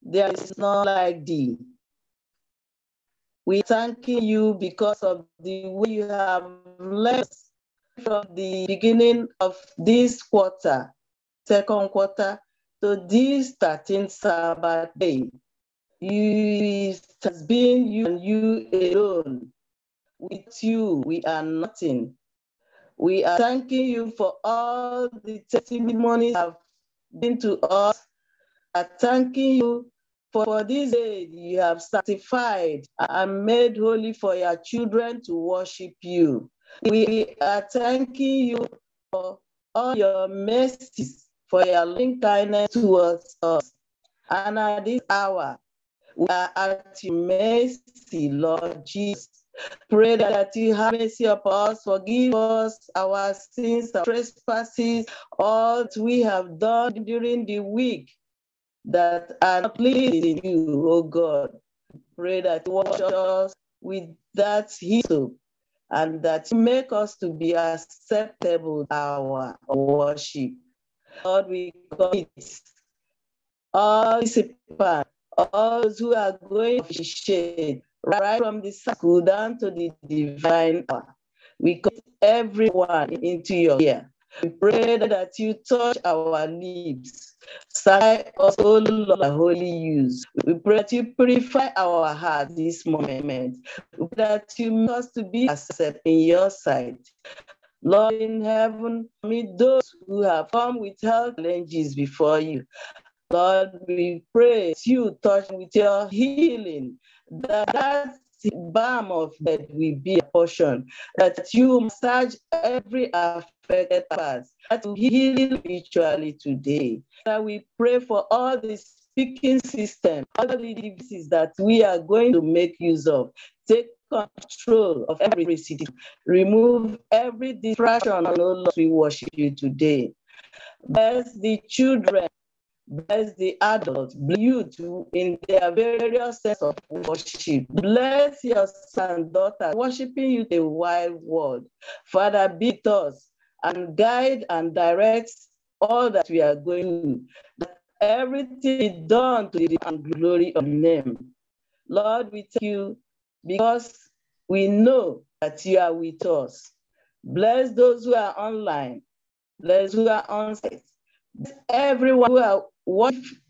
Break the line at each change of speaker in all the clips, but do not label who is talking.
There is none like thee. We thank you because of the way you have blessed from the beginning of this quarter, second quarter, to this 13th Sabbath day. You, it has been you and you alone. With you, we are nothing. We are thanking you for all the testimonies have been to us are thanking you for, for this day you have sanctified and made holy for your children to worship you. We are thanking you for all your mercies, for your loving kindness towards us. And at this hour, we are at your mercy, Lord Jesus. Pray that you have mercy upon us, forgive us our sins, our trespasses, all we have done during the week that are pleasing you, O God. Pray that you wash us with that hyssop and that you make us to be acceptable our worship. Lord, we commit all participants, all those who are going to shade, right from the school down to the divine hour. We commit everyone into your ear. We pray that you touch our lips sight us, O Lord, holy use. We pray that you purify our heart this moment, that you make us to be accepted in your sight. Lord in heaven, meet those who have come with health challenges before you. Lord, we pray you touch with your healing, that, that balm of that will be a portion, that you massage every affliction affected us that will heal virtually today. That we pray for all the speaking system, all the devices that we are going to make use of. Take control of every city. Remove every distraction. Oh Lord, we worship you today. Bless the children. Bless the adults, youth in their various sense of worship. Bless your son, daughter, worshiping you the wide world. Father, beat us and guide and direct all that we are going, that everything is done to the glory of your name. Lord, we thank you because we know that you are with us. Bless those who are online. Bless who are on site. Bless everyone who are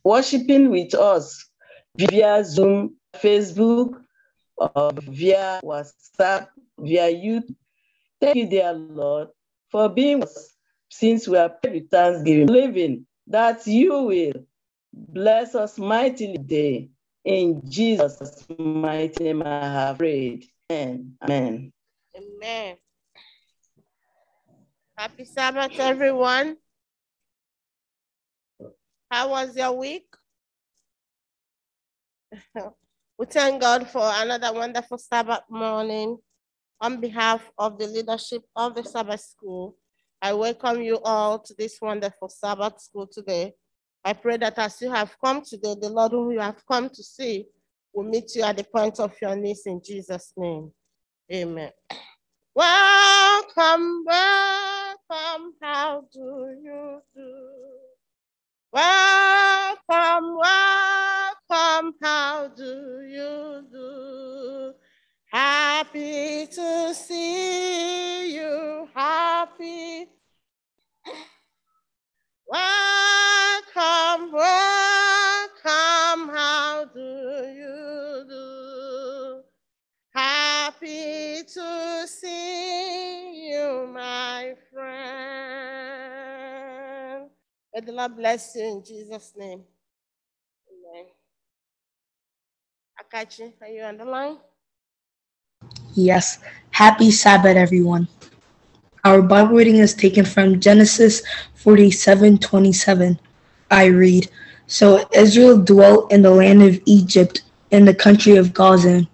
worshiping with us via Zoom, Facebook, or via WhatsApp, via YouTube. Thank you, dear Lord, for being with us, since we are with thanksgiving, believing that you will bless us mightily today. In Jesus' mighty name, I have prayed. Amen. Amen.
Amen. Happy Sabbath, everyone. How
was your week?
we thank God for another wonderful Sabbath morning. On behalf of the leadership of the Sabbath School, I welcome you all to this wonderful Sabbath School today. I pray that as you have come today, the Lord whom you have come to see will meet you at the point of your knees in Jesus' name. Amen. Welcome, welcome, how do you do? Welcome, welcome, how do you do? Happy to see you, happy. Welcome, welcome, how do you do? Happy to see you, my friend. May the Lord bless you in Jesus' name. Amen. Akachi, are you on the line?
Yes, happy Sabbath, everyone. Our Bible reading is taken from Genesis 47 27. I read So Israel dwelt in the land of Egypt, in the country of Gazan,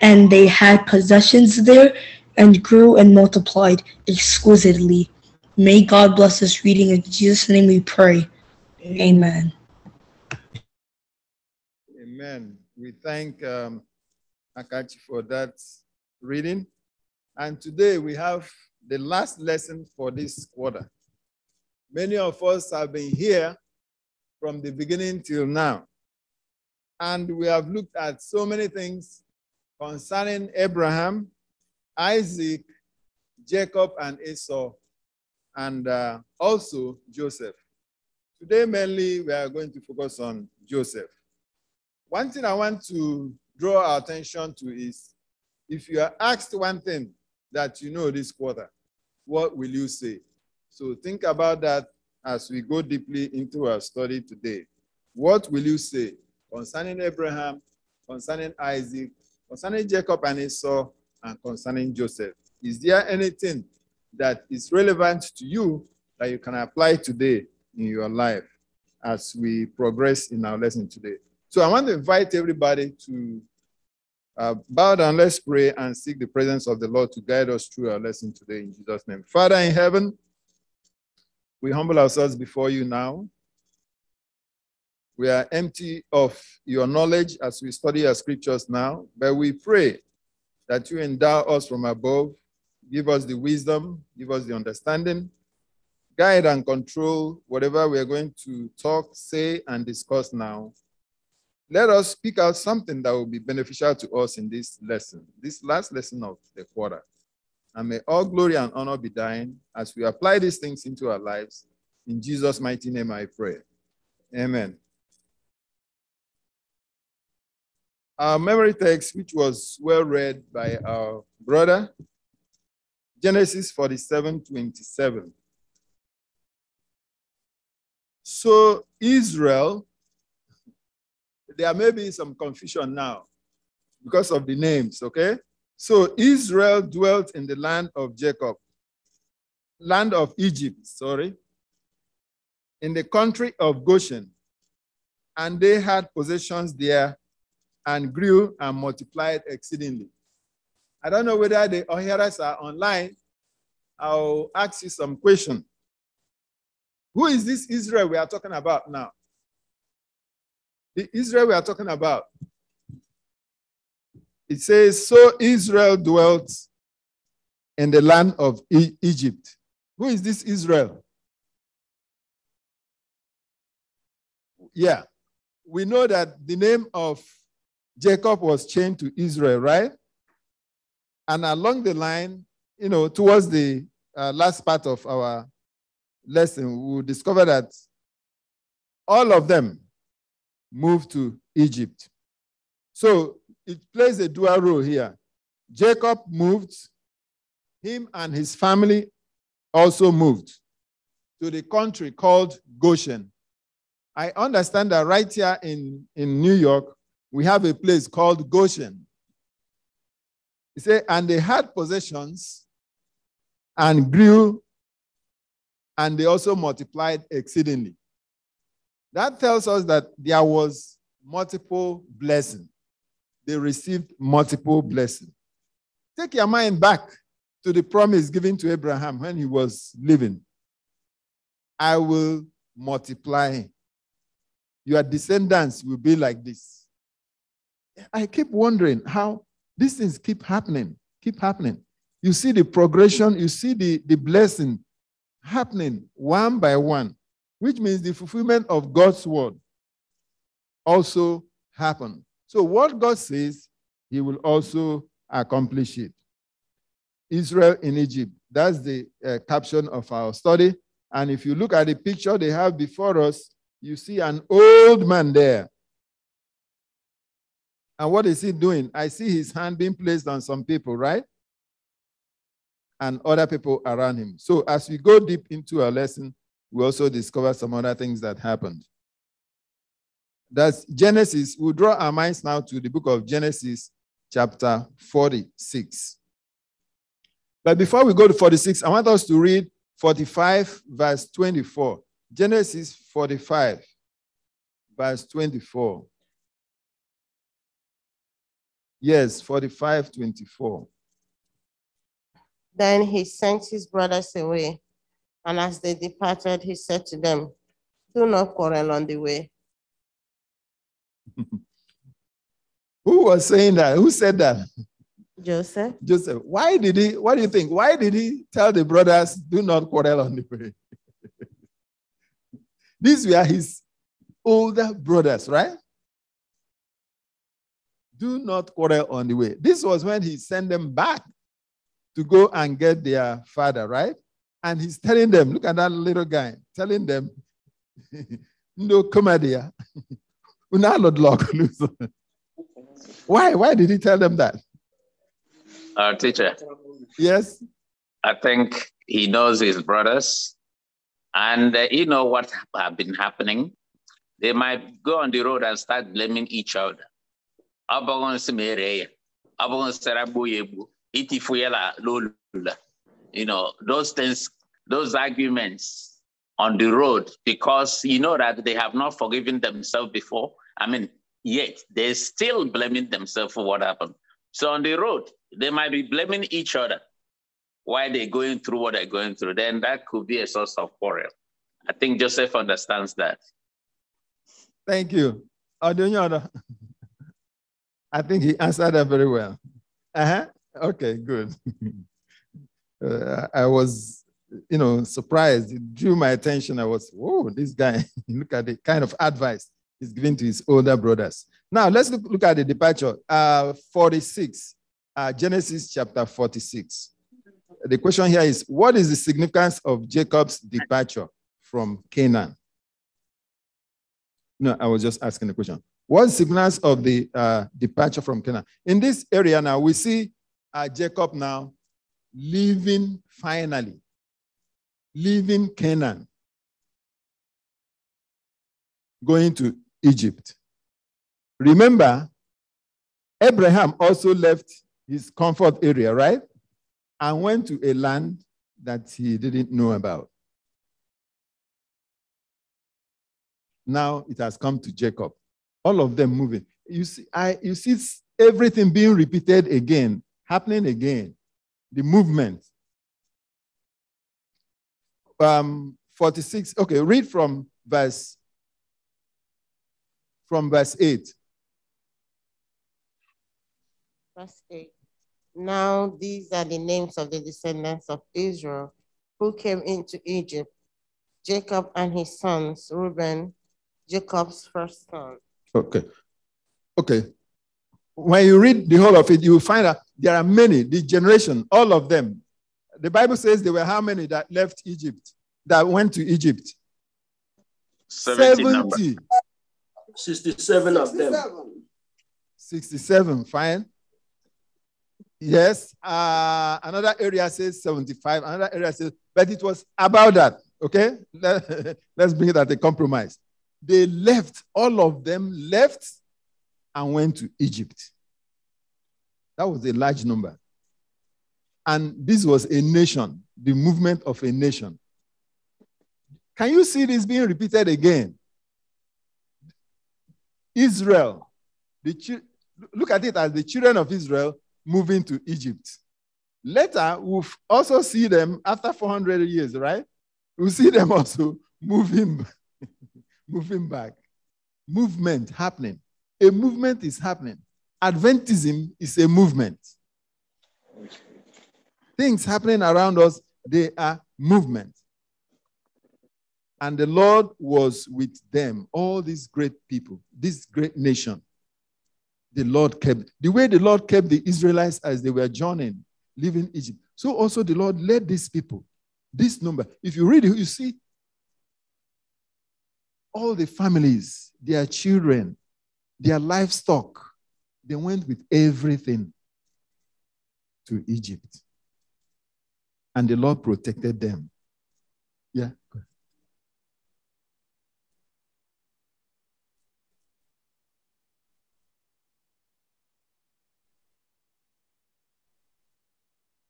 and they had possessions there and grew and multiplied exquisitely. May God bless this reading. In Jesus' name we pray. Amen.
Amen. We thank um, Akachi for that reading. And today we have the last lesson for this quarter. Many of us have been here from the beginning till now. And we have looked at so many things concerning Abraham, Isaac, Jacob, and Esau, and uh, also Joseph. Today, mainly, we are going to focus on Joseph. One thing I want to draw our attention to is if you are asked one thing that you know this quarter, what will you say? So think about that as we go deeply into our study today. What will you say concerning Abraham, concerning Isaac, concerning Jacob and Esau, and concerning Joseph? Is there anything that is relevant to you that you can apply today in your life as we progress in our lesson today? So I want to invite everybody to uh, bow down, let's pray and seek the presence of the Lord to guide us through our lesson today in Jesus' name. Father in heaven, we humble ourselves before you now. We are empty of your knowledge as we study our scriptures now, but we pray that you endow us from above, give us the wisdom, give us the understanding, guide and control whatever we are going to talk, say, and discuss now let us speak out something that will be beneficial to us in this lesson, this last lesson of the quarter. And may all glory and honor be thine as we apply these things into our lives. In Jesus' mighty name I pray. Amen. Our memory text, which was well read by our brother, Genesis 47 27. So Israel there may be some confusion now because of the names, okay? So Israel dwelt in the land of Jacob, land of Egypt, sorry, in the country of Goshen, and they had possessions there and grew and multiplied exceedingly. I don't know whether the O'Hara's are online. I'll ask you some question. Who is this Israel we are talking about now? the Israel we are talking about. It says, So Israel dwelt in the land of e- Egypt. Who is this Israel? Yeah, we know that the name of Jacob was changed to Israel, right? And along the line, you know, towards the uh, last part of our lesson, we will discover that all of them moved to Egypt. So it plays a dual role here. Jacob moved, him and his family also moved to the country called Goshen. I understand that right here in, in New York, we have a place called Goshen. He said, and they had possessions and grew, and they also multiplied exceedingly. That tells us that there was multiple blessing. They received multiple blessing. Take your mind back to the promise given to Abraham when he was living. I will multiply. Your descendants will be like this. I keep wondering how these things keep happening, keep happening. You see the progression, you see the, the blessing happening one by one which means the fulfillment of God's word also happened. So, what God says, He will also accomplish it. Israel in Egypt. That's the uh, caption of our study. And if you look at the picture they have before us, you see an old man there. And what is he doing? I see his hand being placed on some people, right? And other people around him. So as we go deep into our lesson, we also discover some other things that happened. That's Genesis. we we'll draw our minds now to the book of Genesis, chapter 46. But before we go to 46, I want us to read 45, verse 24. Genesis 45, verse 24. Yes, 45, 24.
Then he sent his brothers away and as they departed, he said to them, Do not quarrel on the way.
Who was saying that? Who said that? Joseph. Joseph. Why did he, what do you think? Why did he tell the brothers, do not quarrel on the way? These were his older brothers, right? Do not quarrel on the way. This was when he sent them back to go and get their father, right? And he's telling them, look at that little guy, telling them, no comedia. why? Why did he tell them that? Our uh, teacher. Yes.
I think he knows his brothers and uh, you know what have been happening. They might go on the road and start blaming each other you know, those things, those arguments on the road because you know that they have not forgiven themselves before. I mean, yet they're still blaming themselves for what happened. So on the road, they might be blaming each other why they're going through what they're going through. Then that could be a source of quarrel. I think Joseph understands that.
Thank you. Adonyoda. I think he answered that very well. Uh-huh. Okay, good. uh, I was, you know, surprised. It drew my attention. I was, whoa, this guy, look at the kind of advice he's giving to his older brothers. Now, let's look, look at the departure. Uh, 46, uh, Genesis chapter 46. The question here is What is the significance of Jacob's departure from Canaan? No, I was just asking the question. What significance of the uh, departure from Canaan? In this area now, we see uh, Jacob now leaving finally, leaving Canaan, going to Egypt. Remember, Abraham also left his comfort area, right? And went to a land that he didn't know about. Now it has come to Jacob. All of them moving. You see, I, you see everything being repeated again, happening again the movement. Um, 46, okay, read from verse from verse 8.
Verse 8. Now these are the names of the descendants of Israel who came into Egypt, Jacob and his sons, Reuben, Jacob's first
son. Okay. Okay. When you read the whole of it, you will find out there are many, the generation, all of them. The Bible says there were how many that left Egypt, that went to Egypt? 70. 70. 67 of them. 67, fine. Yes, uh, another area says 75, another area says, but it was about that, okay? Let's bring it at a compromise. They left, all of them left and went to Egypt. That was a large number. And this was a nation, the movement of a nation. Can you see this being repeated again? Israel, the, look at it as the children of Israel moving to Egypt. Later, we'll also see them after 400 years, right? We'll see them also moving, moving back. Movement happening. A movement is happening. Adventism is a movement. Things happening around us, they are movement. And the Lord was with them, all these great people, this great nation. The Lord kept, the way the Lord kept the Israelites as they were journeying, leaving Egypt. So also the Lord led these people, this number. If you read it, you see all the families, their children, their livestock, they went with everything to Egypt. And the Lord protected them. Yeah.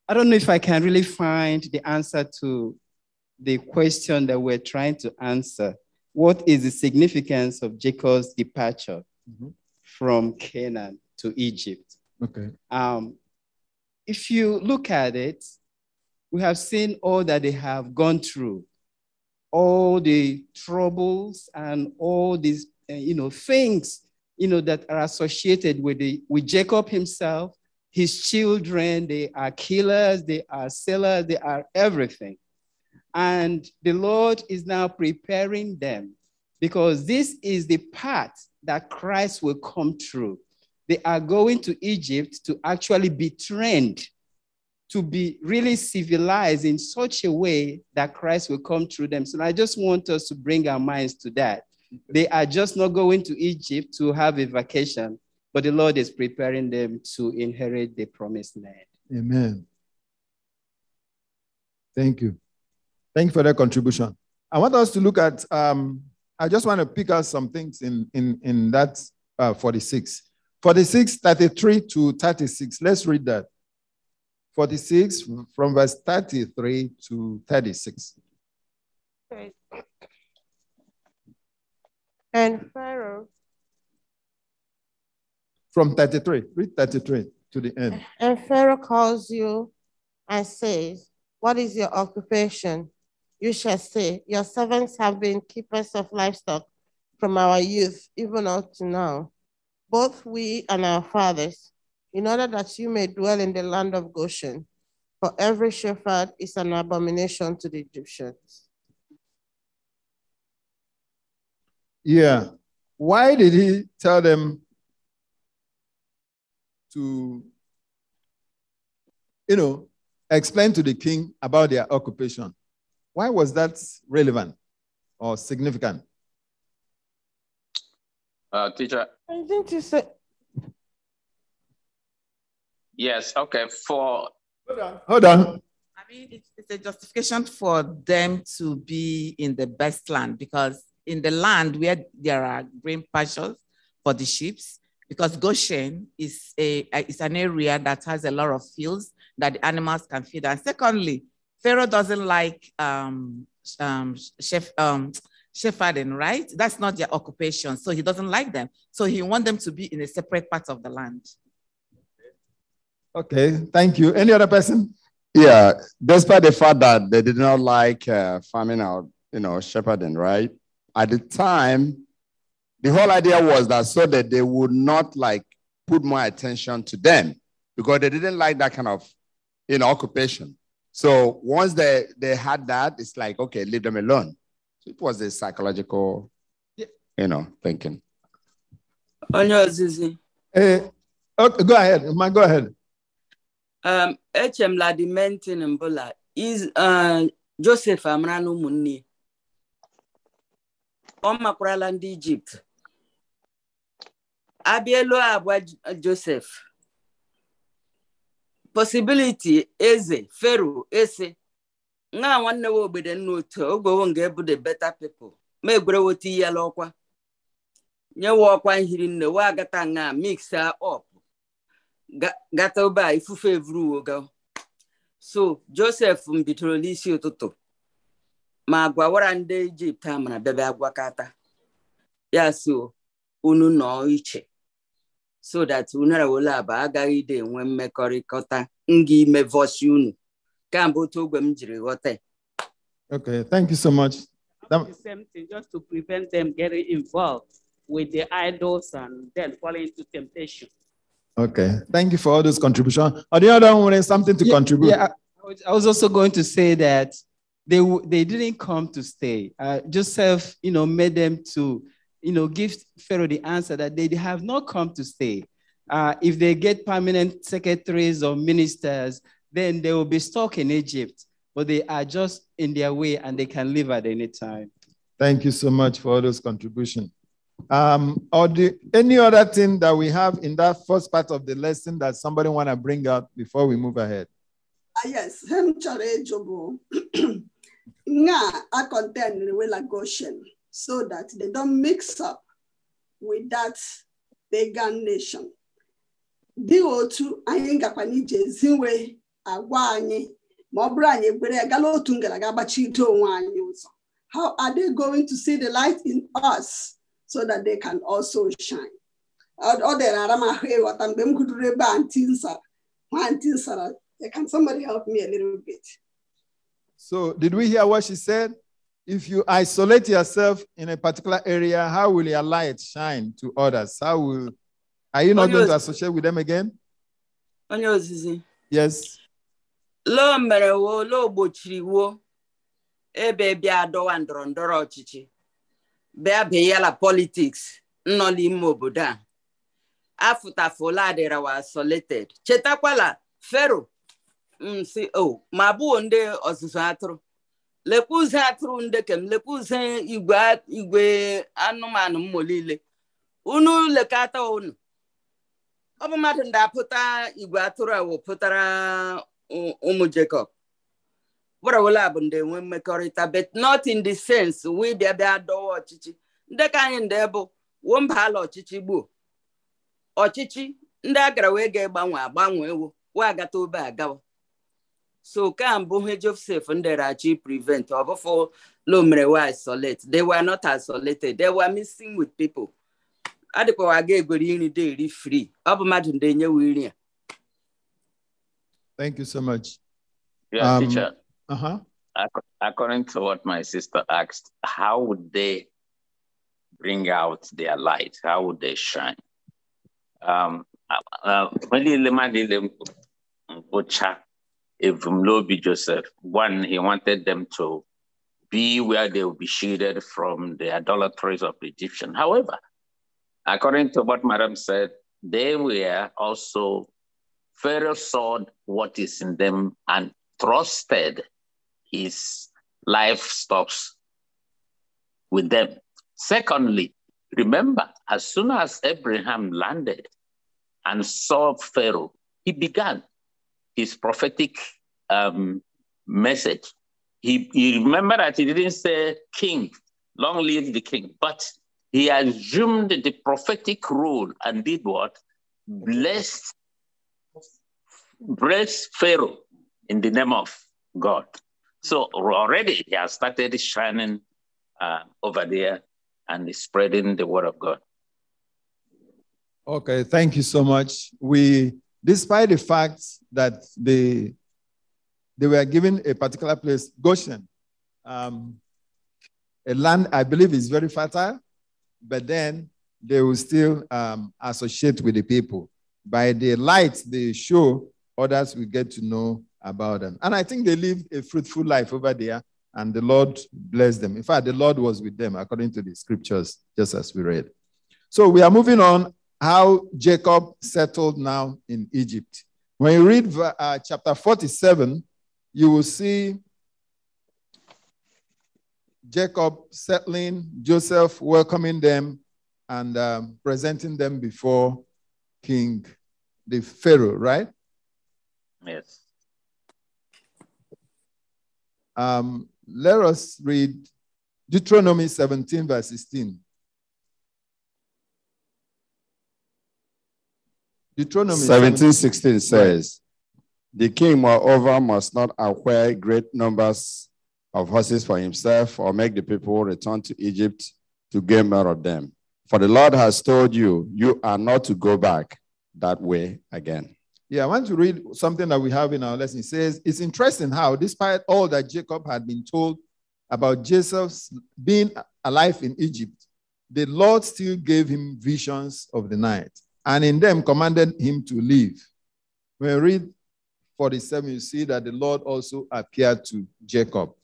I don't know if I can really find the answer to the question that we're trying to answer. What is the significance of Jacob's departure mm-hmm. from Canaan? to Egypt. Okay. Um, if you look at it, we have seen all that they have gone through, all the troubles and all these, uh, you know, things, you know, that are associated with the, with Jacob himself, his children. They are killers. They are sellers. They are everything. And the Lord is now preparing them because this is the path that Christ will come through they are going to Egypt to actually be trained to be really civilized in such a way that Christ will come through them. So I just want us to bring our minds to that. They are just not going to Egypt to have a vacation, but the Lord is preparing them to inherit the promised land.
Amen. Thank you. Thank you for that contribution. I want us to look at, um, I just want to pick out some things in, in, in that uh, 46. 46, 33 to 36. Let's read that. 46 from verse 33 to 36.
And Pharaoh.
From 33, read 33 to the end.
And Pharaoh calls you and says, What is your occupation? You shall say, Your servants have been keepers of livestock from our youth, even up to now both we and our fathers, in order that you may dwell in the land of Goshen. For every shepherd is an abomination to the Egyptians.
Yeah. Why did he tell them to, you know, explain to the king about their occupation? Why was that relevant or significant?
Uh, teacher.
I think you said. Yes, okay, for. Hold on, hold on. I mean, it's a justification for them to be in the best land because in the land where there are green pastures for the sheep, because Goshen is a is an area that has a lot of fields that the animals can feed. And secondly, Pharaoh doesn't like um, um, chef um, shepherding, right? That's not their occupation. So he doesn't like them. So he wants them to be in a separate part of the land. Okay,
thank you. Any other person? Yeah, despite the fact that they did not like uh,
farming or you know shepherding, right? At the time, the whole idea was that so that they would not like put more attention to them because they didn't like that kind of you know occupation. So once they they had that, it's like okay, leave them alone. It was a psychological,
you know, thinking.
Onye
ozizi.
Hey, eh, okay, go ahead. go ahead.
Um, Echem Ladimentin Mbula is uh, Joseph amara na ụmụnne ọ makwarala ndị Ijipt abụọ Joseph Possibility eze fero ese nna nwanne wa obodo nna otu ogbewo nga ebu beta better people ma egwerewota iyela ọkwa nyewa ọkwa nhiri nne we agata nga mix up gata obe a ifufe evuru ga so josef m n'isi ụtụtụ ma gwawara ndị ijipt a mara bebe agwakọta ya so unu nọ iche so that unara agaghị ide enwe mmekọrịta nga ime vosi unu Okay,
thank you so much. That... The
same thing, just to prevent them getting involved with the
idols and then falling into temptation.
Okay, thank you for all those contributions. Are the other one something to yeah, contribute? Yeah,
I was also going to say that they they didn't come to stay. Uh, Joseph, you know, made them to, you know, give Pharaoh the answer that they have not come to stay. Uh, if they get permanent secretaries or ministers, then they will be stuck in Egypt, but they are just in their way and they can leave at any time.
Thank you so much for all those contributions. Um, or the, any other thing that we have in that first part of the lesson that somebody want to bring out before we move ahead?
Uh, yes, I'm challenging. Nga I contend with Goshen so that they don't mix up with that pagan nation. Dị otu anyị gakwa in ezi agwa anyị ma ọ bụrụ anyị gala otu gbachite onwe anyị ụzọ how are they going to see the light in us so that they can also shine ọ dịrị ara ịghọta mgbe m gụduru ebe nsara nsara can somebody help me a little bit
so did we hear what she said if you isolate yourself in a particular area how will your light shine to others how will are you not going to associate with them again?
Yes. loo mere woo loo gbochiri woo ebe bịa dọwa ndọrọ ndọrọ ọchịchị bịa beyala politiks nọ n'ime obodo a afụtafola adịrawa isolated chetakwala fero msi o ma bụo ndị ọzụzụ atụrụ lekwa ụzọ atụrụ ndekem lekwa ụzọ igwe anụmanụ mmụ niile unu lekata unu ọ bụ mmadụ ndị apụta igwe atụrụ awụ pụtara ụmụ Jacob werawela bụ ndị enwe mmekọrịta but not in the sense wee bịa bịa dọwa ọchịchị ndị ka anyị ndị bụ wuo mba ala ọchịchị gbuo ọchịchị ndị agara wee ga-egbanwe agbanwe ewo wee agata obe agawa so kambụ he Joseph nderachi prevent ọ bụfụ lomere we isolate they were not isolated they were missing with people adịkwawa ga egwere nri dị eri free ọ bụ mmadụ ndị enyewe nri a
Thank you so much. Yeah, um, teacher. Uh-huh. According to what my sister asked, how would they bring out their light? How would they shine? Um, uh, Evumlobi Joseph, one, he wanted them to be where they will be shielded from the idolatries of the Egyptian. However, according to what Madam said, they were also Pharaoh saw what is in them and trusted his livestock with them. Secondly, remember, as soon as Abraham landed and saw Pharaoh, he began his prophetic um, message. He, he remember that he didn't say king, long live the king, but he assumed the prophetic role and did what? Blessed Bless Pharaoh in the name of God. So already he has started shining uh, over there and spreading the word of God.
Okay, thank you so much. We, despite the fact that they, they were given a particular place, Goshen, um, a land I believe is very fertile, but then they will still um, associate with the people. By the light they show others will get to know about them. And I think they live a fruitful life over there, and the Lord blessed them. In fact, the Lord was with them according to the scriptures, just as we read. So we are moving on how Jacob settled now in Egypt. When you read uh, chapter 47, you will see Jacob settling, Joseph welcoming them and um, presenting them before King the Pharaoh, right? Yes. Um, let us read Deuteronomy 17, verse 16. Deuteronomy 17, 16 says,
The king, moreover, must not acquire great numbers of horses for himself or make the people return to Egypt to gain more of them. For the Lord has told you, you are not to go back that way again.
Yeah, I want to read something that we have in our lesson. It says, It's interesting how, despite all that Jacob had been told about Joseph's being alive in Egypt, the Lord still gave him visions of the night and in them commanded him to leave. When we read 47, you see that the Lord also appeared to Jacob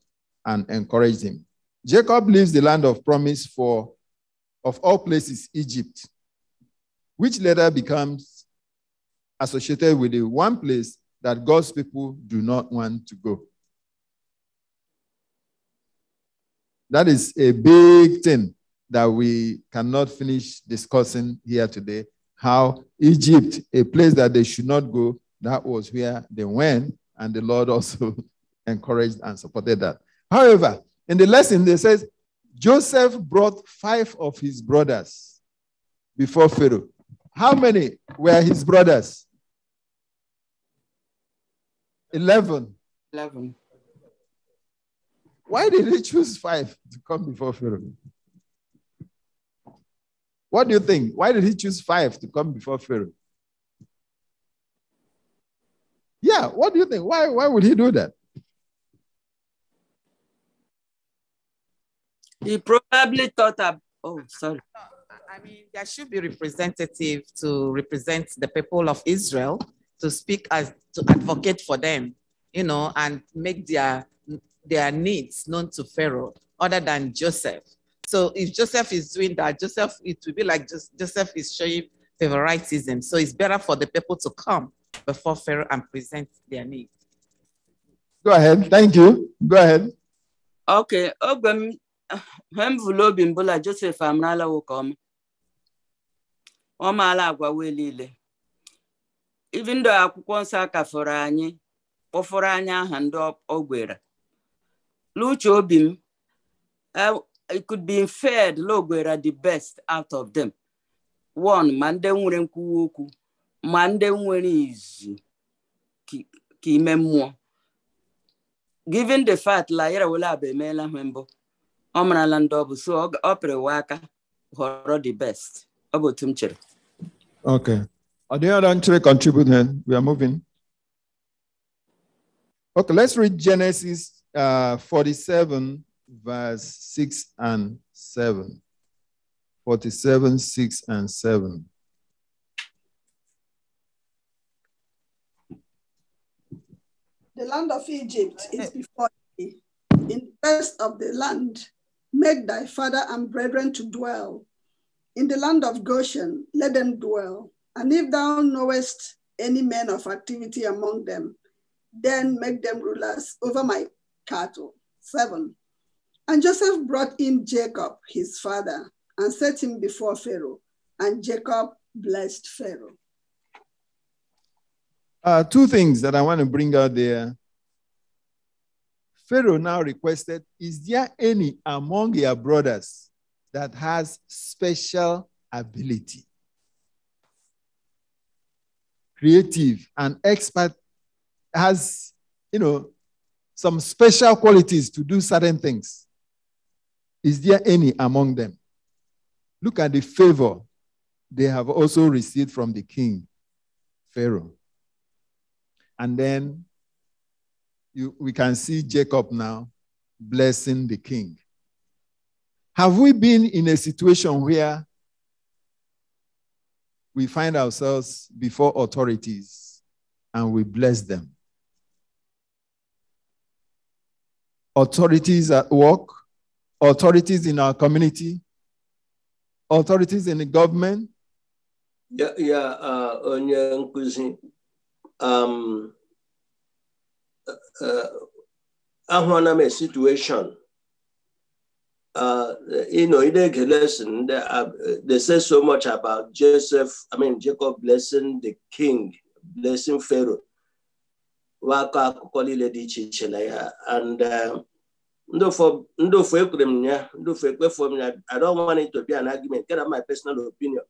and encouraged him. Jacob leaves the land of promise for, of all places, Egypt, which later becomes associated with the one place that God's people do not want to go. That is a big thing that we cannot finish discussing here today. How Egypt, a place that they should not go, that was where they went, and the Lord also encouraged and supported that. However, in the lesson, they says Joseph brought five of his brothers before Pharaoh. How many were his brothers? 11. 11. Why did he choose five to come before Pharaoh? What do you think? Why did he choose five to come before Pharaoh? Yeah, what do you think? Why, why would he do that?
He probably thought of, oh, sorry. I mean, there should be representative to represent the people of Israel to speak as to advocate for them, you know, and make their their needs known to Pharaoh, other than Joseph. So if Joseph is doing that, Joseph, it will be like just, Joseph is showing favoritism. So it's better for the people to come before Pharaoh and present their needs.
Go ahead. Thank you. Go ahead.
Okay.
Ogbem Hemvulo Bimbola Joseph Amrala will come. Omala Agwa Welile. ibi ndụ akwụkwọ nsọ akafọrọ anyị kpọfọrọ anyị aha ndị ogwera n'uche obi m e, it could be inferred n'ogwera the best out of them one ma ndị nwere nkwuwa okwu ma ndị nwere izu ka ime mmụọ given the fact la yara wele abụ emeela ha mbụ ọ marala ndị ọ bụ so ọ pịrịwa aka họrọ the best ọ bụ otu
m chere Are the other three Then We are moving. Okay, let's read Genesis uh, 47, verse 6 and 7. 47, 6 and 7.
The land of Egypt is before thee. In the best of the land, make thy father and brethren to dwell. In the land of Goshen, let them dwell and if thou knowest any men of activity among them, then make them rulers over my cattle. Seven. And Joseph brought in Jacob, his father, and set him before Pharaoh. And Jacob blessed Pharaoh.
Uh, two things that I want to bring out there. Pharaoh now requested, Is there any among your brothers that has special ability? creative, and expert, has, you know, some special qualities to do certain things. Is there any among them? Look at the favor they have also received from the king, Pharaoh. And then you, we can see Jacob now blessing the king. Have we been in a situation where we find ourselves before authorities and we bless them. Authorities at work, authorities in our community, authorities in the government.
Yeah, yeah, uh, onye nkuzi. Um, uh, uh ahụla m situation uh, you know, in the lesson, they, uh, they say so much about Joseph, I mean, Jacob blessing the king, blessing Pharaoh. And uh, I don't want it to be an argument. Get out my personal opinion.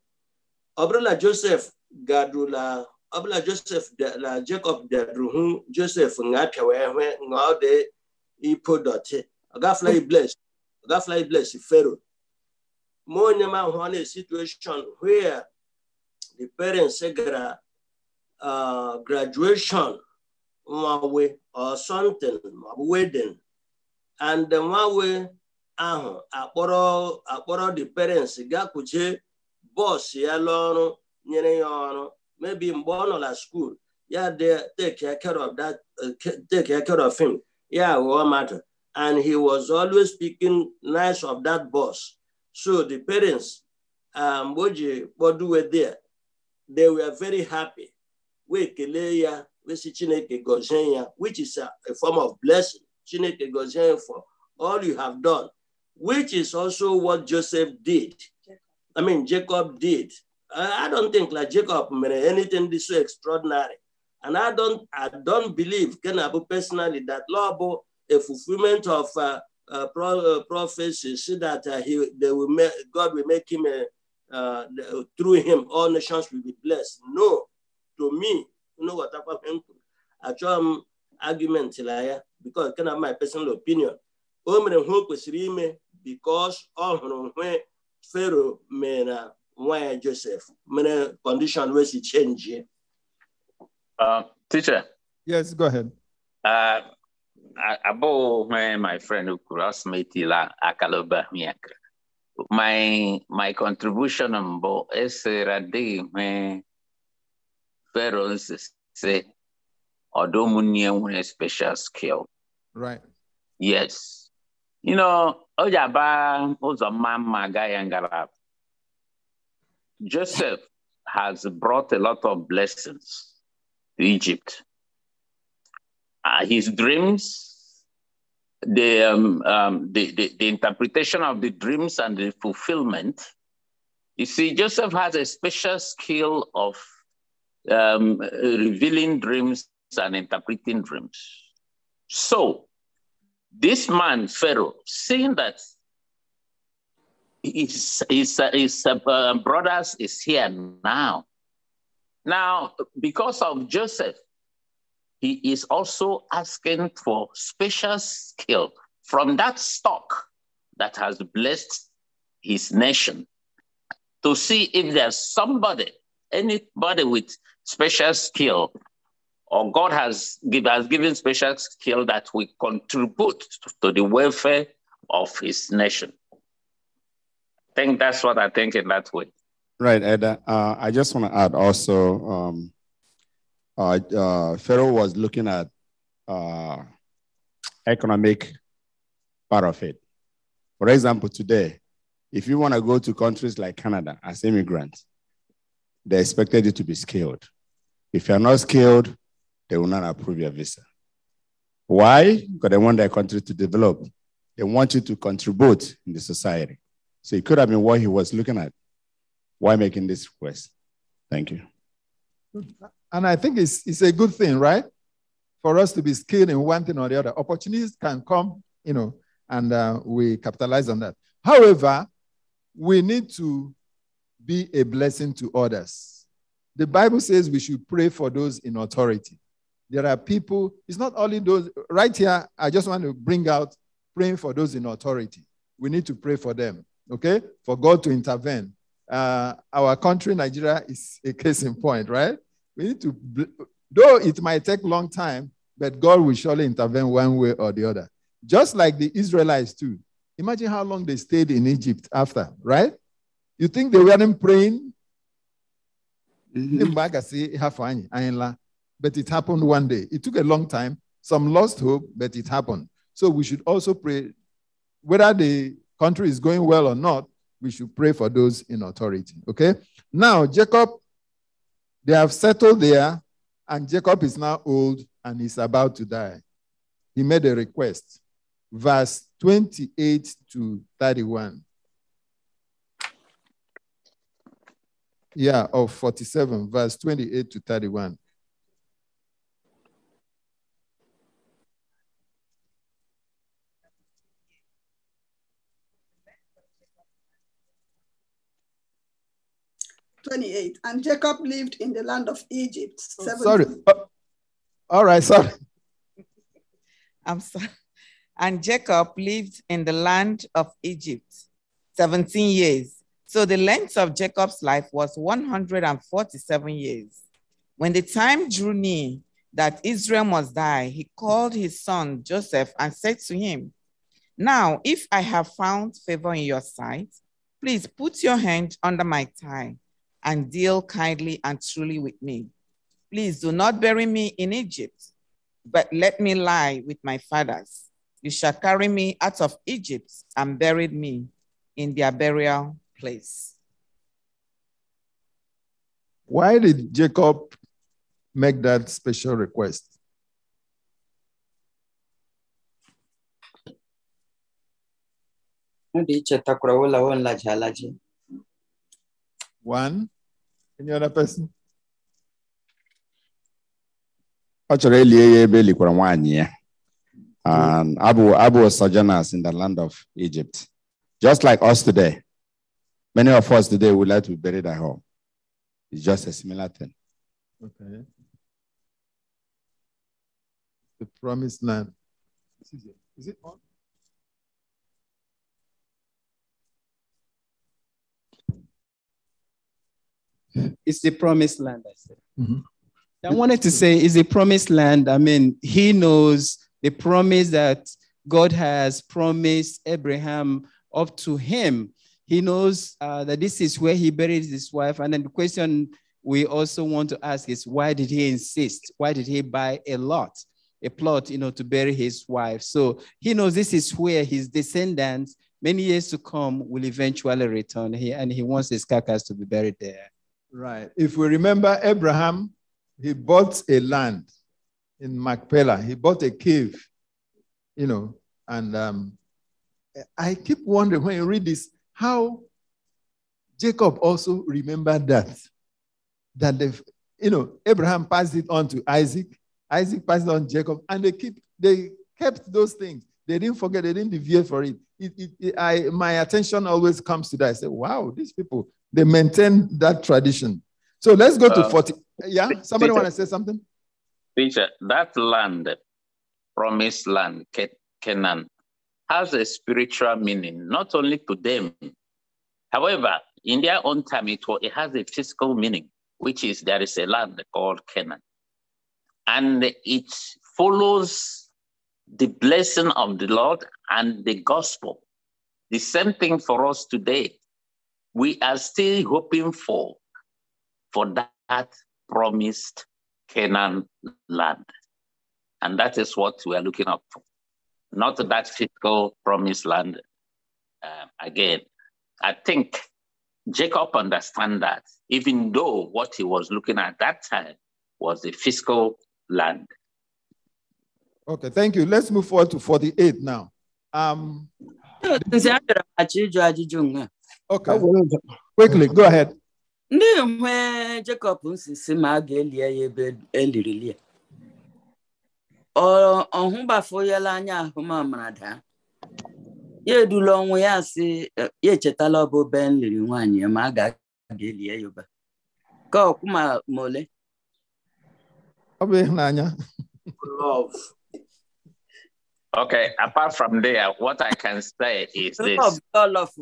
obrola Joseph gadula obrola Joseph la Jacob dadruhu Joseph ngatia wewe ngaude ipo dote. Agafla blessed. fly, bless Pharaoh. More on a situation where the parents gra- uh, graduation nwawe or something wedding and nwawe ahụ uh-huh, akpọrọ akpọrọ the parents gakwuje bọs ya n'ọrụ nyere ya ọrụ maybe mgbe ọ nọ na school ya take care of that uh, take care of him ya ghọọ mmadụ and he was always speaking nice of that boss. So the parents, um, Boji, Bodu were there. They were very happy. We keleya, we si chineke gozenya, which is a, a form of blessing. Chineke gozenya for all you have done, which is also what Joseph did. I mean, Jacob did. I, don't think like Jacob made anything this so extraordinary. And I don't, I don't believe, Kenabu personally, that Lobo a fulfillment of uh, uh, pro- uh, prophecy, so that uh, he, they will make, God will make him, a, uh, through him, all nations will be blessed. No, to me, you know what happened? Achọm um, argument la ya, because kind of my personal opinion. O mere ihe because ọ hụrụ nwe Pharaoh why Joseph mere condition wee change.
teacher.
Yes, go ahead.
Uh, abou when my friend Ukurasmiti la akaloba miakra. My my contribution on bo es radi me pharaohs say odomunian a special skill. Right. Yes. You know, Ojaba was a man Magayangarab. Joseph has brought a lot of blessings to Egypt uh, his dreams, the, um, um, the, the, the interpretation of the dreams and the fulfillment. You see, Joseph has a special skill of um, revealing dreams and interpreting dreams. So, this man, Pharaoh, seeing that his, his, his uh, brothers is here now. Now, because of Joseph, he is also asking for special skill from that stock that has blessed his nation to see if there's somebody, anybody with special skill, or God has, give, has given special skill that will contribute to the welfare of his nation. I think that's what I think in that way. Right, Eda.
Uh, I just want to add also um, uh, uh, Pharaoh was looking at uh, economic part of it. For example, today, if you want to go to countries like Canada as immigrants, they expected you to be skilled. If you're not skilled, they will not approve your visa. Why? Because they want their country to develop. They want you to contribute in the society. So it could have been what he was looking at. Why making this
request? Thank you.
Hmm. And I think it's, it's a good thing, right? For us to be skilled in one thing or the other. Opportunities can come, you know, and uh, we capitalize on that. However, we need to be a blessing to others. The Bible says we should pray for those in authority. There are people, it's not only those, right here, I just want to bring out praying for those in authority. We need to pray for them, okay? For God to intervene. Uh, our country, Nigeria, is a case in point, right? We need to, though it might take long time, but God will surely intervene one way or the other. Just like the Israelites, too. Imagine how long they stayed in Egypt after, right? You think they weren't praying? Mm-hmm. But it happened one day. It took a long time. Some lost hope, but it happened. So we should also pray. Whether the country is going well or not, we should pray for those in authority. Okay? Now, Jacob they have settled there, and Jacob is now old and is about to die. He made a request. Verse 28 to 31. Yeah, of 47, verse 28 to 31.
28. And Jacob lived in the land of Egypt. Oh, sorry.
Oh,
all right, sorry. I'm sorry. And Jacob lived in the land of Egypt 17 years. So the length of Jacob's life was 147 years. When the time drew near that Israel must die, he called his son Joseph and said to him, Now, if I have found favor in your sight, please put your hand under my thigh and deal kindly and truly with me. Please do not bury me in Egypt, but let me lie with my fathers. You shall carry me out of Egypt and bury me in their burial place.
Why did Jacob make that special request? One. Any other person?
And Abu Abu sojourners in the land of Egypt. Just like us today. Many of us today would like to be buried at home. It's just a similar thing.
Okay. The promised land. Is it on?
It's the promised land, I said. Mm-hmm. I wanted to say it's the promised land. I mean, he knows the promise that God has promised Abraham up to him. He knows uh, that this is where he buried his wife. And then the question we also want to ask is why did he insist? Why did he buy a lot, a plot, you know, to bury his wife? So he knows this is where his descendants, many years to come, will eventually return here, and he wants his carcass to be buried there. Right. If we remember Abraham, he bought a land in
Machpelah. He bought a cave, you know, and um, I keep wondering when you read this how Jacob also remembered that. That they, you know, Abraham passed it on to Isaac, Isaac passed on Jacob, and they keep they kept those things. They didn't forget, they didn't deviate for it. it, it, it I, my attention always comes to that. I say, wow, these people, they maintain that tradition. So let's go to uh, 40. Yeah, somebody want to say something?
Teacher, that land, promised land, Canaan, has a spiritual meaning, not only to them. However, in their own time, it, it has a physical meaning, which is there is a land called Canaan. And it follows the blessing of the Lord and the gospel. The same thing for us today we are still hoping for for that promised Canaan land. And that is what we are looking up for. Not that physical promised land uh, again. I think Jacob understand that, even though what he was looking at that time was the fiscal land.
Okay, thank you. Let's move forward to 48 now. Um, Okay. Quickly, go ahead. Ndị
nwe Jekọb nsisi ma a ga-eli ya ebe eliri lie. Ọhụbafoyela anya ahụmamara daa. Ya edula ọnwụ ya si e, ya echetala ọbụ be nliri nwaanyị ma a ga-eli ya ebe. Ka ọkwụ ma ole. Ọ bụ ịhụnanya.
Love. Okay, apart from there, what I can say is this. Love,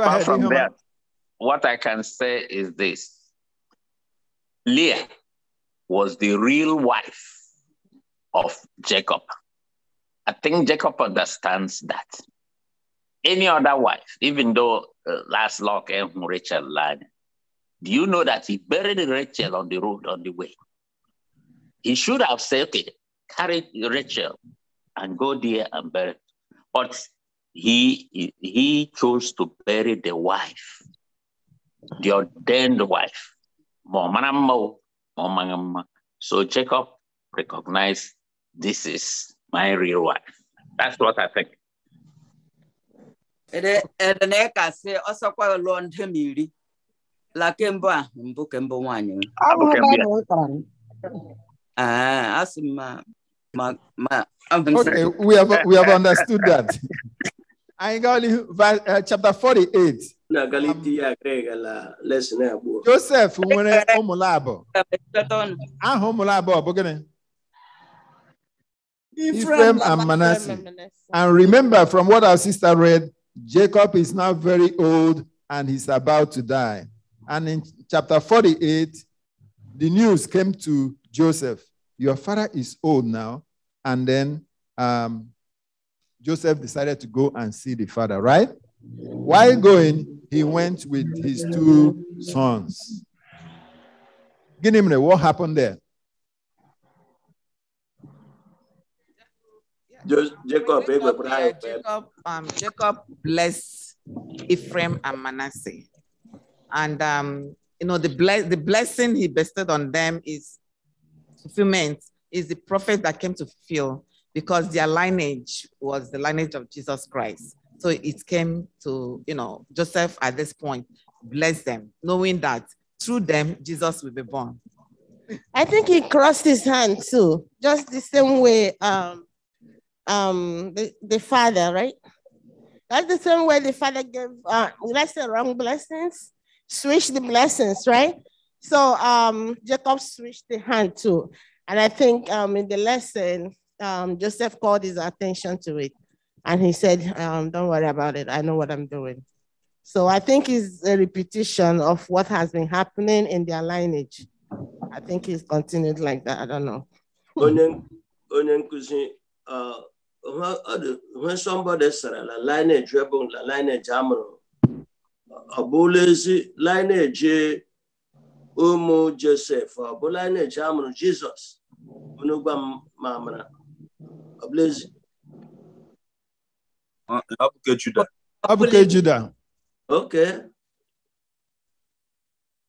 Apart from that, what I can say is this Leah was the real wife of Jacob. I think Jacob understands that. Any other wife, even though uh, last lock and Rachel lied, do you know that he buried Rachel on the road on the way? He should have said, okay, carry Rachel and go there and bury. But he, he chose to bury the wife, the ordained wife. So Jacob recognized this is my real wife. That's what I think.
Okay, we have
we have understood that. Anyị uh, chapter 48.
Na um, Galitia Greg lesson abụọ.
Joseph nwere ụmụla abụọ. Ephraim and Manasseh. And remember from what our sister read, Jacob is now very old and he's about to die. And in chapter 48, the news came to Joseph Your father is old now. And then um, Joseph decided to go and see the father, right? While going, he went with his two sons. Ginimre, what happened
there? Jacob, Jacob,
Jacob, um, Jacob blessed Ephraim and Manasseh. And, um, you know, the, the blessing he bestowed on them is fulfillment, is the prophet that came to fulfill because their lineage was the lineage of Jesus Christ. So it came to, you know, Joseph at this point, bless them, knowing that through them, Jesus will be born.
I think he crossed his hand too, just the same way um, um, the, the father, right? That's the same way the father gave, uh, let's say, wrong blessings, switch the blessings, right? So um, Jacob switched the hand too. And I think um, in the lesson, um, Joseph called his attention to it. And he said, um, Don't worry about it. I know what I'm doing. So I think it's a repetition of what has been happening in their lineage. I think it's continued like that. I don't know.
when uh, somebody said la lineage rebel, la lineage amro, abulezi lineage umu Joseph, abulezi amro Jesus, unugwa mamra. Blaise. Ah, Abuke Judah. Abuke Judah. Okay.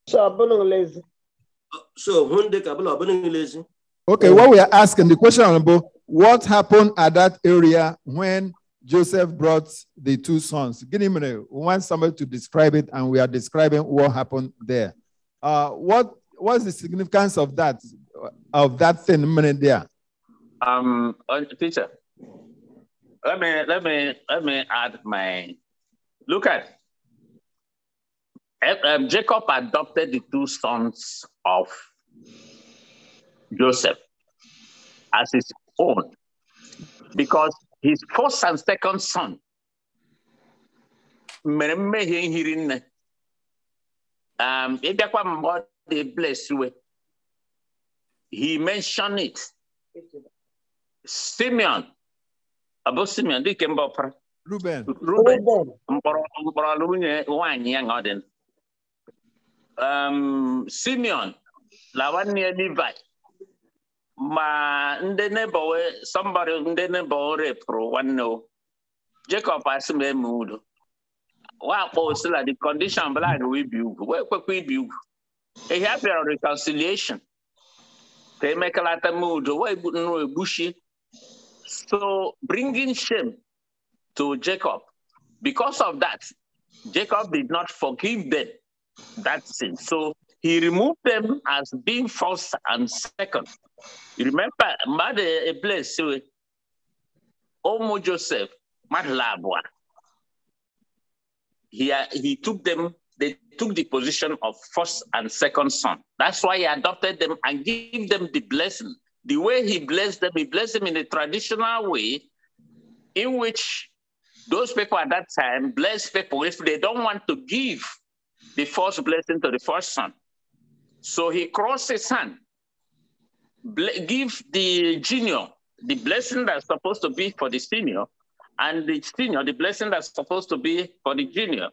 So
Okay, what we are asking the question, Honorable, what happened at that area when Joseph brought the two sons? Give me a want somebody to describe it, and we are describing what happened there. Uh, what was the significance of that of that thing minute there?
Um, uh, teacher, let me let me let me add my look at. Eh, um, Jacob adopted the two sons of Joseph as his own because his first and second son um blessed he mentioned it Simeon. Ọ Simeon dịka mba ọpara.
Ruben. Ruben
mkpọrọ mkpọrọ nwunye nwaanyị ya nga ọ um, Simeon na nwanne ya Levi ma ndị nebo somebody ndị nebo repụrụ nwanne o. Jacob asị m eme udo. wakpo osila the condition blind wee bi ugwu wee kwekwa ibi ugwu ihe a bịara reconciliation ka emekalata m udo wee nnu egbuchie So bringing shame to Jacob. Because of that, Jacob did not forgive them that sin. So he removed them as being first and second. You remember, mother a place, Omo Joseph, mad labwa. He, uh, he took them, they took the position of first and second son. That's why he adopted them and gave them the blessing the way he blessed them, he blessed them in a traditional way in which those people at that time blessed people if they don't want to give the first blessing to the first son. So he crossed his hand, give the junior the blessing that's supposed to be for the senior, and the senior the blessing that's supposed to be for the junior.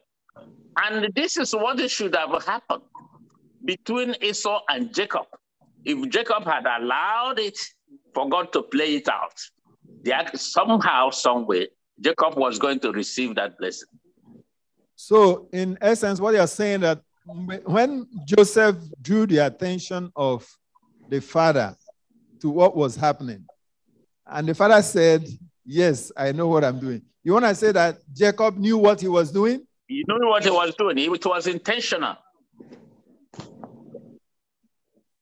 And this is what should have happened between Esau and Jacob if Jacob had allowed it for God to play it out, that somehow, some way, Jacob was going to receive that blessing.
So, in essence, what you're saying that when Joseph drew the attention of the father to what was happening, and the father said, Yes, I know what I'm doing. You want to say that Jacob knew what he was doing?
He knew what he was doing. It was intentional.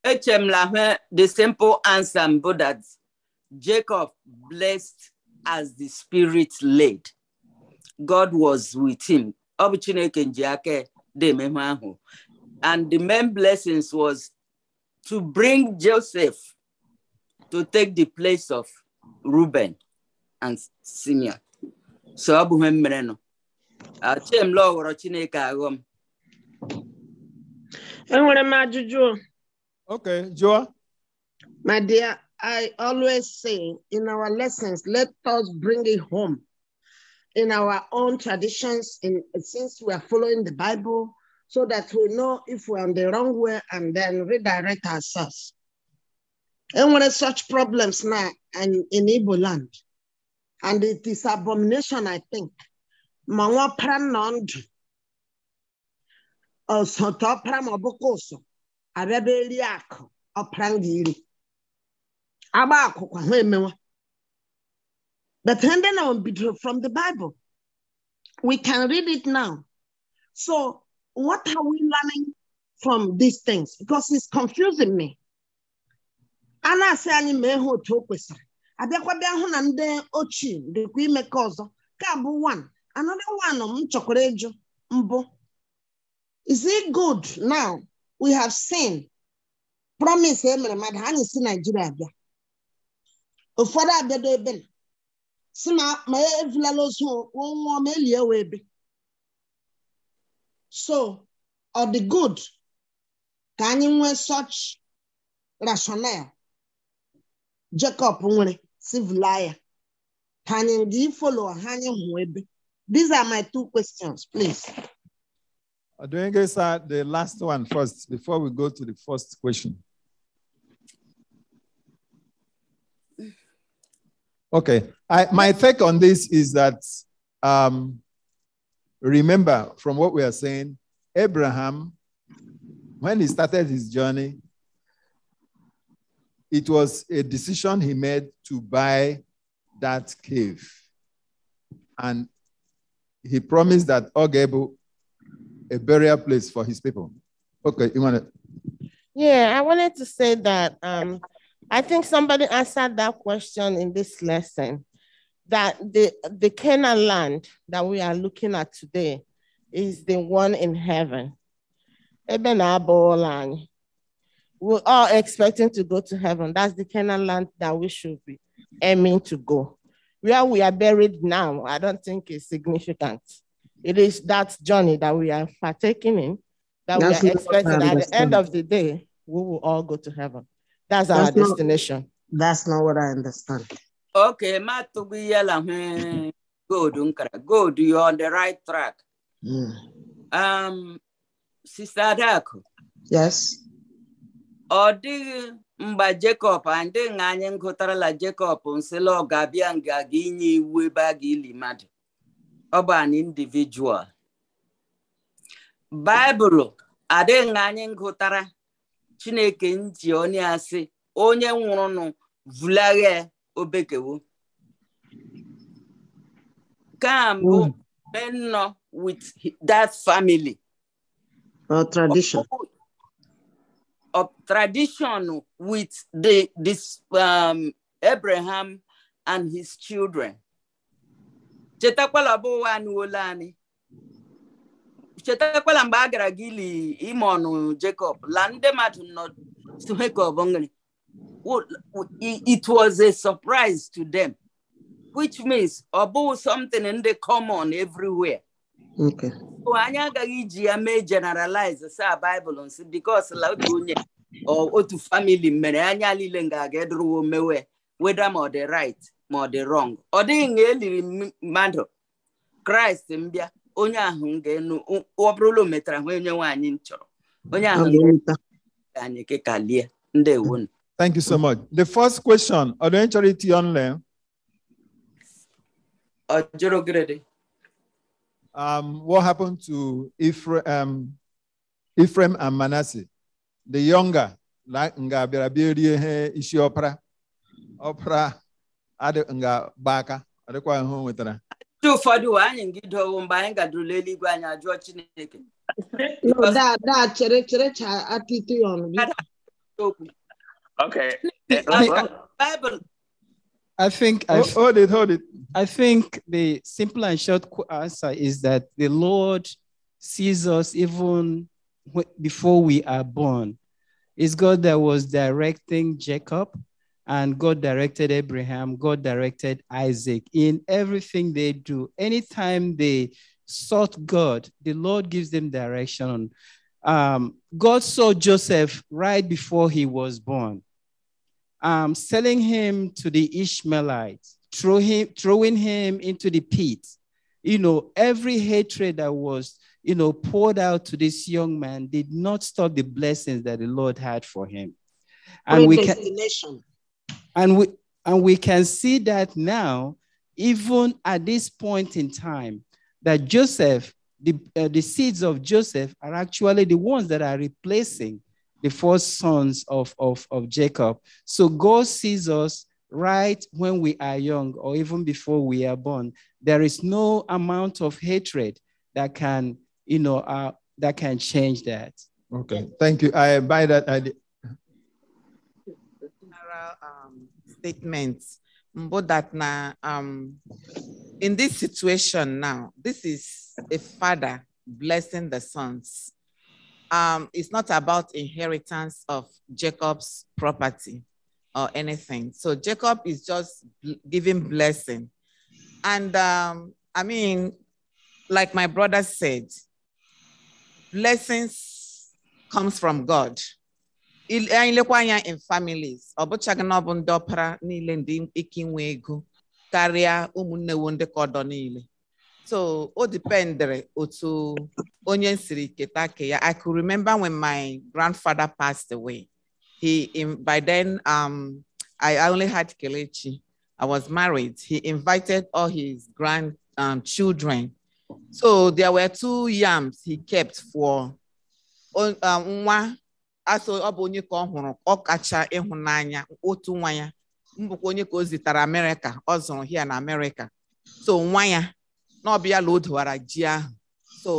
Echem Lahin,
the simple answer, Buddha, Jacob blessed as the spirit led. God was with him. And the main blessings was to bring Joseph to take the place of Reuben and Simeon. So Abu Memreno. ihe mere nọ. Achim And Chineke aghọm. Enwere to ajụjụ. Okay, Joa.
My dear, I always say in our lessons, let us bring it home in our own traditions, in, since we are following the Bible, so that we know if we're on the wrong way and then redirect ourselves. And when such problems now and in Igbo land, and it is abomination, I think. Manwa pranond, ọsọtọ abịaba eri akụ ọpara m gị iri agba akwụkwọ ha emewa but ndị na bidoro from the bible we can read it now so what are we learning from these things because it's confusing me a na-asị anyị ma ha otu o kwesịrị bịa hụ na ndị ochie dịkwa ime ka ọzọ ka bụ one another one m chọkwara ịjụ mbụ is it good now we have seen promise emere mmadụ ha na-esi naijiria bịa ụfọdụ abịado ebe na si na ma evulala ozu nwụọ ma elie we so ọ the good Can you nwee such rationale jacob nwere civil ka Can you follow ha anyị hụ these are my two questions please
Odwenge, sir, the last one first before we go to the first question. Okay, I, my take on this is that um, remember from what we are saying, Abraham, when he started his journey, it was a decision he made to buy that cave. And he promised that Og a burial place for his people. Okay, you want to?
Yeah, I wanted to say that um, I think somebody answered that question in this lesson that the, the Canaan land that we are looking at today is the one in heaven. Eben land. We're all expecting to go to heaven. That's the Canaan land that we should be aiming to go. Where we are buried now, I don't think is significant. It is that journey that we are partaking in, that That's we are expecting. At the end of the day, we will all go to heaven. That's,
That's our not,
destination. That's not what I understand.
Okay, hmm, good, Unkara. Good, you're on the right track. Mm. Um, Sister Adako. Yes. Ọ dịghị Jacob ndị anyị gụtarala Jacob nsịla ọ ga-abịa nga gị inye iwu ebe a ga-eli mmadụ. ọ bụ an individual baịbụlụ adịghị anyị ngụtara chineke nji onye asị onye nwụrụnụ vulaghe obekewo kambụ hmm. nnọ with that family
or tradition
of tradition with the this um, Abraham and his children chetakwala bụ ụwa anụwola anyị chetakwala mgbe a gara gị ili ime ọnụ Jacob la ndị mmadụ nọ Jacob nri it was a surprise to them which means ọ bụghị something ndị common everywhere anyị agaghị iji ya mee generalize sa ah, Bible nsi because la otu onye otu family mere anya niile nga ga-edorowo mewe whether ọ dị right ma ọ dị wrong ọ dịghị na eliri mmadụ kraịst mbịa onye ahụ ga-enu ọ bụrụla o metara hụ onye nwaanyị m chọrọ onye ahụ anyị kịka lie ndị ndewo
Thank you so much. The first question, ọ dị onye chọrọ itinye jụrụ gịrịdị. Um, what happened to Ephraim, um, Ephraim and Manasseh? The younger, like nga bịara bịa rie ihe isi ọpara ọpara adị nga adịkwa ihe o nwetara
ụfọdụ wee anyị mgbe anyị eluigwe anyị ajụọ chineke
Okay. Eh, Bible. I think I've, oh. hold it, hold it. I think the simple and short answer is that the Lord sees us even before we are born. It's God that was directing Jacob and God directed Abraham, God directed Isaac in everything they do. Anytime they sought God, the Lord gives them direction. Um, God saw Joseph right before he was born, um, selling him to the Ishmaelites, throw him, throwing him into the pit. You know, every hatred that was, you know, poured out to this young man did not stop the blessings that the Lord had for him. And we can, and we, and we can see that now, even at this point in time, that Joseph, the, uh, the seeds of Joseph are actually the ones that are replacing the four sons of, of, of Jacob. So God sees us right when we are young or even before we are born. There is no amount of hatred that can, you know, uh, that can change that. Okay, thank you. I buy that
general um, statements, but that now, um, in this situation now, this is a father blessing the sons. Um, it's not about inheritance of Jacob's property or anything. So Jacob is just giving blessing. And um, I mean, like my brother said, blessings comes from God. Eh, anya in families ọ bụchaghị na ọ bụ ndị ọpara niile ndị ike inwe ego karịa ụmụnne wo ndị niile so o dependere otu onye siri keta ke ya i could remember when my grandfather passed away he by then um, I only had Kelechi I was married he invited all his grand um, children so there were two yams he kept for um, nwa asọ ọ bụ onye ka ọ hụrụ ọkacha ịhụnanya otu nwa ya mbụkwa onye ka o zitara amerịka ọ zụrụ hia na amerịka so nwa ya na ọbịa la o dowara ji ahụ so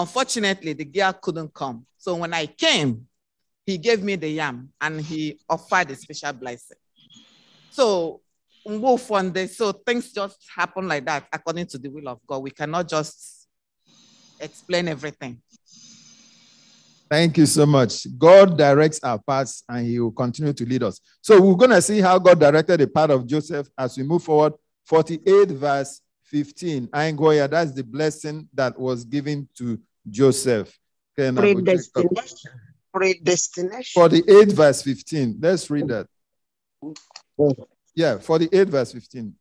unfortunately the girl couldn't come so when i came he gave me the yam and he offered a special blessing so mgbe ụfọdụ so things just happen like that according to the will of god we cannot just explain everything
Thank you so much. God directs our paths and he will continue to lead us. So we're going to see how God directed the path of Joseph as we move forward. 48 verse 15. I here. that's the blessing that was given to Joseph. Okay, predestination.
Predestination.
48 verse 15. Let's read that. Yeah, 48 verse 15.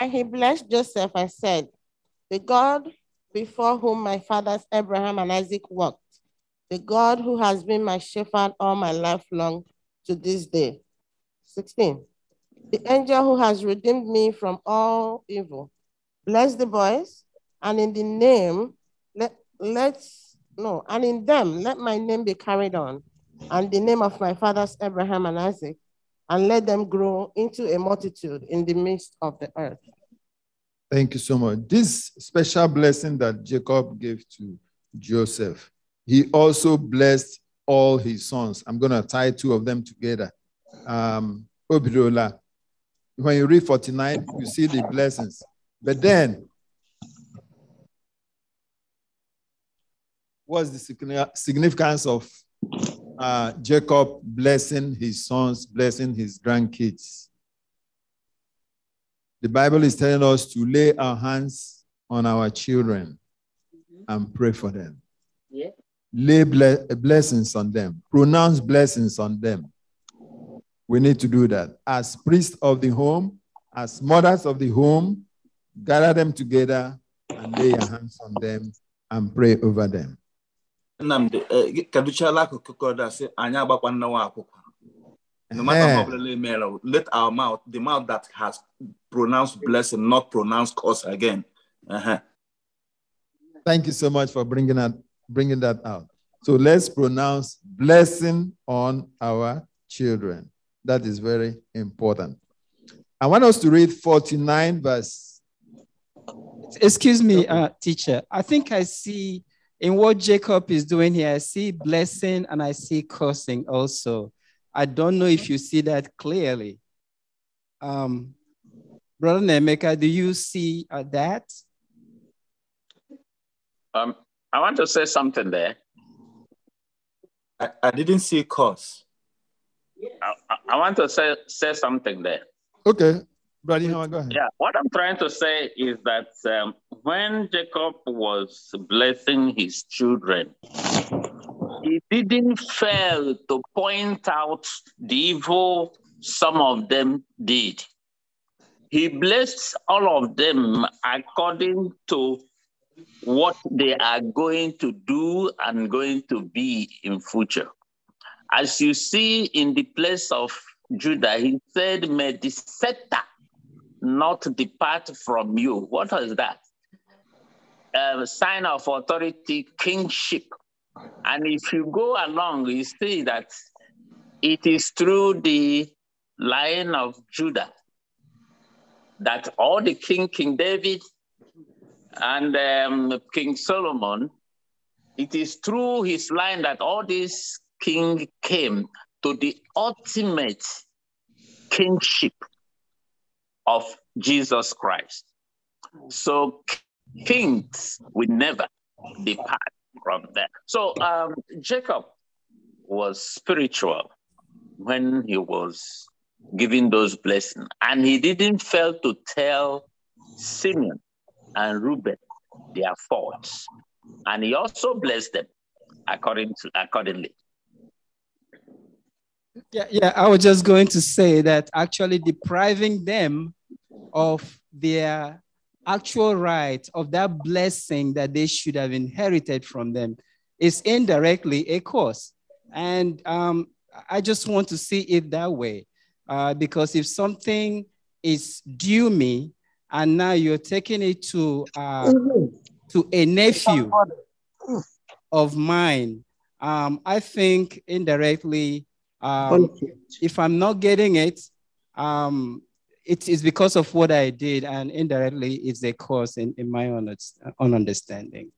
And he blessed Joseph and said, The God before whom my fathers Abraham and Isaac walked, the God who has been my shepherd all my life long to this day. 16. The angel who has redeemed me from all evil. Bless the boys, and in the name, let, let's, no, and in them, let my name be carried on, and the name of my fathers Abraham and Isaac, and let them grow into a multitude in the midst of the earth.
Thank you so much. This special blessing that Jacob gave to Joseph, he also blessed all his sons. I'm going to tie two of them together. Um, Obidola, when you read 49, you see the blessings. But then, what's the significance of uh, Jacob blessing his sons, blessing his grandkids? The Bible is telling us to lay our hands on our children mm-hmm. and pray for them. Yeah. Lay ble- blessings on them, pronounce blessings on them. We need to do that. As priests of the home, as mothers of the home, gather them together and lay your hands on them and pray over them.
Eh, and no matter how eh. little male, let our mouth, the mouth that has
pronounced blessing, not pronounced curse again. Uh-huh.
Thank you so much for bringing that, bringing that out. So let's pronounce blessing on our children. That is very important. I want us to read
49 verse. Excuse me, uh, teacher. I think I see in what Jacob is doing here, I see blessing and I see cursing also. I don't know if you see that clearly. Um, Brother Nemeka, do you see uh, that?
Um, I want to say something there. I, I didn't see a cause. Yes. I, I want to say, say something there.
Okay. Brother,
go ahead. Yeah, what I'm trying to say is that um, when Jacob was blessing his children, he didn't fail to point out the evil some of them did. He blessed all of them according to what they are going to do and going to be in future. As you see in the place of Judah, he said, May the scepter not depart from you. What is that? A sign of authority, kingship. And if you go along, you see that it is through the line of Judah that all the king, King David and um, King Solomon, it is through his line that all these kings came to the ultimate kingship of Jesus Christ. So kings will never depart from there. So um, Jacob was spiritual when he was giving those blessings, and he didn't fail to tell Simeon and Reuben their faults, and he also blessed them according to accordingly.
Yeah, yeah, I was just going to say that actually depriving them of their actual right of that blessing that they should have inherited from them is indirectly a curse. And um, I just want to see it that way. Uh, because if something is due me and now you're taking it to, uh, to a nephew of mine, um, I think indirectly, um, if I'm not getting it, um, it is because of what I did, and indirectly, it's a cause in, in my own, own understanding.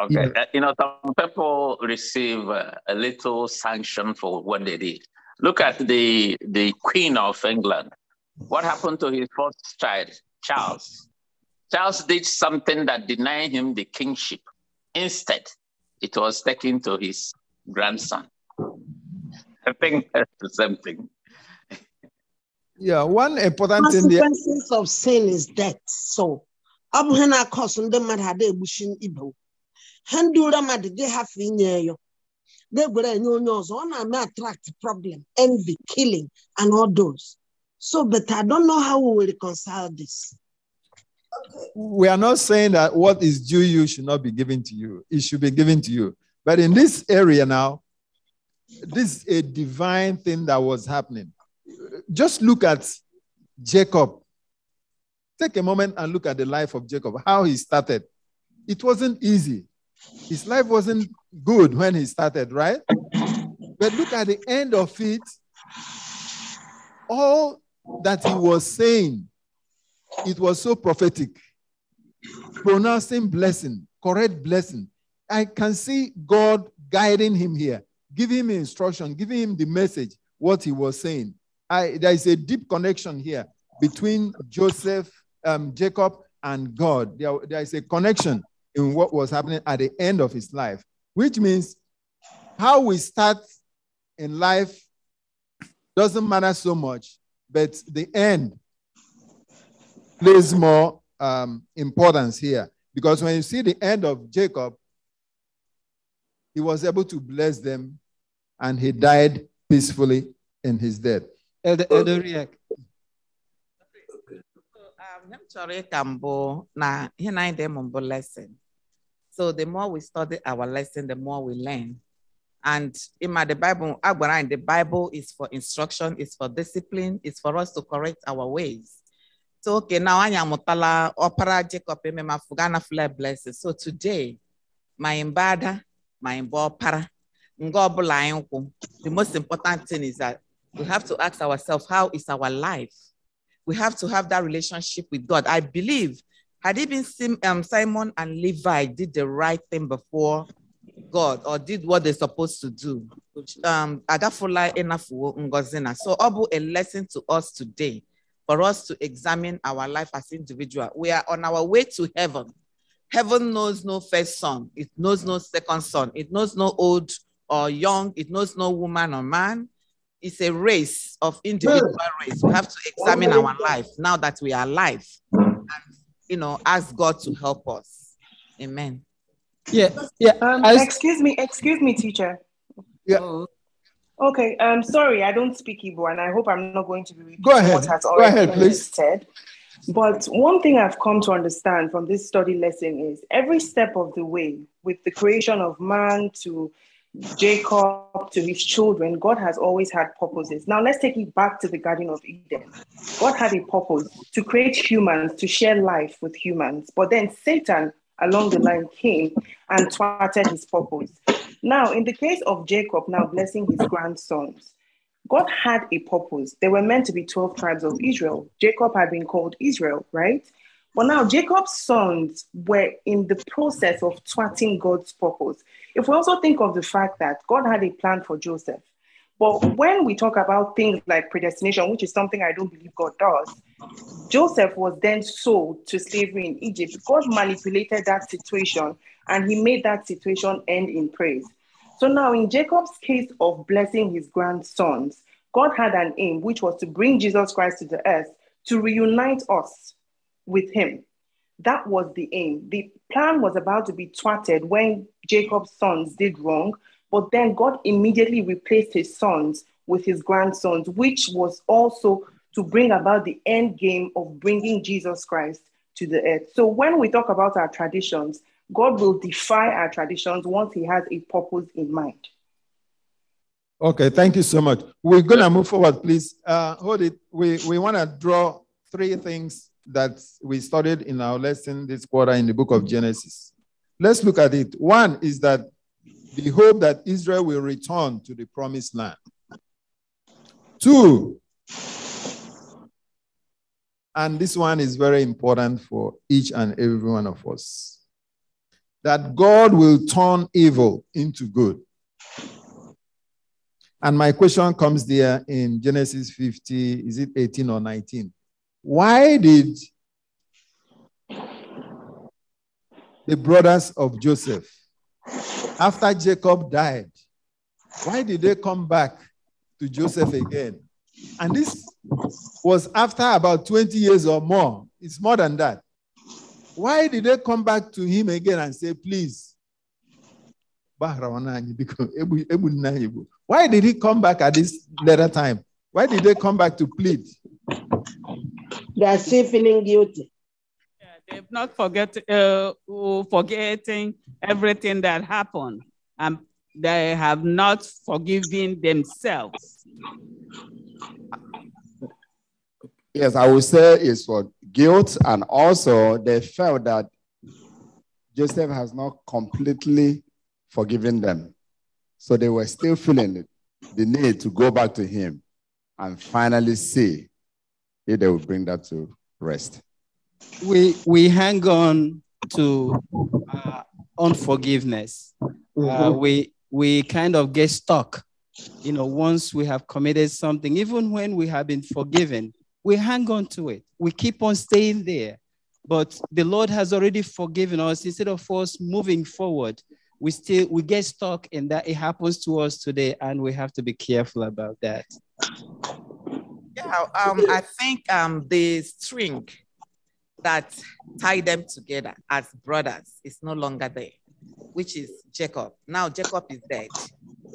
Okay, yeah. Uh, you know, some people receive uh, a little sanction for what they did. Look at the the Queen of England. What happened to his first child, Charles? Charles did something that denied him the kingship. Instead, it was taken to his grandson. I think that's thing.
Yeah, one
important thing. The consequences of sin is death. So, Abu Hena, ihe na-akọsụ matter mmadụ ada egbuchi ibe ha ndị ụra mmadụ gị hafe inye yo na-egwere enye onye ọzọ ọ na-eme attract problem envy killing and all those so but i don't know how we will reconcile this. We are
not saying that what is due you should not be given to you. It should be given to you. But in this area now, this is a divine thing that was happening just look at Jacob. Take a moment and look at the life of Jacob, how he started. It wasn't easy. His life wasn't good when he started, right? But look at the end of it. All that he was saying, it was so prophetic. Pronouncing blessing, correct blessing. I can see God guiding him here, giving him instruction, giving him the message, what he was saying. I, there is a deep connection here between Joseph, um, Jacob, and God. There, there is a connection in what was happening at the end of his life, which means how we start in life doesn't matter so much, but the end plays more um, importance here. Because when you see the end of Jacob, he was able to bless them and he died peacefully in his death.
Elder, Elder Riek. Um, I'm sorry, ịka Now here, I'm anyị lesson. So the more we study our lesson, the more we learn. And in my the Bible, Agwaran, the Bible is for instruction, is for discipline, is for us to correct our ways. So okay, now I am Mutala Opera Jacob Emema Fugana Flair blessing. So today, my imbada, my imbopara, the most important thing is that we have to ask ourselves, how is our life? We have to have that relationship with God. I believe, had it been um, Simon and Levi did the right thing before God or did what they're supposed to do, um, so Abu, a lesson to us today for us to examine our life as individual. We are on our way to heaven. Heaven knows no first son. It knows no second son. It knows no old or young. It knows no woman or man it's a race of individual race. We have to examine our life now that we are alive and, you know, ask God to help us. Amen.
Yeah. Yeah. Um, I, excuse me. Excuse me, teacher. Yeah. Oh. Okay. Um, sorry, I don't speak Igbo and I hope I'm not going to be repeating Go ahead. what has already Go ahead, been please. said. But one thing I've come to understand from this study lesson is every step of the way, with the creation of man to Jacob to his children, God has always had purposes. Now let's take it back to the Garden of Eden. God had a purpose to create humans, to share life with humans. But then Satan along the line came and thwarted his purpose. Now, in the case of Jacob, now blessing his grandsons, God had a purpose. They were meant to be 12 tribes of Israel. Jacob had been called Israel, right? But now Jacob's sons were in the process of thwarting God's purpose. If we also think of the fact that God had a plan for Joseph, but when we talk about things like predestination, which is something I don't believe God does, Joseph was then sold to slavery in Egypt. God manipulated that situation and he made that situation end in praise. So now, in Jacob's case of blessing his grandsons, God had an aim, which was to bring Jesus Christ to the earth to reunite us with him. That was the aim. The plan was about to be thwarted when Jacob's sons did wrong, but then God immediately replaced his sons with his grandsons, which was also to bring about the end game of bringing Jesus Christ to the earth. So when we talk about our traditions, God will defy our traditions once he has a purpose in mind.
Okay, thank you so much. We're going to move forward, please. Uh, hold it. We, we want to draw three things that we studied in our lesson this quarter in the book of Genesis. Let's look at it. One is that the hope that Israel will return to the promised land. Two, and this one is very important for each and every one of us, that God will turn evil into good. And my question comes there in Genesis 50, is it 18 or 19? Why did the brothers of Joseph, after Jacob died, why did they come back to Joseph again? And this was after about 20 years or more. It's more than that. Why did they come back to him again and say, please? Why did he come back at this later time? Why did they come back to plead?
They are still feeling guilty. Yeah, they've not forget, uh, forgetting everything that happened, and they have not forgiven themselves.
Yes, I would say it's for guilt, and also they felt that Joseph has not completely forgiven them. So they were still feeling the need to go back to him and finally see if they will bring that to rest.
We, we hang on to uh, unforgiveness. Uh, mm-hmm. we, we kind of get stuck. You know, once we have committed something, even when we have been forgiven, we hang on to it. We keep on staying there. But the Lord has already forgiven us. Instead of us moving forward, we still we get stuck in that. It happens to us today, and we have to be careful about that.
Yeah, um, I think um, the string that tied them together as brothers is no longer there, which is Jacob. Now Jacob is dead,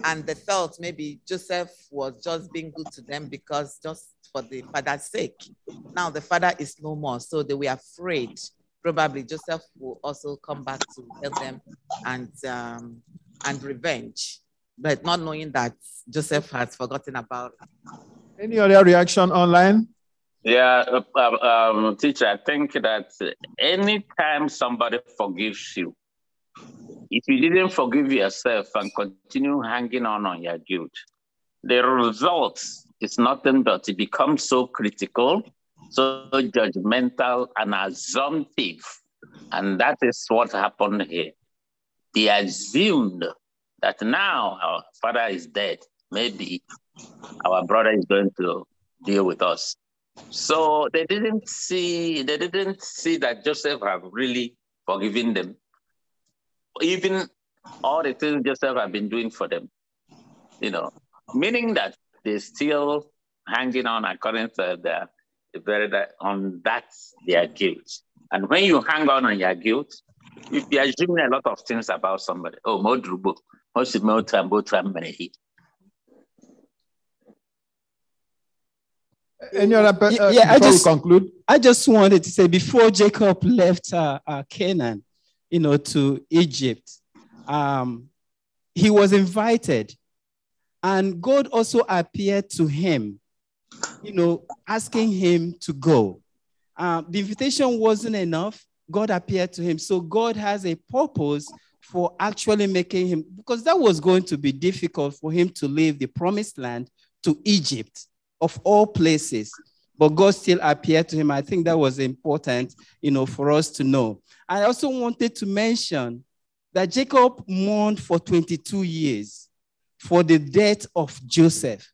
and they felt maybe Joseph was just being good to them because just for the father's sake. Now the father is no more, so they were afraid. Probably Joseph will also come back to help them and um, and revenge, but not knowing that Joseph has forgotten about any other reaction online? Yeah,
uh, um, um, teacher, I think that anytime somebody forgives you, if you didn't forgive yourself and continue hanging on on your guilt, the result is nothing but it becomes so critical, so judgmental, and assumptive. And that is what happened here. They assumed that now our father is dead. Maybe our brother is going to deal with us. So they didn't see they didn't see that Joseph have really forgiven them. Even all the things Joseph have been doing for them. You know, meaning that they still hanging on according to their very on that their guilt. And when you hang on on your guilt, you be assuming a lot of things about somebody. Oh, Modrubo, what's the
Any other uh, Yeah, I just conclude. I just wanted to say before Jacob left uh, uh, Canaan, you know, to Egypt, um, he was invited, and God also appeared to him, you know, asking him to go. Uh, the invitation wasn't enough. God appeared to him, so God has a purpose for actually making him because that was going to be difficult for him to leave the promised land to Egypt of all places. But God still appeared to him. I think that was important, you know, for us to know. I also wanted to mention that Jacob mourned for 22 years for the death of Joseph.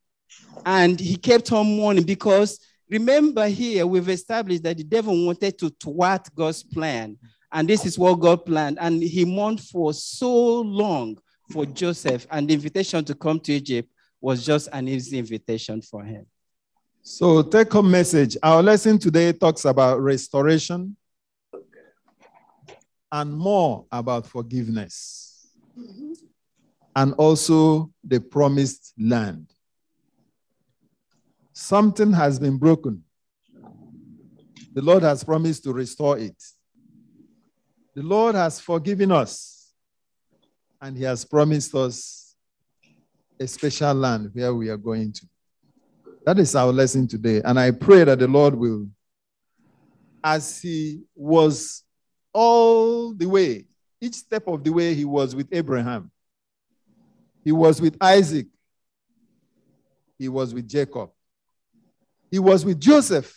And he kept on mourning because remember here, we've established that the devil wanted to thwart God's plan. And this is what God planned. And he mourned for so long for Joseph. And the invitation to come to Egypt was just an easy invitation for him.
So, take home message. Our lesson today talks about restoration
and more about
forgiveness and also the promised land. Something has been broken. The Lord has promised to restore it. The Lord has forgiven us and He has promised us a special land where we are going to. That is our lesson today. And I pray that the Lord will, as He was all the way, each step of the way, He was with Abraham, He was with Isaac, He was with Jacob, He was with Joseph.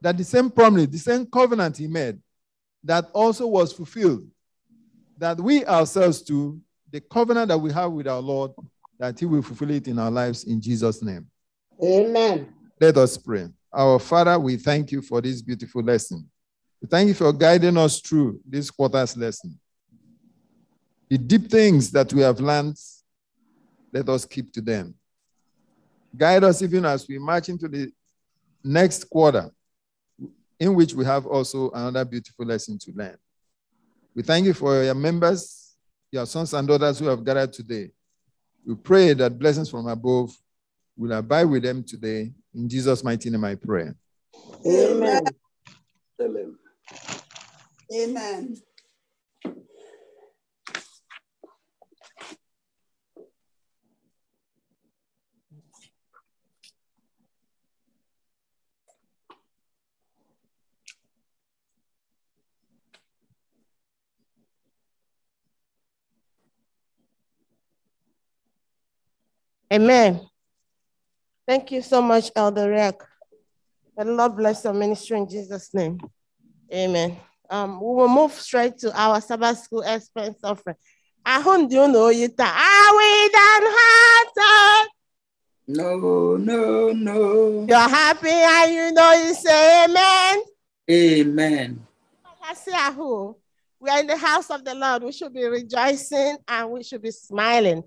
That the same promise, the same covenant He made, that also was fulfilled, that we ourselves too, the covenant that we have with our Lord that He will fulfill it in our lives in Jesus' name. Amen. Let us pray. Our Father, we thank you for this beautiful lesson. We thank you for guiding us through this quarter's lesson. The deep things that we have learned, let us keep to them. Guide us even as we march into the next quarter, in which we have also another beautiful lesson to learn. We thank you for your members, your sons and daughters who have gathered today. We pray that blessings from above will abide with them today. In Jesus' mighty name, I pray.
Amen. Amen.
Amen.
Amen. Thank you so much, Elder Rick. The Lord bless your ministry in Jesus' name. Amen. Um, we will move straight to our Sabbath school expense offering. I hope you know you are we done hearted.
No, no, no.
You're happy and you know you say amen.
Amen.
see who. We are in the house of the Lord. We should be rejoicing and we should be smiling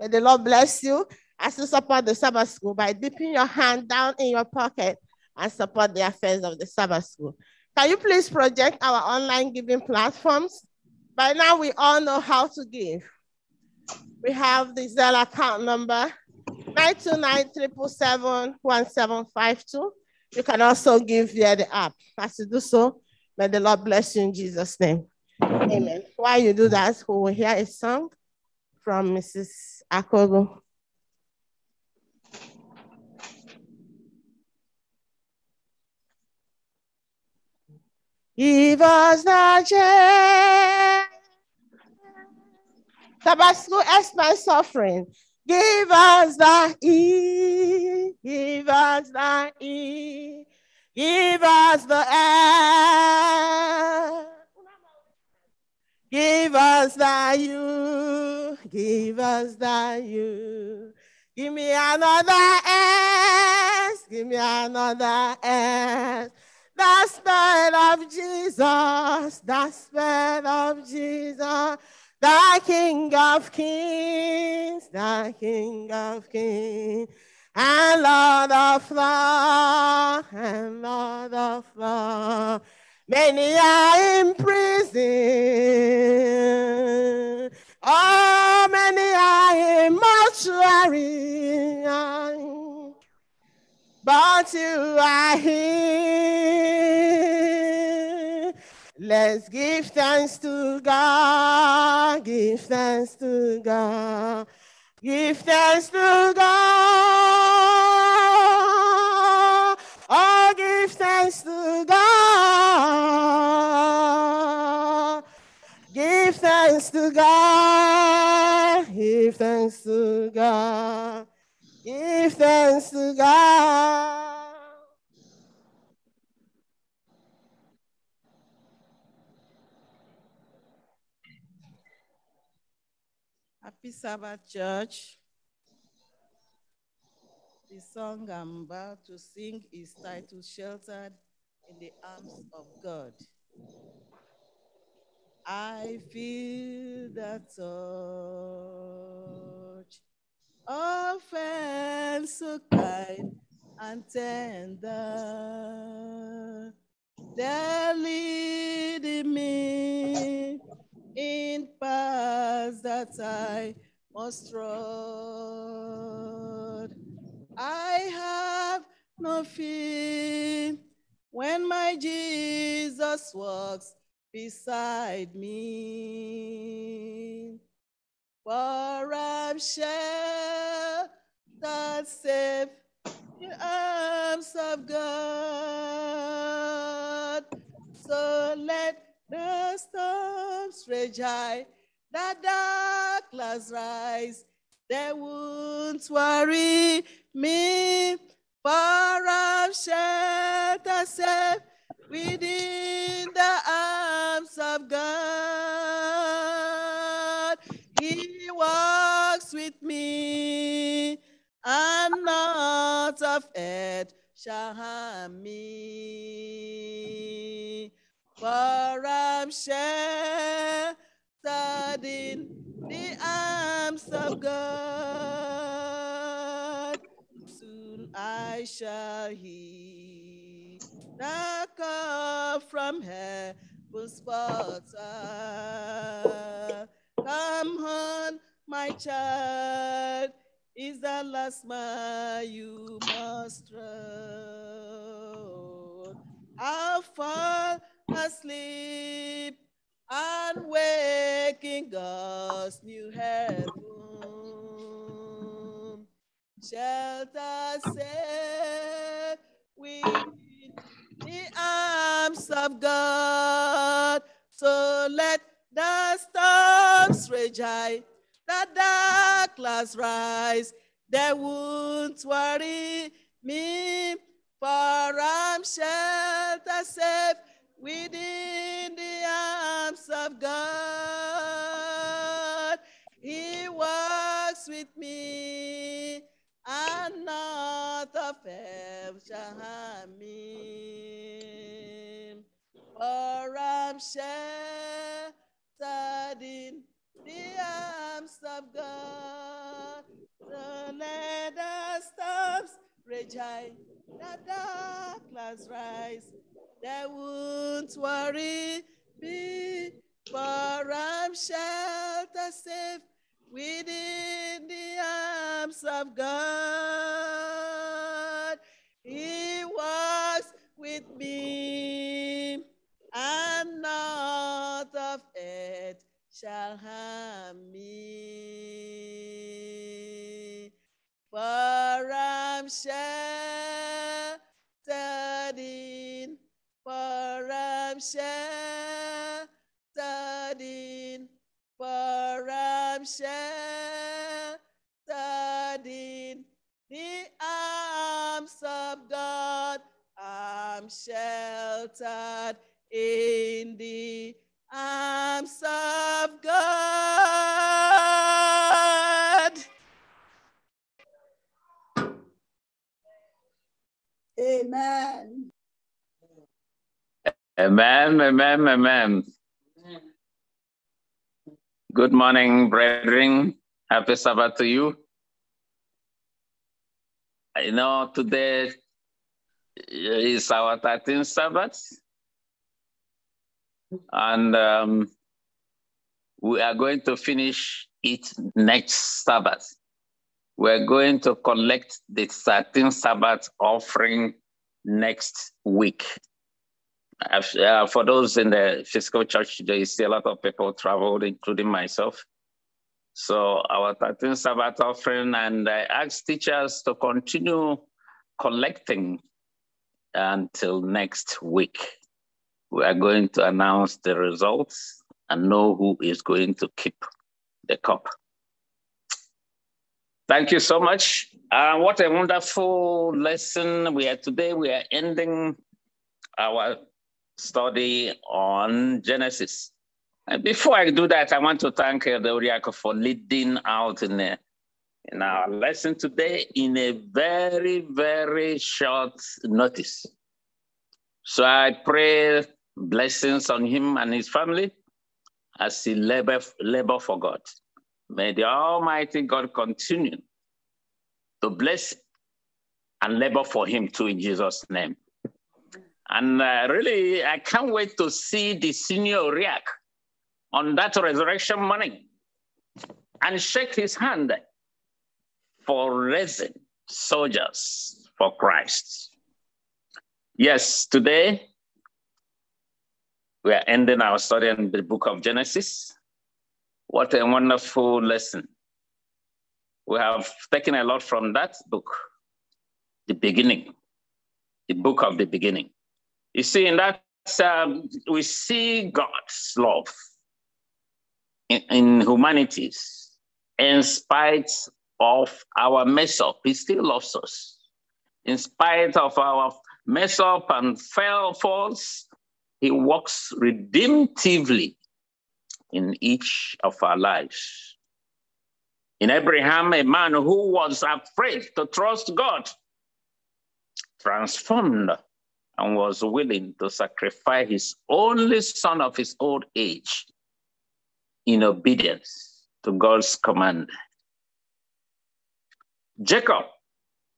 May the Lord bless you as you support the Sabbath school by dipping your hand down in your pocket and support the affairs of the Sabbath school. Can you please project our online giving platforms? By now, we all know how to give. We have the Zelle account number 929-777-1752. You can also give via the app. As you do so, may the Lord bless you in Jesus' name. Amen. While you do that, we will hear a song from Mrs. Acuerdo. Give us the chance. Tabasco, ask my suffering. Give us the E. Give us the E. Give us the F. Give us that you, give us that you. Give me another S, give me another S. The Spirit of Jesus, the Spirit of Jesus, the King of Kings, the King of Kings, and Lord of Lords, and Lord of Lords. Many are in prison. Oh, many are in mortuary. But you are here. Let's give thanks to God. Give thanks to God. Give thanks
to God. Oh, give thanks to God.
thanks to God. Give thanks to God. Give thanks to God.
Happy Sabbath, Church. The song I'm about to sing is titled Sheltered in the Arms of God. I feel the touch of friend so kind and tender. They're leading me in paths that I must trod. I have no fear when my Jesus walks beside me. For I'm sheltered safe in the arms of God. So let the storms rage high, the dark clouds rise. They won't worry me, for I'm sheltered safe within the arms of God. He walks with me, and not of it shall harm me. For I'm sheltered in the arms of God. Soon I shall hear up from heaven's sponsor. Come on, my child, is the last mile you must run. I'll fall asleep and waking God's new heaven. Shelter safe, we arms of God. So let the storms rage high, the dark clouds rise. They won't worry me, for I'm sheltered safe within the arms of God. He walks with me, and not a fear shall harm me. Oram sheltered in the arms of God. The nether storms rage the dark clouds rise. They won't worry me, for I'm sheltered safe within the arms of God. He walks with me and not of it shall harm me. For I'm sheltered in, for I'm sheltered in, for I'm sheltered in the arms of God. I'm sheltered in the arms of God.
Amen.
Amen, amen, amen. Good morning, brethren. Happy Sabbath to you. You know, today is our 13th Sabbath and um, we are going to finish it next Sabbath. We're going to collect the 13th Sabbath offering next week. Uh, for those in the physical church today, see a lot of people traveled, including myself. So our 13th Sabbath offering, and I ask teachers to continue collecting until next week we are going to announce the results and know who is going to keep the cup. Thank you so much. Uh, what a wonderful lesson we had today. We are ending our study on Genesis. And before I do that, I want to thank the uh, Uriako for leading out in, a, uh, in our lesson today in a very, very short notice. So I pray blessings on him and his family as he labor, labor for God. May the Almighty God continue to bless and labor for him too in Jesus' name. And uh, really, I can't wait to see the senior react on that resurrection morning and shake his hand for raising soldiers for Christ. Yes, today we are ending our study in the book of Genesis. What a wonderful lesson. We have taken a lot from that book, the beginning, the book of the beginning. You see, in that, um, we see God's love in, in humanities, in spite of our mess up, He still loves us. In spite of our mess up and fail falls, he works redemptively in each of our lives. In Abraham, a man who was afraid to trust God transformed and was willing to sacrifice his only son of his old age in obedience to God's command. Jacob,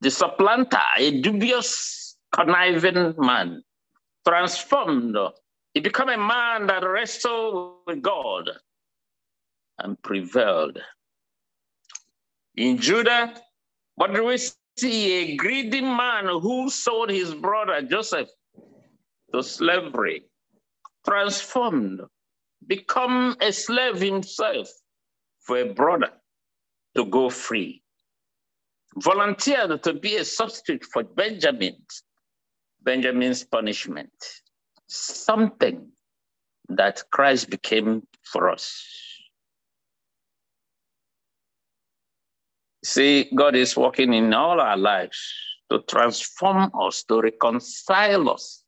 the supplanter, a dubious, conniving man, transformed. He became a man that wrestled with God and prevailed. In Judah, what do we see? A greedy man who sold his brother Joseph to slavery, transformed, become a slave himself for a brother to go free, volunteered to be a substitute for Benjamin Benjamin's punishment, something that Christ became for us. See, God is working in all our lives to transform us, to reconcile us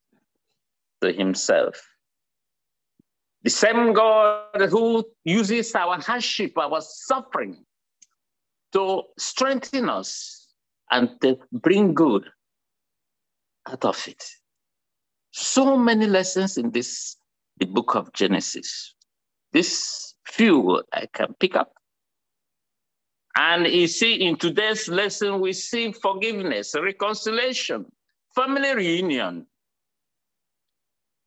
to Himself. The same God who uses our hardship, our suffering, to strengthen us and to bring good out of it. So many lessons in this, the book of Genesis. This few I can pick up. And you see, in today's lesson, we see forgiveness, reconciliation, family reunion,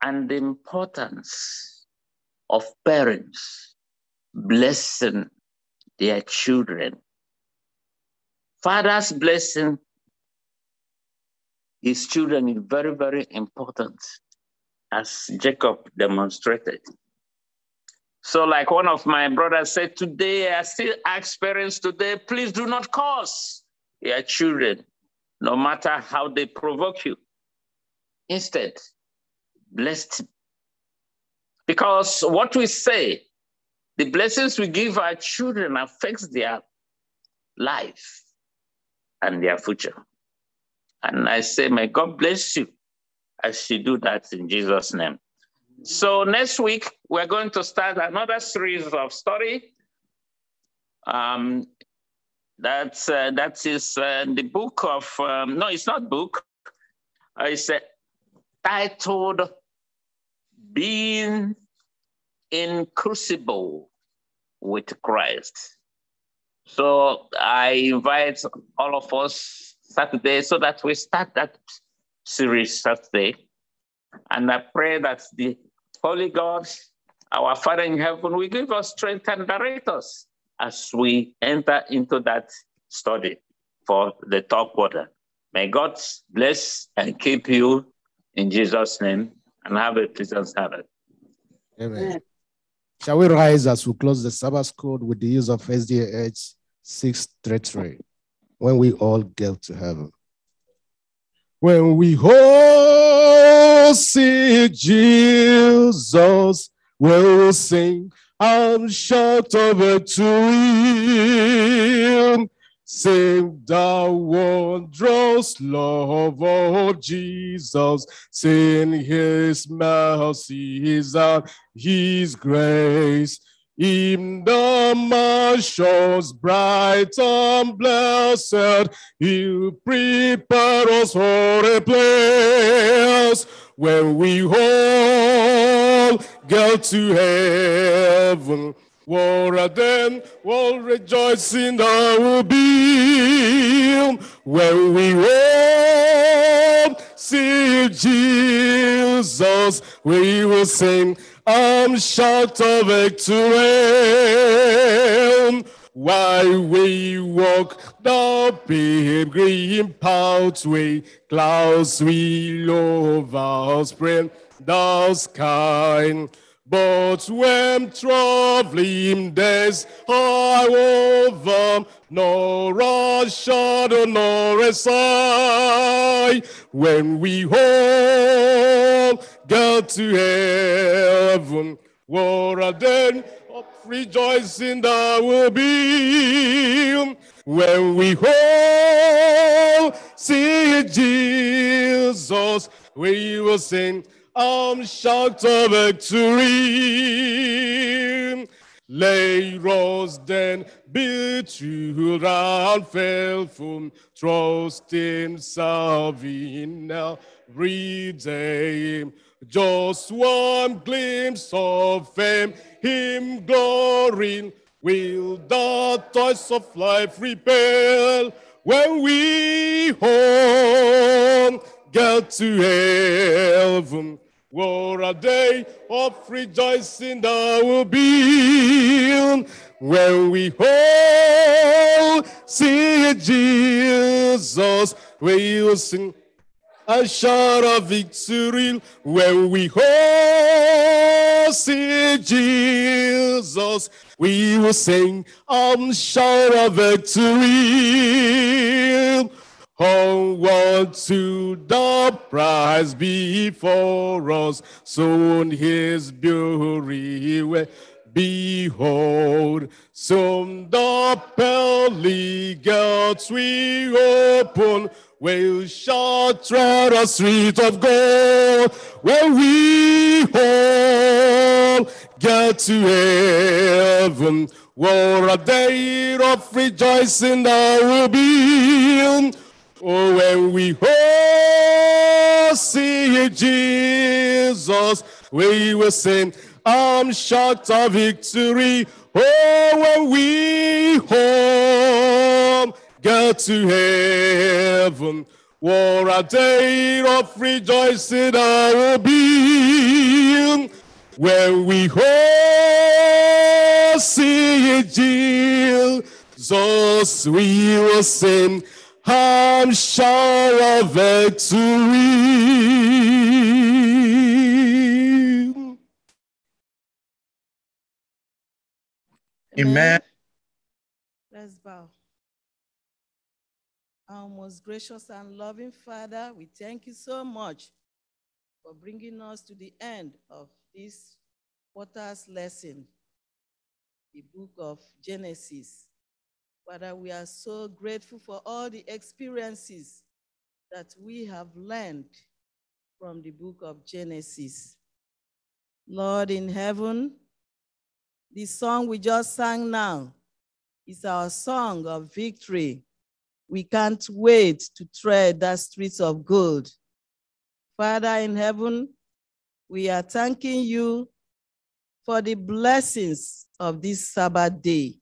and the importance of parents blessing their children. Father's blessing his children is very, very important, as Jacob demonstrated. So, like one of my brothers said today, I still ask parents today, please do not curse your children, no matter how they provoke you. Instead, bless them. Because what we say, the blessings we give our children affects their life and their future. And I say, may God bless you as you do that in Jesus' name. So next week, we're going to start another series of story. Um, that's, uh, that is uh, the book of, um, no, it's not book. Uh, it's uh, titled Being in Crucible with Christ. So I invite all of us Saturday so that we start that series Saturday. And I pray that the Holy God, our Father in heaven, will give us strength and direct us as we enter into that study for the top quarter. May God bless and keep you in Jesus' name and have a pleasant Sabbath.
Amen. Shall we rise as we close the Sabbath code with the use of SDH 633? when we all get to heaven. When we all
see Jesus, we'll sing and shout over to him. Sing the wondrous love of Jesus, sing his his, and his grace. In the marshes bright and blessed, you prepare us for a place where we all go to heaven. War then will rejoice in our beam, where we all see Jesus, we will sing I'm short of victory. While we walk the green pathway, clouds will overspread the sky. But when traveling days are over, no rush shadow nor a sigh. When we all go to heaven, what a day of rejoicing there will be. When we all see Jesus, we will sing. I'm shout of victory. Lay rose then built you round faithful, trust in serving now, redeem. Just one glimpse of fame, him glory, will the toys of life repel when we home get to heaven what a day of rejoicing there will be when we all see Jesus. We will sing a shout of victory when we all see Jesus. We will sing a shout of victory. Onward to the prize before us, soon his beauty will behold. Soon the pearly gates we open, will shout tread a street of gold, where we all get to heaven. What a day of rejoicing there will be Oh, when we all see Jesus, we will sing, I'm short of victory. Oh, when we home get to heaven, what a day of rejoicing I will be. When we all see Jesus, we will sing. I'm sure of victory.
Amen.
Let's bow. Our most gracious and loving Father, we thank you so much for bringing us to the end of this quarter's lesson, the book of Genesis. Father, we are so grateful for all the experiences that we have learned from the book of Genesis. Lord in heaven, the song we just sang now is our song of victory. We can't wait to tread the streets of gold. Father in heaven, we are thanking you for the blessings of this Sabbath day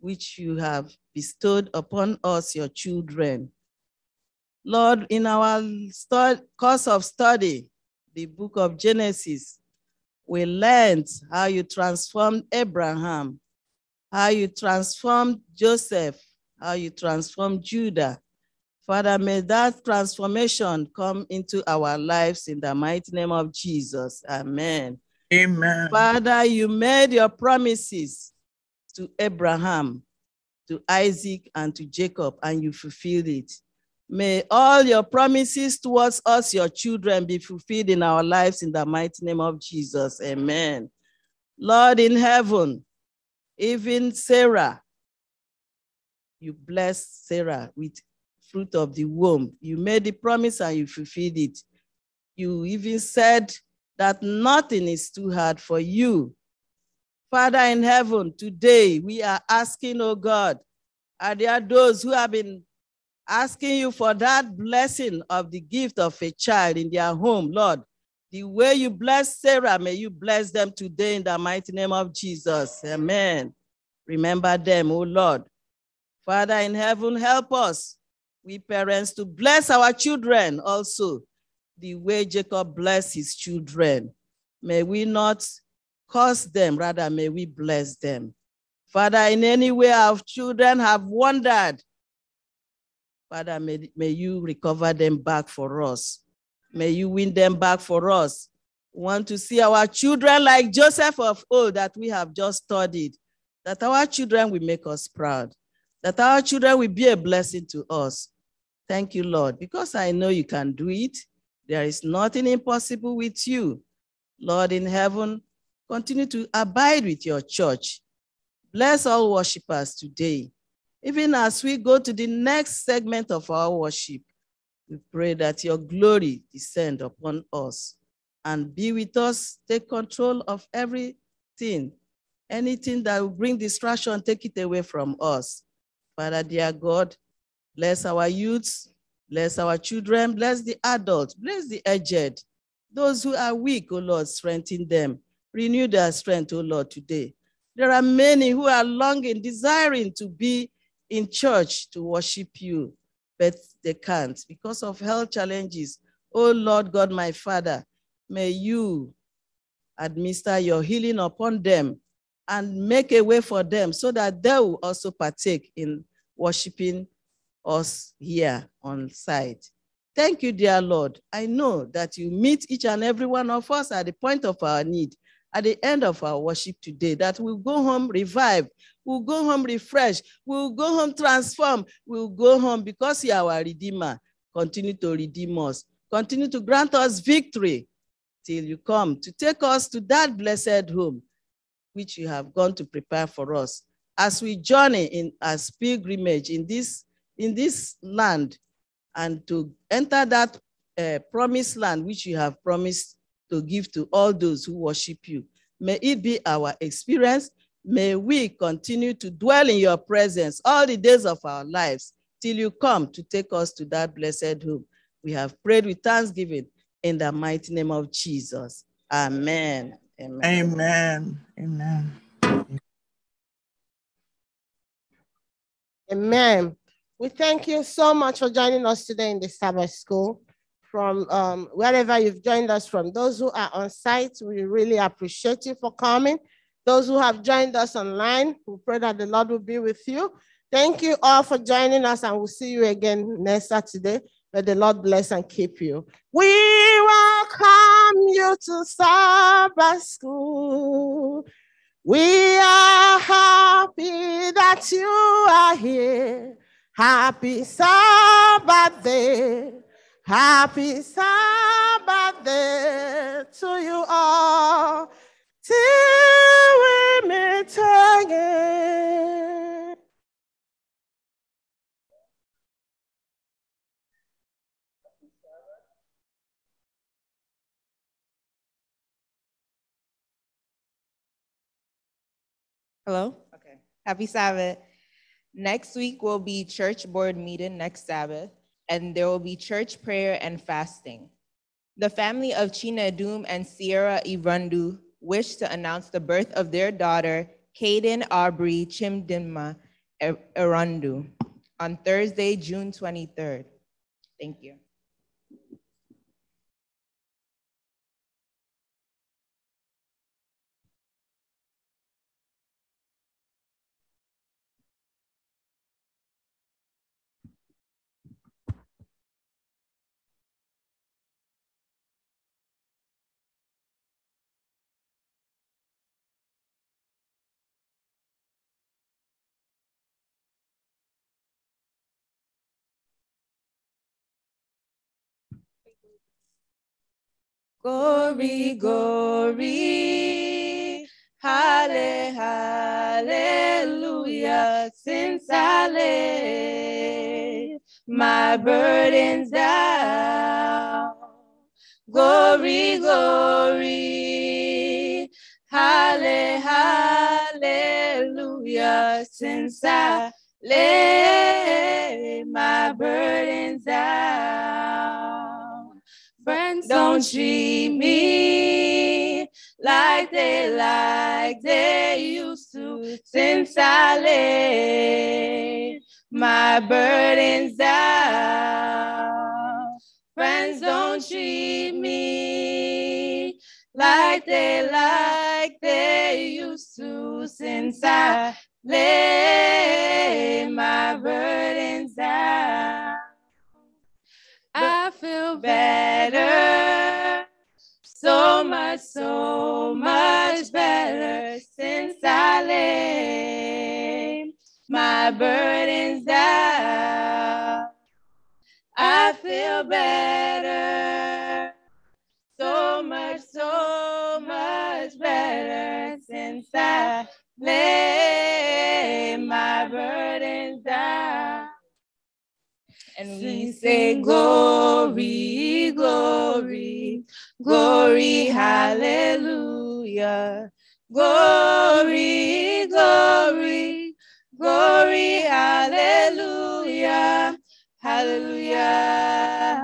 which you have bestowed upon us, your children. Lord, in our course of study, the book of Genesis, we learned how you transformed Abraham, how you transformed Joseph, how you transformed Judah. Father, may that transformation come into our lives in the mighty name of Jesus. Amen. Amen. Father, you made your promises to Abraham, to Isaac, and to Jacob, and you fulfilled it. May all your promises towards us, your children, be fulfilled in our lives in the mighty name of Jesus. Amen. Lord in heaven, even Sarah, you blessed Sarah with fruit of the womb. You made the promise and you fulfilled it. You even said that nothing is too hard for you. Father in heaven, today we are asking, oh God, are there those who have been asking you for that blessing of the gift of a child in their home, Lord? The way you bless Sarah, may you bless them today in the mighty name of Jesus. Amen. Remember them, oh Lord. Father in heaven, help us, we parents, to bless our children also, the way Jacob blessed his children. May we not curse them, rather may we bless them. Father, in any way our children have wandered, Father, may, may you recover them back for us. May you win them back for us. We want to see our children like Joseph of old that we have just studied, that our children will make us proud, that our children will be a blessing to us. Thank you, Lord, because I know you can do it. There is nothing impossible with you. Lord in heaven, continue to abide with your church. Bless all worshippers today. Even as we go to the next segment of our worship, we pray that your glory descend upon us and be with us. Take control of everything, anything that will bring distraction, take it away from us. Father, dear God, bless our youths, bless our children, bless the adults, bless the aged, those who are weak, O oh Lord, strengthen them. Renew their strength, O Lord, today. There are many who are longing, desiring to be in church to worship you, but they can't because of health challenges. O Lord God, my Father, may you administer your healing upon them and make a way for them so that they will also partake in worshiping us here on site. Thank you, dear Lord. I know that you meet each and every one of us at the point of our need at the end of our worship today that we'll go home revived, we'll go home refreshed, we'll go home transformed, we'll go home because you are our Redeemer. Continue to redeem us, continue to grant us victory till you come to take us to that blessed home which you have gone to prepare for us as we journey in as pilgrimage in this in this land and to enter that uh, promised land which you have promised to give to all those who worship you. May it be our experience. May we continue to dwell in your presence all the days of our lives till you come to take us to that blessed home. We have prayed with thanksgiving in the mighty name of Jesus. Amen. Amen. Amen.
Amen. Amen. We thank you so much for joining us today in the Sabbath School from um, wherever you've joined us from. Those who are on site, we really appreciate you for coming. Those who have joined us online, we pray that the Lord will be with you. Thank you all for joining us, and we'll see you again next Saturday. May the Lord bless and keep you. We welcome you to Sabbath School. We are happy that you are here. Happy Sabbath day. Happy Sabbath day
to you all till we meet again.
Hello? Okay. Happy Sabbath. Next week will be church board meeting next Sabbath and there will be church prayer and fasting. The family of China Doom and Sierra Irundu wish to announce the birth of their daughter, Kaden Aubrey Chimdinma Irundu, on Thursday, June 23rd. Thank you. Glory, glory, halle, hallelujah, since I laid my burdens down. Glory, glory, halle, hallelujah, since I laid my burdens down. Don't treat me like they like they used to since I laid my burdens down. Friends, don't treat me like they like they used to since I laid my burdens down feel better. So much, so much better since I laid my burdens down. I feel better. So much, so much better since I laid my burdens down and we say glory, glory,
glory,
hallelujah.
Glory,
glory, glory, hallelujah, hallelujah,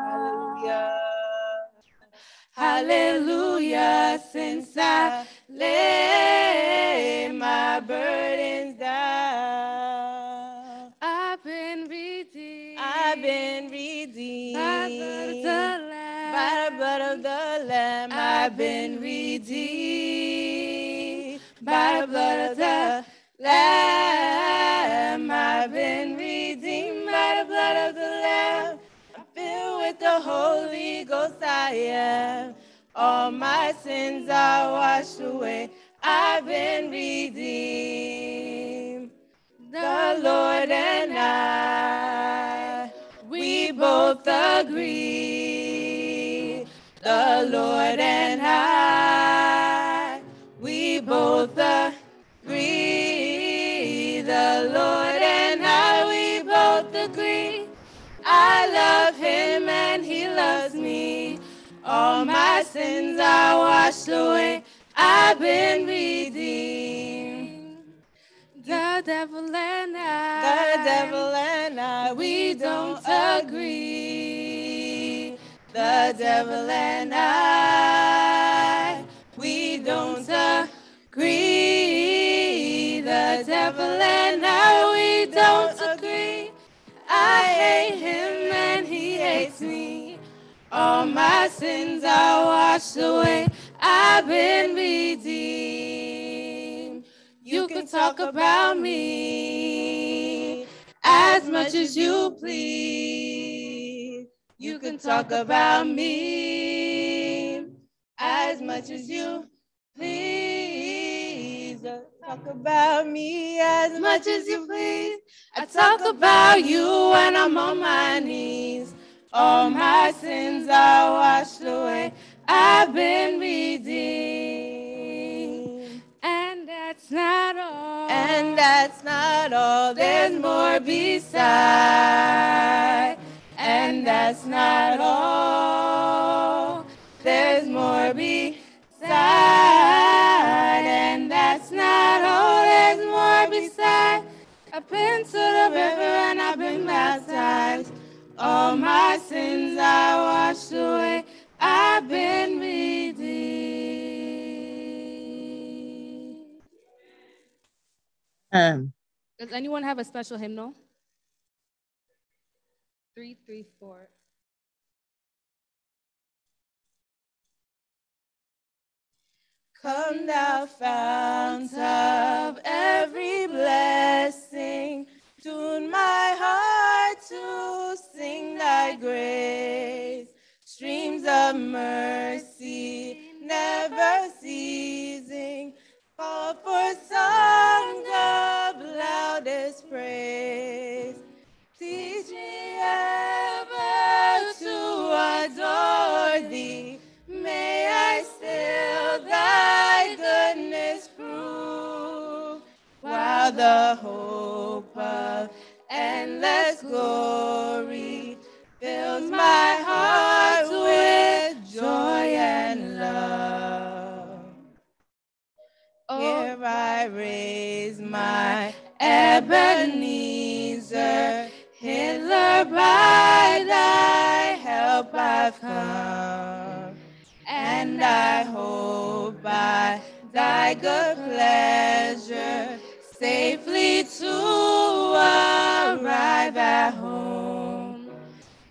hallelujah, hallelujah, since I live. have been redeemed by the blood of the Lamb. I've been redeemed by the blood of the Lamb. I'm filled with the Holy Ghost, I am. All my sins are washed away. I've been redeemed. The Lord and I, we both agree the Lord and I, we both agree. The Lord and I, we both agree. I love him and he loves me. All my sins are washed away. I've been redeemed. The devil and I, the devil and I, we don't agree the devil and I, we don't agree. The devil and I, we don't agree. I hate him and he hates me. All my sins are washed away. I've been redeemed. You can talk about me as much as you please. You can talk about me as much as you please. Talk about me as much as you please. I talk about you when I'm on my knees. All my sins are washed away. I've been redeemed. And that's not all. And that's not all. There's more besides. And that's not all. There's more beside. And that's not all. There's more beside. I've been to the river and I've been baptized. All my sins I washed away. I've been redeemed. Um. Does anyone have a special hymnal?
three, three, four.
Come thou fount of every blessing, tune my heart to sing thy grace. Streams of mercy never ceasing, call for songs of loudest praise. adore thee, may I still thy goodness prove, while the hope of endless glory fills my heart with joy and love. I raise my Ebenezer by thy help I've come, and I hope by thy good pleasure safely to arrive at home.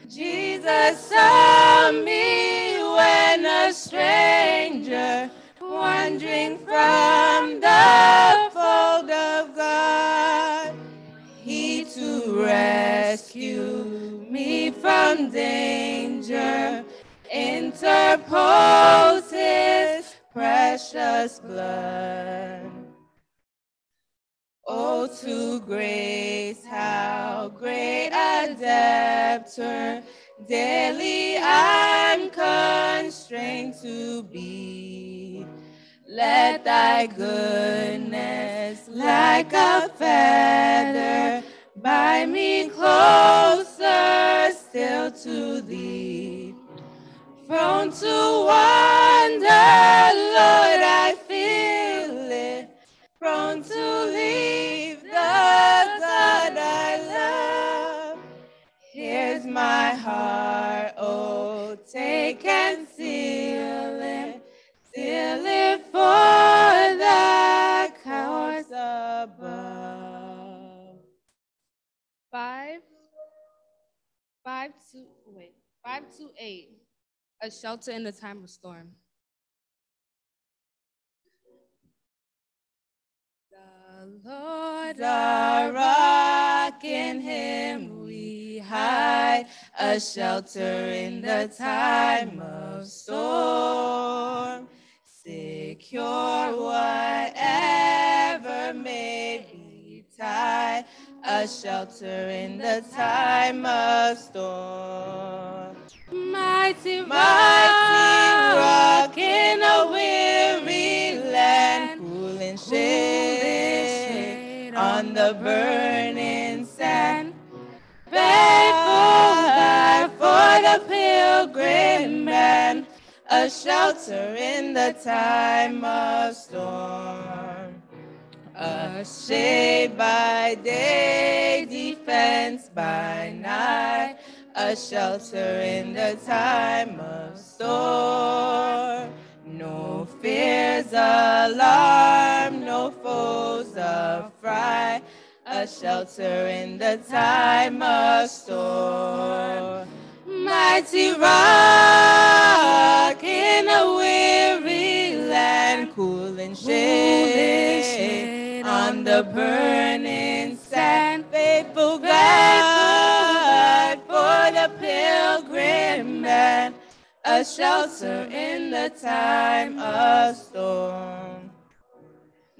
Jesus saw me when a stranger, wandering from the fold of to rescue me from danger. Interpose his precious blood. Oh, to grace, how great a debtor daily I'm constrained to be. Let thy goodness like a feather Bind me closer still to thee. Prone to wander, Lord, I feel it. Prone to leave the God I love. Here's my heart, oh, take and 528, a shelter in the time of storm.
The
Lord our rock, in him
we hide,
a shelter in the time of storm. Secure whatever may be tied, a shelter in the time of storm. Mighty mighty rock in a weary land, cool and shade on the burning sand. Faithful God for the pilgrim man, a shelter in the time of storm. A shade by day, defense by night a shelter in the time of storm. No fears alarm, no foes affright, a shelter in the time of storm. Mighty rock in a weary land, cool and shade on the burning man, a shelter in the time of storm.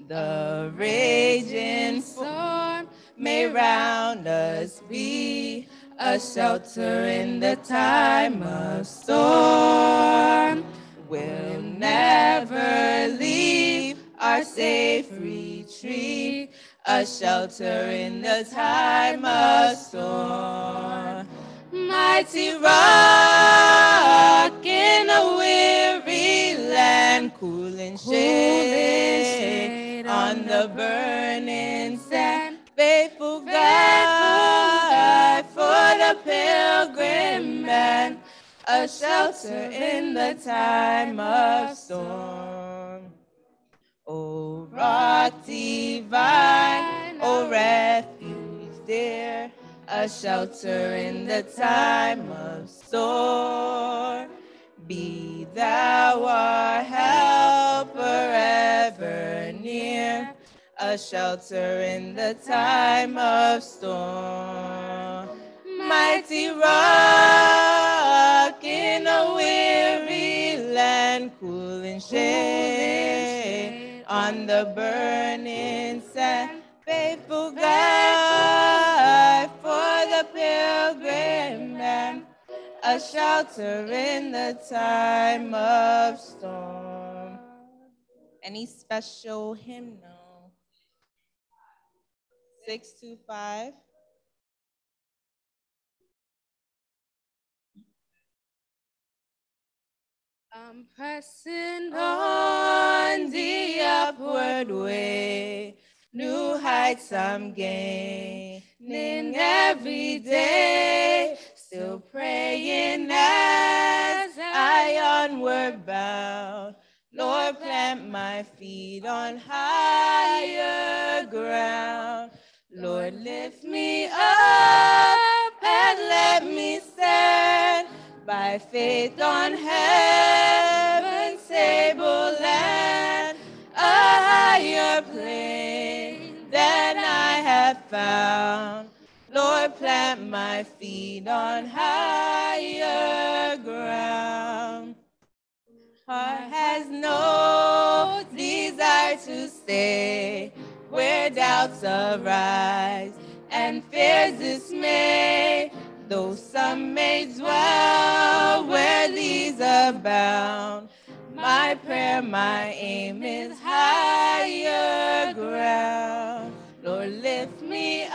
The raging storm may round us be a shelter in the time of storm. We'll never leave our safe retreat, a shelter in the time of storm mighty rock in a weary land, cool and shade on the burning sand. Faithful God for the pilgrim man, a shelter in the time of storm. Oh, rock divine. a shelter in the time of storm. Be thou our help forever near, a shelter in the time of storm. Mighty rock in a weary land, cool and shade on the burning sand, faithful God a pilgrim man, a shelter in the time of storm. Any special hymnal? 625.
I'm pressing on the upward
way, new heights I'm gaining. In every day, still praying as I onward bound. Lord, plant my feet on higher ground. Lord, lift me up and let me stand by faith on heaven's table land, a higher place that I have found. Lord, plant my feet on higher ground. Heart has no desire to stay where doubts arise and fears dismay. Though some may dwell where these abound, my prayer, my aim is higher ground.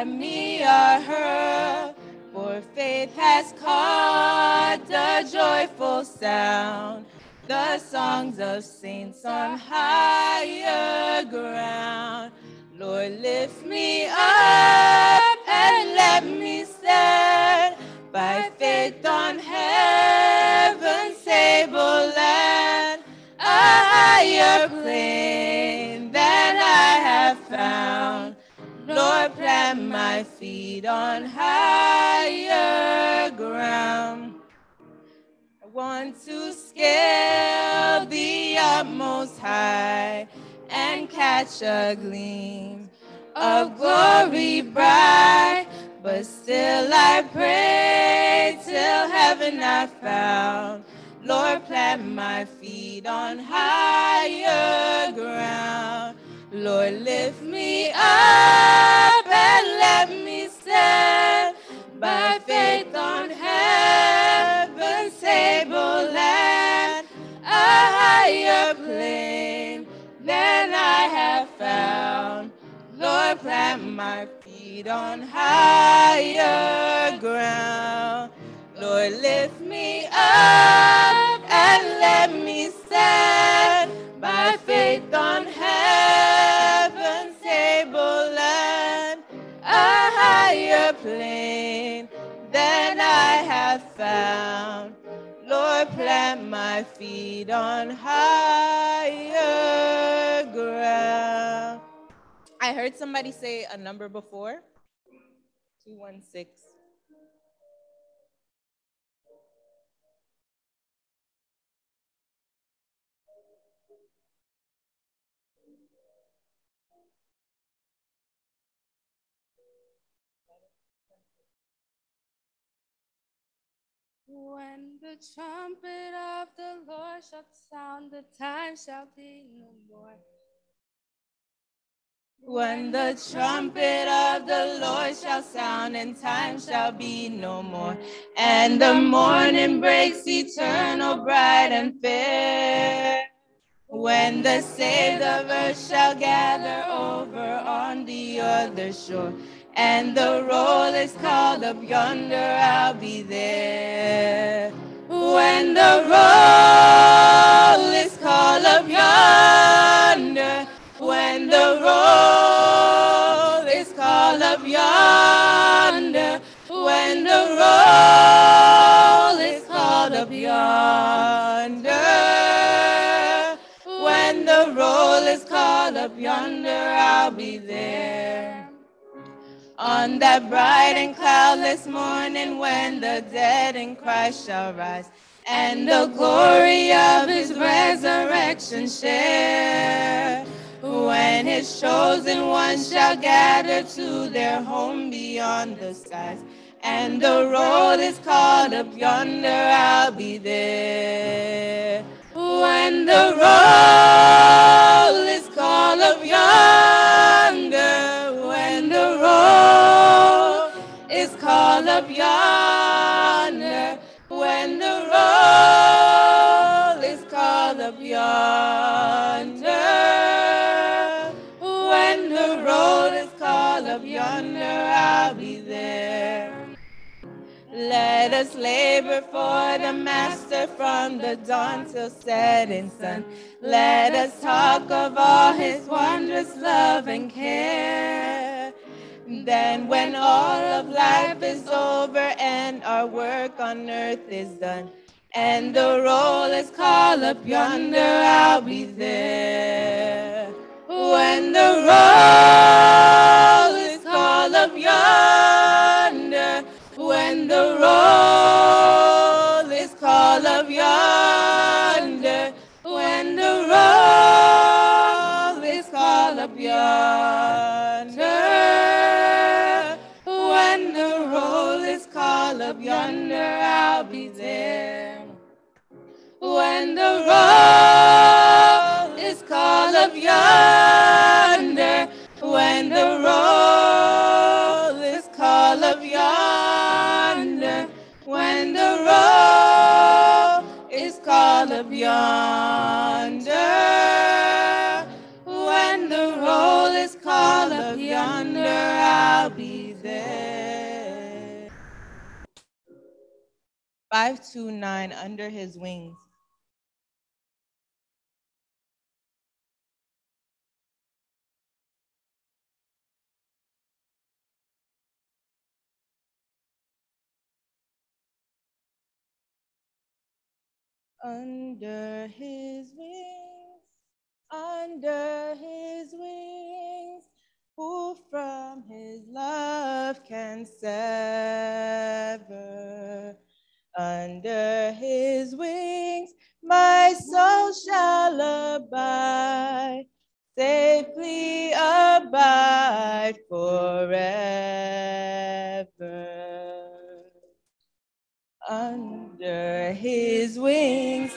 and me are her. For faith has caught the joyful sound. The songs of saints on higher ground. Lord, lift me up and let me stand by faith on heaven's stable land, a higher plane than I have found. Lord, plant my feet on higher ground. I want to scale the utmost high and catch a gleam of glory bright. But still I pray till heaven I found. Lord, plant my feet on higher ground. Lord, lift me up and let me stand by faith on heaven's stable land, a higher plane than I have found. Lord, plant my feet on higher ground. Lord, lift me up and let me stand by faith on heaven's table land, a higher plane than I have found. Lord, plant my feet on higher ground. I heard somebody say a number before 216.
When the
trumpet of the Lord shall sound, the time shall be no more. When the trumpet of the Lord shall sound, and time shall be no more, and the morning breaks eternal, bright and fair. When the saved of earth shall gather over on the other shore and the roll is called up yonder, I'll be there. When the roll is called up yonder, when the roll is called up yonder, when the roll is called up yonder, when the roll is called up yonder, called up yonder I'll be there on that bright and cloudless morning when the dead in Christ shall rise and the glory of his resurrection share. When his chosen ones shall gather to their home beyond the skies, and the road is called up yonder, I'll be there when the roll is called up yonder, when the roll is called up yonder, when the roll is called up yonder. Let us labor for the Master from the dawn till setting sun. Let us talk of all his wondrous love and care. Then, when all of life is over and our work on earth is done, and the roll is called up yonder, I'll be there. When the roll is called up yonder, and the roll is call of yonder. When the roll is call of yonder. When the roll is call of yonder, I'll be there. When the roll is call of yonder. When the roll is call of yonder road is called up yonder. When the is called up yonder, I'll be there. 529
Under His Wings.
Under his wings, under his wings, who from his love can sever? Under his wings, my soul shall abide, safely abide forever. his wings,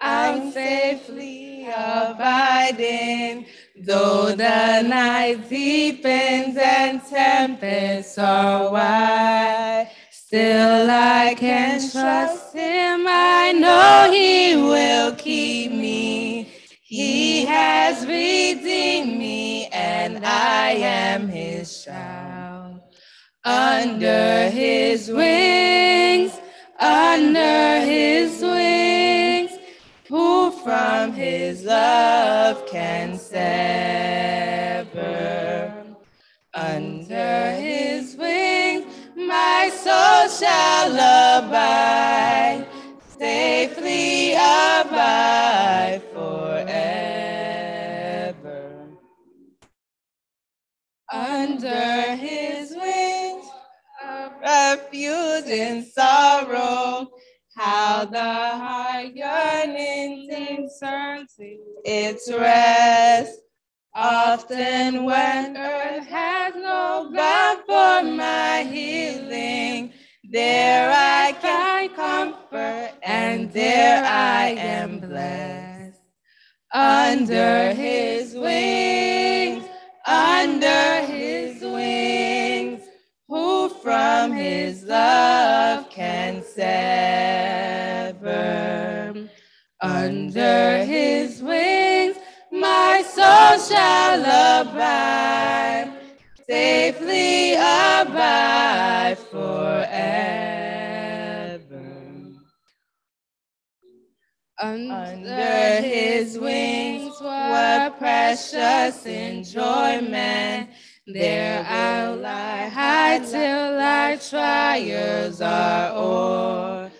I'm safely abiding. Though the night deepens and tempests are wide, still I can trust him. I know he will keep
me.
He has redeemed me, and I am his child. Under his wings. can sever. Under his wings, my soul shall abide, safely abide forever. Under his wings, a refuge in sorrow the yearning discerns its rest.
Often
when earth has no God for my healing, there I can comfort and there I am blessed. Under his wings, under Under his wings, my soul shall abide, safely abide forever.
Under his wings what precious enjoyment. There
I'll lie high till our trials are o'er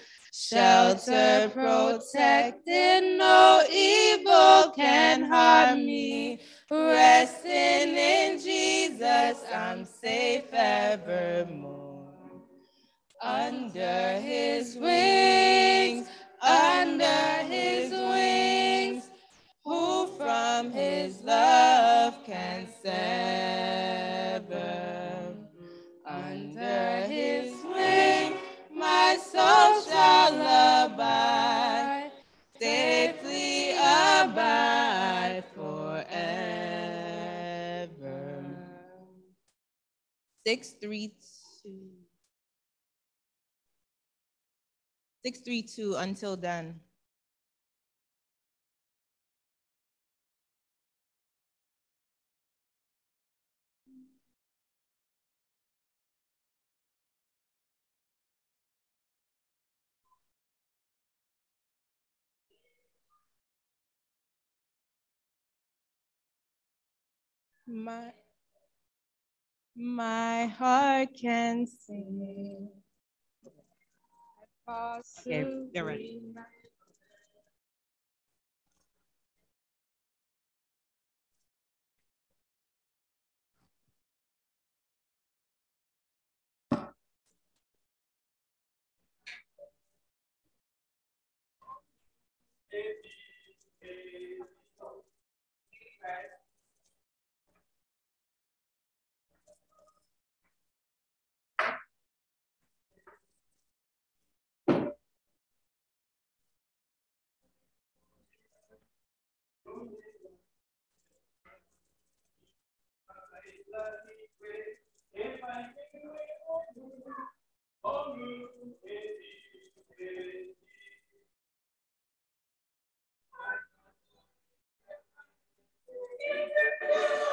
shelter protected, no evil can harm me. Resting in Jesus, I'm safe evermore. Under his wings, under his wings, who from his love can send? souls shall abide, safely abide forever. Six, three, two. Six, three, two. Until
then. My, my heart can sing. Okay, they're ready.
Thank you.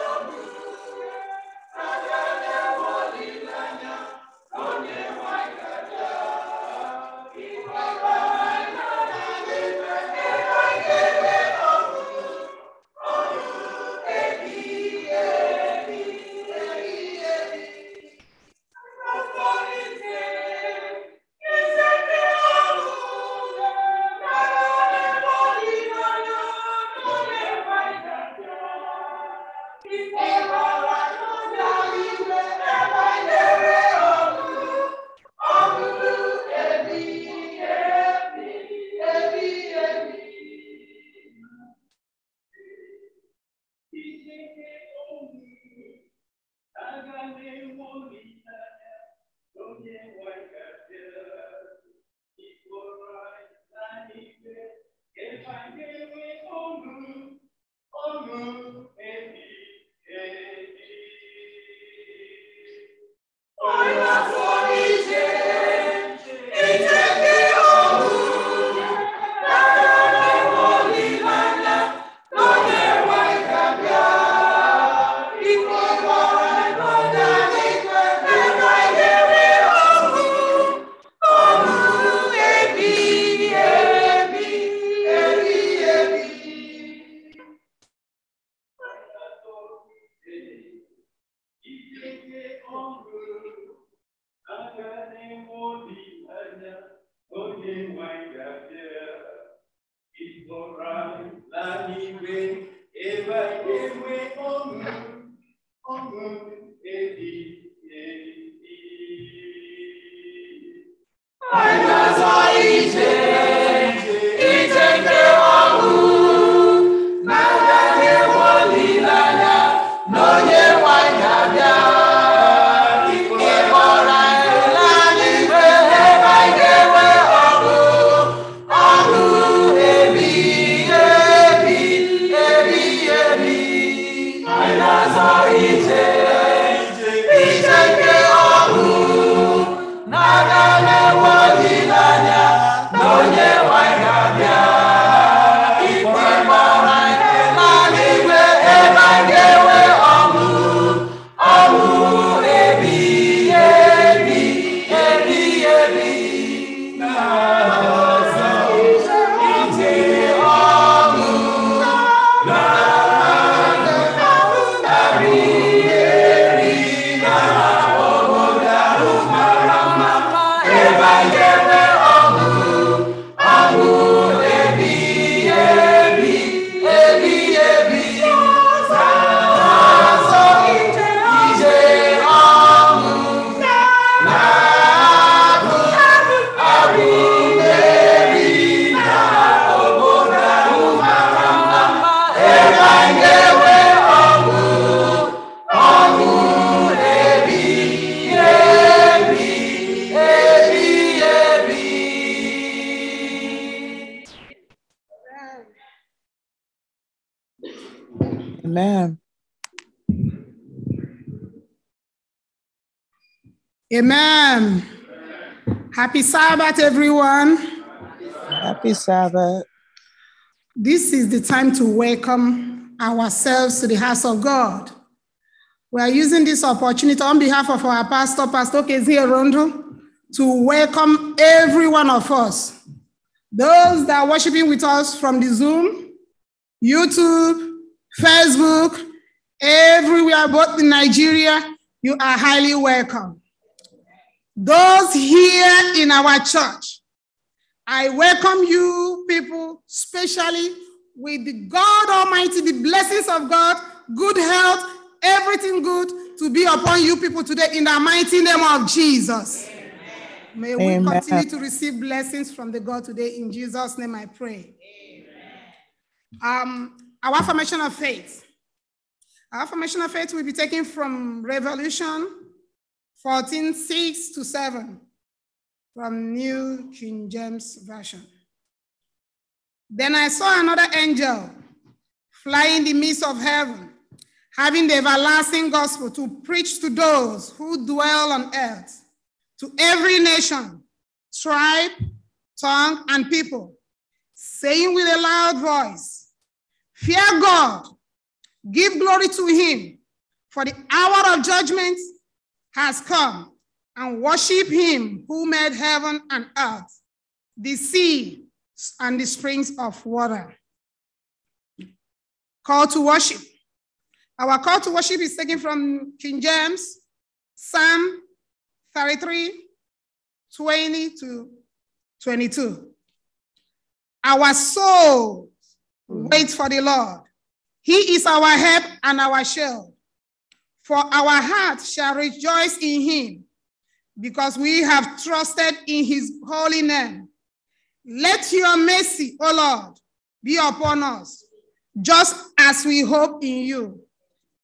Happy Sabbath, everyone. Happy Sabbath. This is the time to welcome ourselves to the house of God. We are using this opportunity on behalf of our pastor, Pastor Kezia Rondo, to welcome every one of us. Those that are worshiping with us from the Zoom, YouTube, Facebook, everywhere, both in Nigeria, you are highly welcome. Those here in our church, I welcome you people, especially with the God Almighty, the blessings of God, good health, everything good to be upon you people today in the mighty name of Jesus. Amen. May we continue to receive blessings from the God today. In Jesus' name I pray. Amen. Um, our affirmation of faith. Our affirmation of faith will be taken from Revolution 14, 6 to 7 from New King James Version. Then I saw another angel fly in the midst of heaven, having the everlasting gospel to preach to those who dwell on earth, to every nation, tribe, tongue, and people, saying with a loud voice, Fear God, give glory to him, for the hour of judgment has come and worship him who made heaven and earth, the sea and the springs of water. Call to worship. Our call to worship is taken from King James, Psalm 33, 20 to 22. Our soul waits for the Lord. He is our help and our shield. For our heart shall rejoice in him, because we have trusted in his holy name. Let your mercy, O Lord, be upon us, just as we hope in you.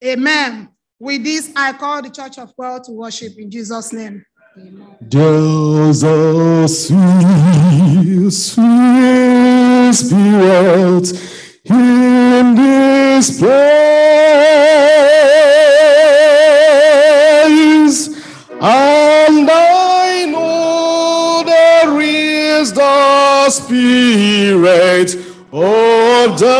Amen. With this, I call the Church of God to worship in Jesus' name.
Jesus, sweet, sweet spirit in this place. And I know there is the Spirit of the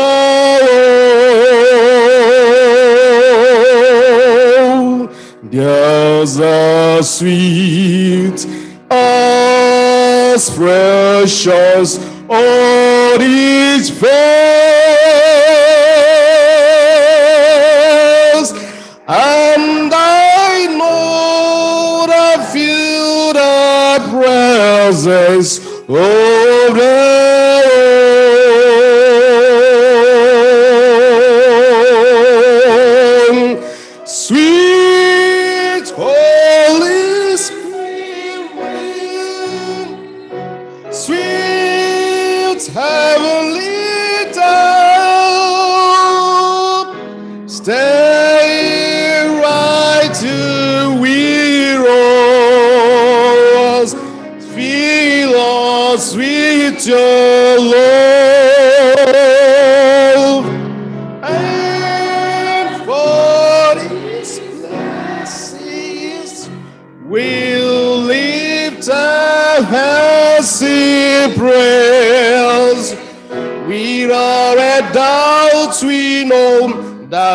Lord. There's a sweet, as precious, on each face. Glory.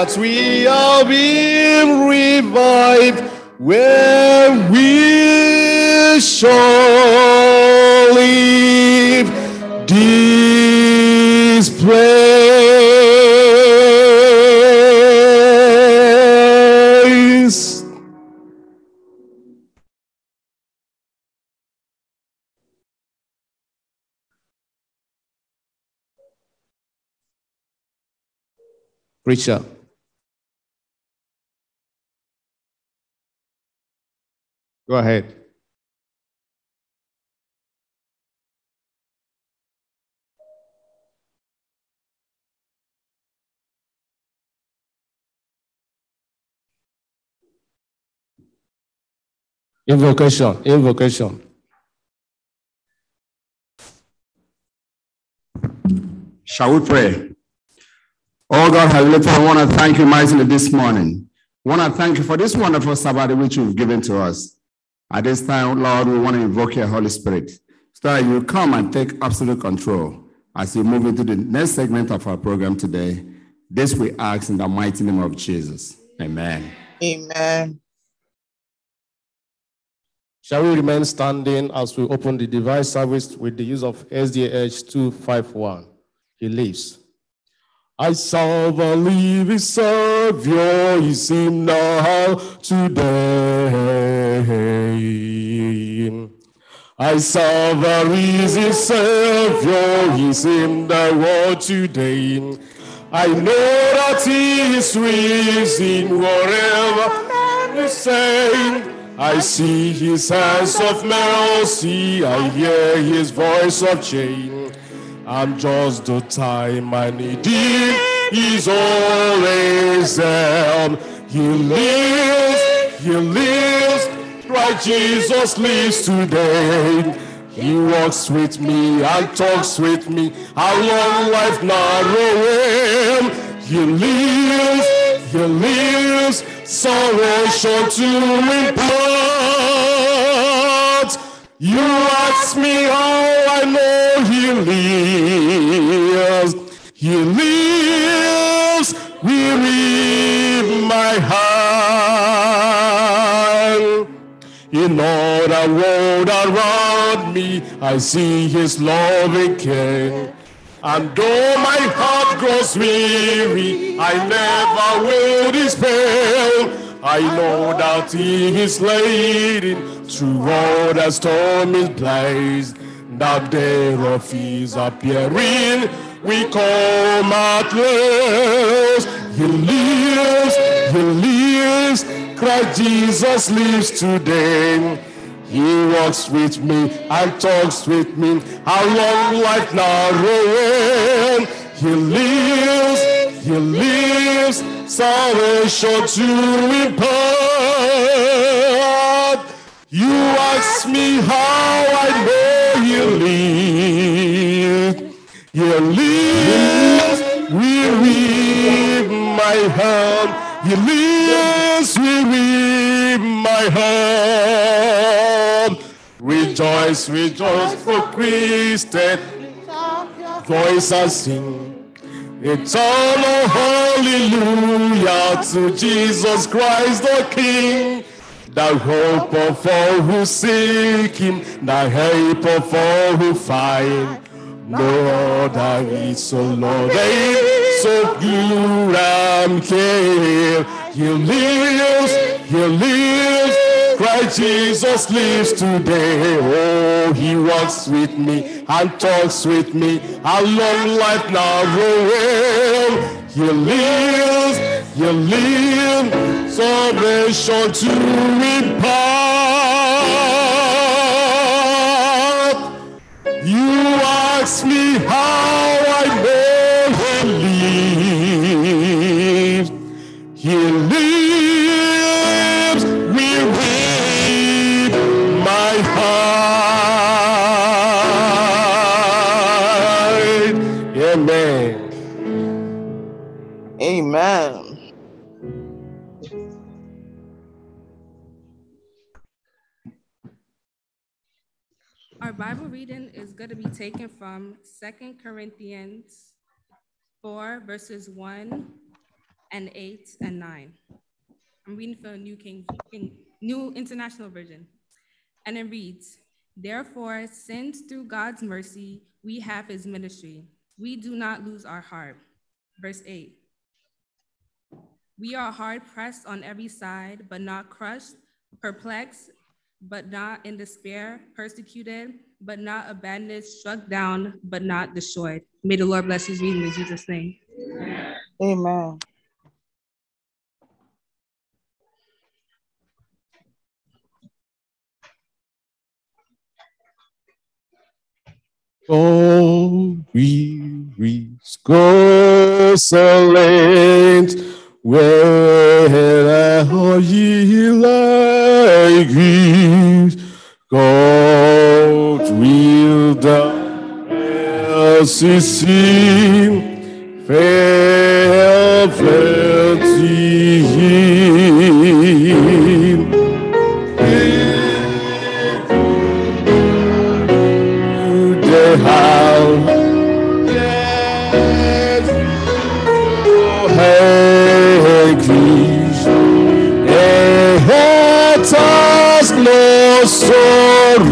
that we are being revived where we shall live this place.
Preacher. Go ahead. Invocation, invocation.
Shall we pray? Oh God, Heavenly Father, I want to thank you mightily this morning. I want to thank you for this wonderful Sabbath which you've given to us. At this time, Lord, we want to invoke your Holy Spirit so that you come and take absolute control as we move into the next segment of our program today. This we ask in the mighty name of
Jesus. Amen.
Amen. Shall we remain standing as we open the device service with the use of SDH 251? He lives. I serve a living Savior, is him now today. I saw the risen Savior, he's in the world today. I know that he is risen wherever you say. I see his hands of mercy, I hear his voice of change. I'm just the time I need him, he's always there. He lives, he lives, Christ Jesus lives today. He walks with me and talks with me. How long life narrow him. He lives, he lives, sorrow short to impart. You ask me how I know he lives. He lives, we read my heart. In all the world around me, I see his loving care. And though my heart grows weary, I never will despair. I know that he is leading through all the stormy place. that day of his appearing we call martyrs. He lives, he lives. Christ Jesus lives today. He walks with me and talks with me. Our long life narrow? He lives, he lives. Salvation to impart. You ask me how I know he lives. You we with my hand. You we with my hand. Rejoice, rejoice for Christ Voice I sing. It's all a hallelujah to Jesus Christ the King. The hope of all who seek him, the help of all who find. Lord, I is so Lord, I so i am here. He lives, he lives. Christ Jesus lives today. Oh, he walks with me and talks with me. A long life now will. He lives, he lives. Salvation to impart. ask me how I know he lives,
he lives.
going to be taken from Second Corinthians 4, verses 1 and 8 and 9. I'm reading from the New King, New International Version. And it reads, Therefore, since through God's mercy we have his ministry, we do not lose our heart. Verse 8. We are hard pressed on every side, but not crushed, perplexed, but not in despair, persecuted but not abandoned, struck
down, but not destroyed. May the Lord bless his reading in Jesus' name. Amen.
Go, wearies, go, silent, where are ye like these? ceci fait flirtir.
The house.
sorrow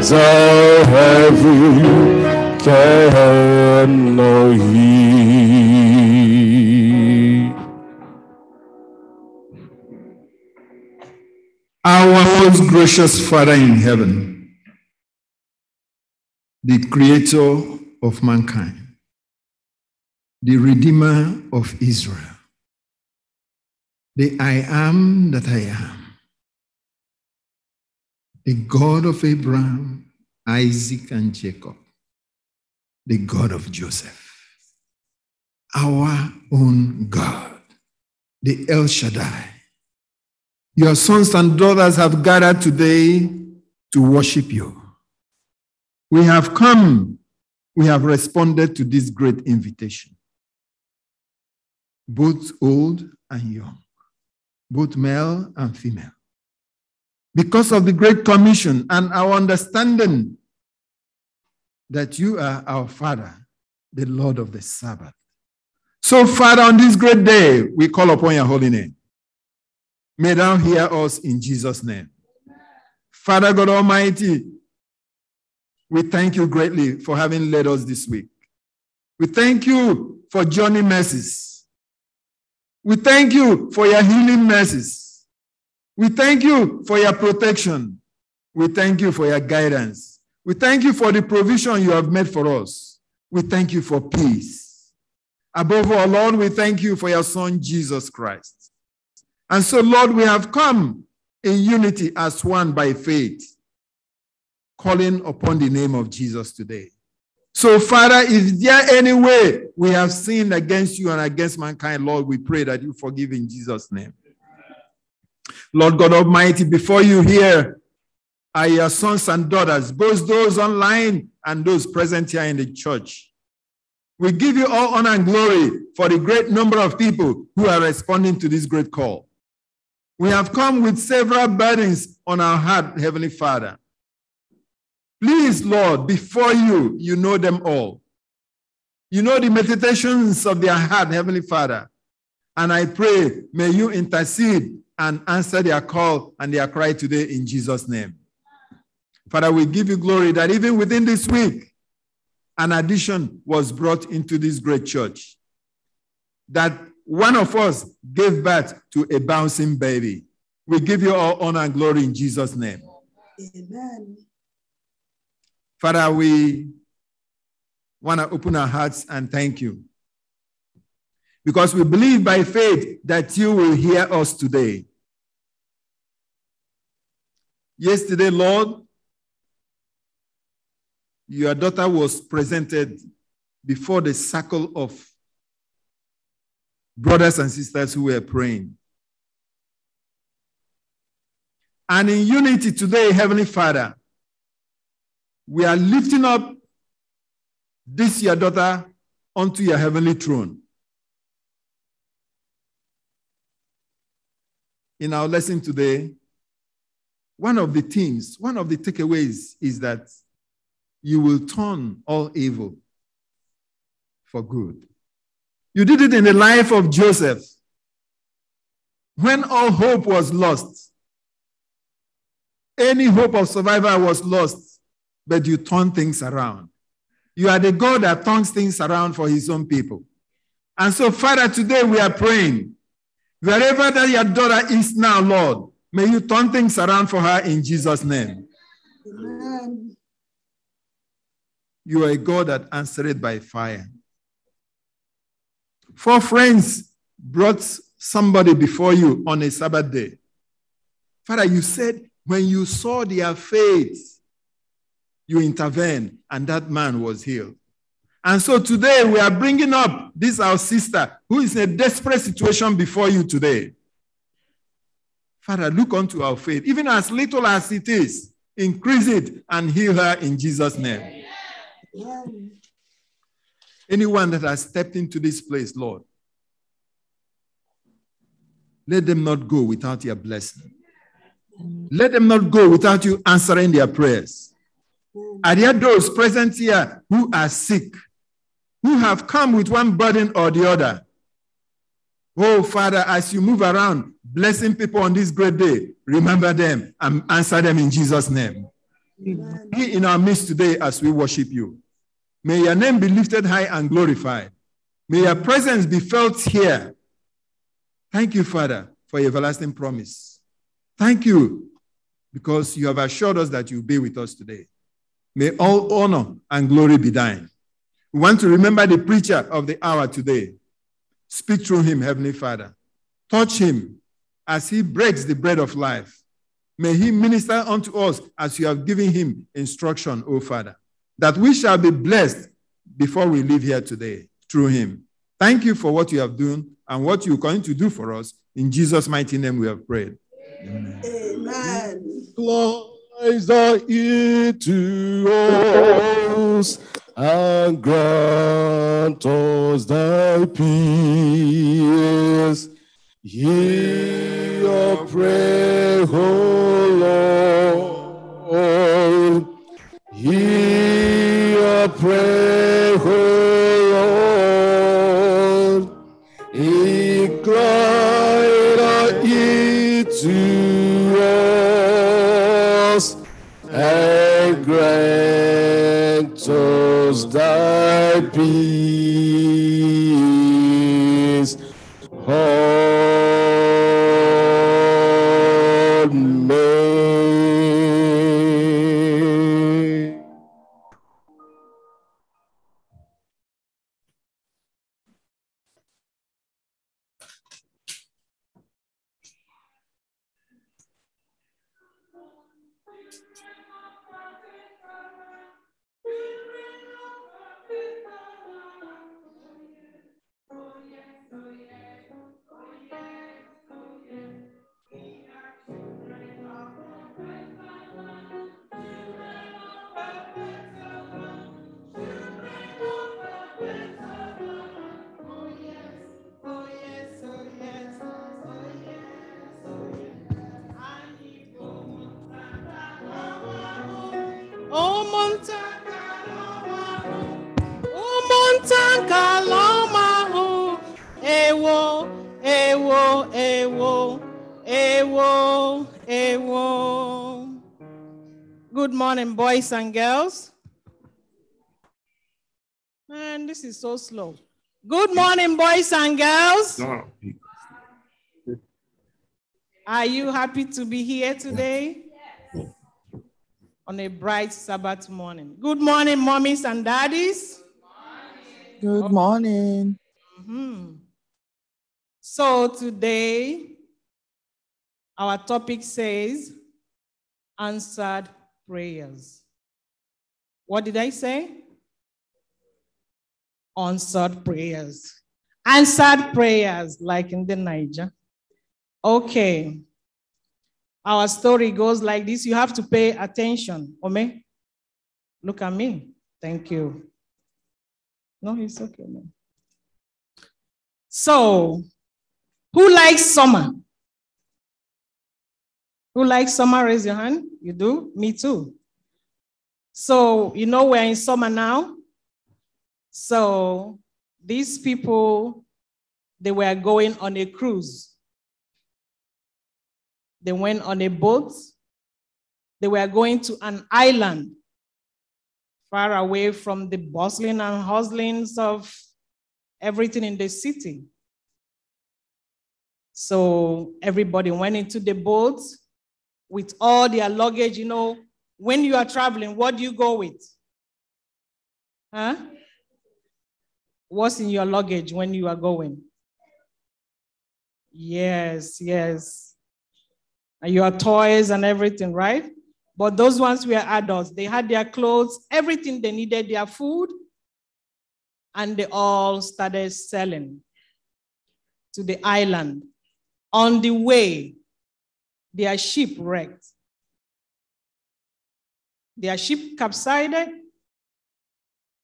the heavy Elohim. Our most
gracious Father in heaven, the creator of mankind, the redeemer of Israel, the I am that I am,
the God of Abraham, Isaac, and Jacob the God of Joseph, our own God, the El Shaddai. Your sons and daughters have gathered today to worship you. We have come, we have responded to this great invitation. Both old and young, both male and female. Because of the Great Commission and our understanding that you are our Father, the Lord of the Sabbath. So, Father, on this great day, we call upon your holy name. May thou hear us in Jesus' name. Father God Almighty, we thank you greatly for having led us this week. We thank you for journey mercies. We thank you for your healing mercies. We thank you for your protection. We thank you for your guidance. We thank you for the provision you have made for us. We thank you for peace. Above all, Lord, we thank you for your Son, Jesus Christ. And so, Lord, we have come in unity as one by faith, calling upon the name of Jesus today. So, Father, is there any way we have sinned against you and against mankind, Lord, we pray that you forgive in Jesus' name. Lord God Almighty, before you hear are your sons and daughters, both those online and those present here in the church. We give you all honor and glory for the great number of people who are responding to this great call. We have come with several burdens on our heart, Heavenly Father. Please, Lord, before you, you know them all. You know the meditations of their heart, Heavenly Father. And I pray, may you intercede and answer their call and their cry today in Jesus' name. Father, we give you glory that even within this week, an addition was brought into this great church. That one of us gave birth to a bouncing baby. We give you all honor and glory in Jesus' name.
Amen.
Father, we want to open our hearts and thank you. Because we believe by faith that you will hear us today. Yesterday, Lord, your daughter was presented before the circle of brothers and sisters who were praying. And in unity today, Heavenly Father, we are lifting up this your daughter onto your heavenly throne. In our lesson today, one of the themes, one of the takeaways is that you will turn all evil for good. You did it in the life of Joseph. When all hope was lost, any hope of survival was lost, but you turned things around. You are the God that turns things around for his own people. And so, Father, today we are praying. Wherever that your daughter is now, Lord, may you turn things around for her in Jesus' name.
Amen.
You are a God that answered by fire. Four friends brought somebody before you on a Sabbath day. Father, you said when you saw their faith, you intervened, and that man was healed. And so today we are bringing up this our sister who is in a desperate situation before you today. Father, look unto our faith, even as little as it is, increase it and heal her in Jesus' name. Anyone that has stepped into this place, Lord, let them not go without your blessing. Let them not go without you answering their prayers. Are there those present here who are sick, who have come with one burden or the other? Oh, Father, as you move around, blessing people on this great day, remember them and answer them in Jesus' name. Amen. Be in our midst today as we worship you. May your name be lifted high and glorified. May your presence be felt here. Thank you, Father, for your everlasting promise. Thank you because you have assured us that you'll be with us today. May all honor and glory be thine. We want to remember the preacher of the hour today. Speak through him, Heavenly Father. Touch him as he breaks the bread of life. May he minister unto us as you have given him instruction, O Father that we shall be blessed before we leave here today through him. Thank you for what you have done and what you're going to do for us. In Jesus' mighty name, we have prayed. Amen.
Amen. Lies are into us and grant us thy peace. Hear our prayer, be
slow. Good morning, boys and girls. Are you happy to be here today? On a bright Sabbath morning. Good morning, mommies and daddies. Good morning. Good morning. Mm-hmm. So today, our topic says answered prayers. What did I say? answered prayers. Answered prayers, like in the Niger. Okay. Our story goes like this. You have to pay attention. Ome, look at me. Thank you. No, it's okay. No. So, who likes summer? Who likes summer? Raise your hand. You do? Me too. So, you know, we're in summer now. So these people, they were going on a cruise. They went on a boat. They were going to an island far away from the bustling and hustlings of everything in the city. So everybody went into the boat with all their luggage. You know, when you are traveling, what do you go with? Huh? what's in your luggage when you are going. Yes, yes. And your toys and everything, right? But those ones were adults. They had their clothes, everything they needed, their food, and they all started selling to the island. On the way, their ship wrecked. Their ship capsized.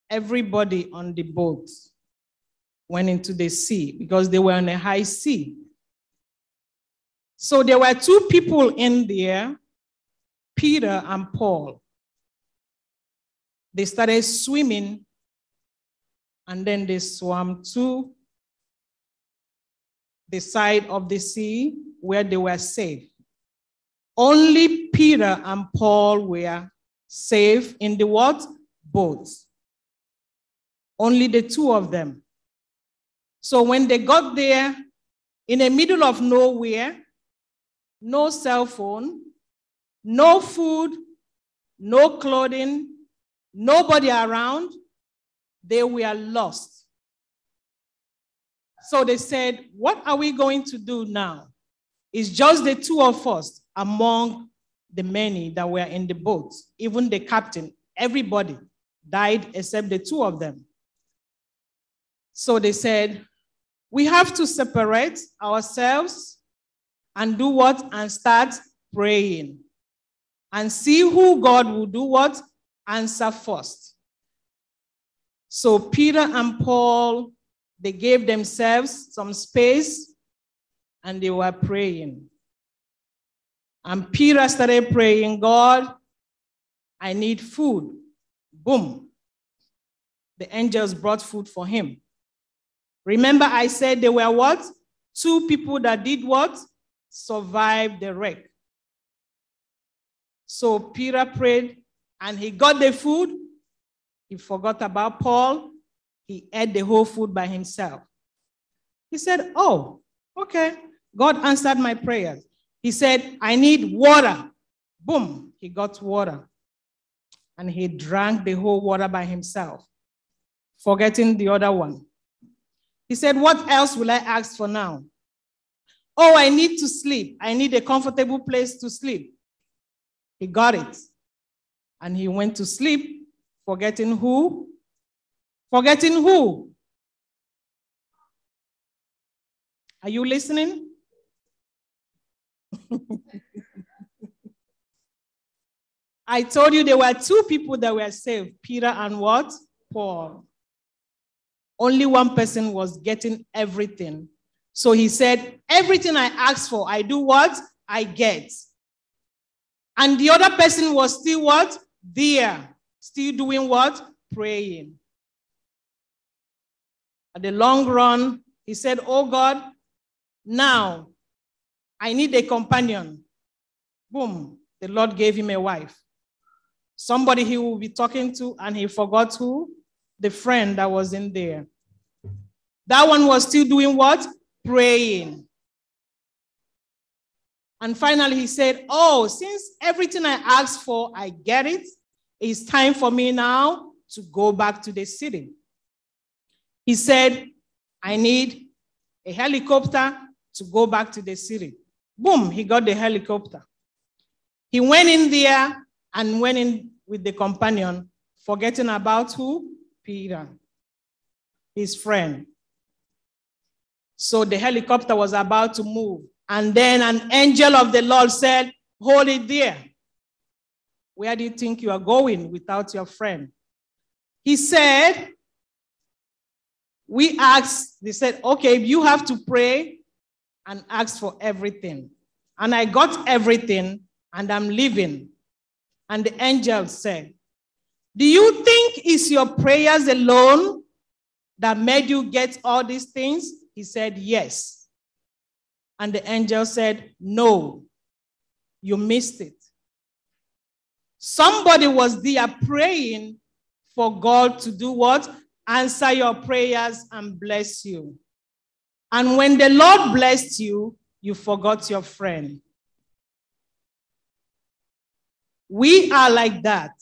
Everybody on the boat went into the sea because they were on a high sea. So there were two people in there, Peter and Paul. They started swimming and then they swam to the side of the sea where they were safe. Only Peter and Paul were safe in the what? Boats. Only the two of them. So when they got there, in the middle of nowhere, no cell phone, no food, no clothing, nobody around, they were lost. So they said, What are we going to do now? It's just the two of us among the many that were in the boat, even the captain, everybody died except the two of them. So they said, we have to separate ourselves and do what? And start praying and see who God will do what? Answer first. So Peter and Paul, they gave themselves some space and they were praying. And Peter started praying, God, I need food. Boom. The angels brought food for him. Remember, I said there were what? Two people that did what? Survived the wreck. So Peter prayed and he got the food. He forgot about Paul. He ate the whole food by himself. He said, Oh, okay. God answered my prayers. He said, I need water. Boom, he got water. And he drank the whole water by himself, forgetting the other one. He said, What else will I ask for now? Oh, I need to sleep. I need a comfortable place to sleep. He got it. And he went to sleep, forgetting who?
Forgetting who? Are you listening?
I told you there were two people that were saved Peter and what? Paul. Only one person was getting everything. So he said, Everything I ask for, I do what? I get. And the other person was still what? There. Still doing what? Praying. At the long run, he said, Oh God, now I need a companion. Boom. The Lord gave him a wife. Somebody he will be talking to, and he forgot who? the friend that wasn't there. That one was still doing what? Praying. And finally, he said, Oh, since everything I asked for, I get it, it's time for me now to go back to the city. He said, I need a helicopter to go back to the city. Boom, he got the helicopter. He went in there and went in with the companion, forgetting about who? Peter, his friend. So the helicopter was about to move. And then an angel of the Lord said, Hold it there. Where do you think you are going without your friend? He said, We asked, they said, Okay, you have to pray and ask for everything. And I got everything and I'm leaving. And the angel said, do you think it's your prayers alone that made you get all these things? He said, Yes. And the angel said, No, you missed it. Somebody was there praying for God to do what? Answer your prayers and bless you. And when the Lord blessed you, you forgot your friend. We are like that.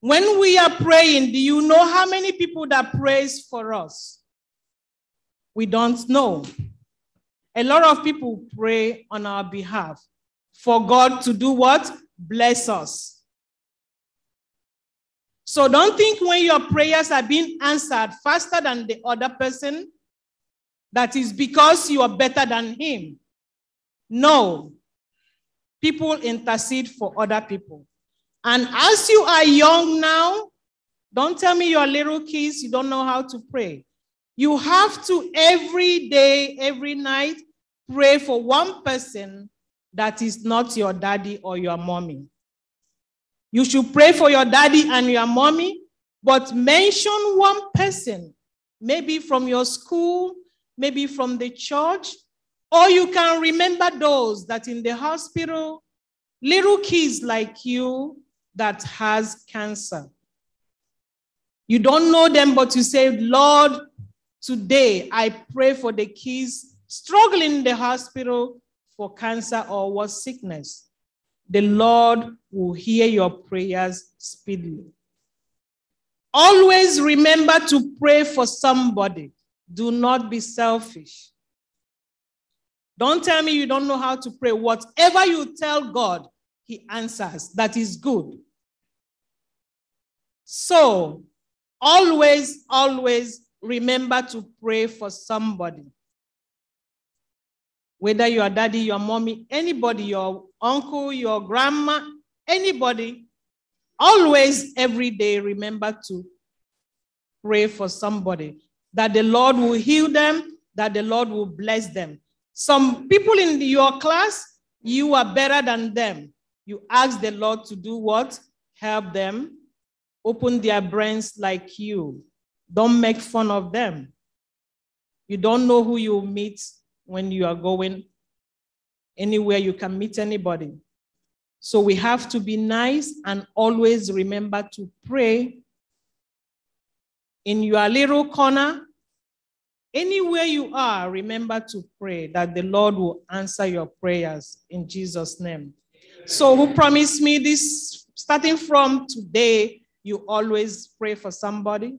When we are praying, do you know how many people that prays for us? We don't know. A lot of people pray on our behalf for God to do what? Bless us. So don't think when your prayers are being answered faster than the other person, that is because you are better than him. No. People intercede for other people. And as you are young now, don't tell me your little kids, you don't know how to pray. You have to every day, every night, pray for one person that is not your daddy or your mommy. You should pray for your daddy and your mommy, but mention one person, maybe from your school, maybe from the church, or you can remember those that in the hospital, little kids like you, that has cancer. You don't know them, but you say, Lord, today I pray for the kids struggling in the hospital for cancer or what sickness. The Lord will hear your prayers speedily. Always remember to pray for somebody. Do not be selfish. Don't tell me you don't know how to pray. Whatever you tell God, He answers. That is good. So always, always remember to pray for somebody. Whether your daddy, your mommy, anybody, your uncle, your grandma, anybody, always every day remember to pray for somebody that the Lord will heal them, that the Lord will bless them. Some people in your class, you are better than them. You ask the Lord to do what? Help them, Open their brains like you. Don't make fun of them. You don't know who you meet when you are going anywhere you can meet anybody. So we have to be nice and always remember to pray in your little corner. Anywhere you are, remember to pray that the Lord will answer your prayers in Jesus' name. So, who promised me this starting from today? you always pray for somebody?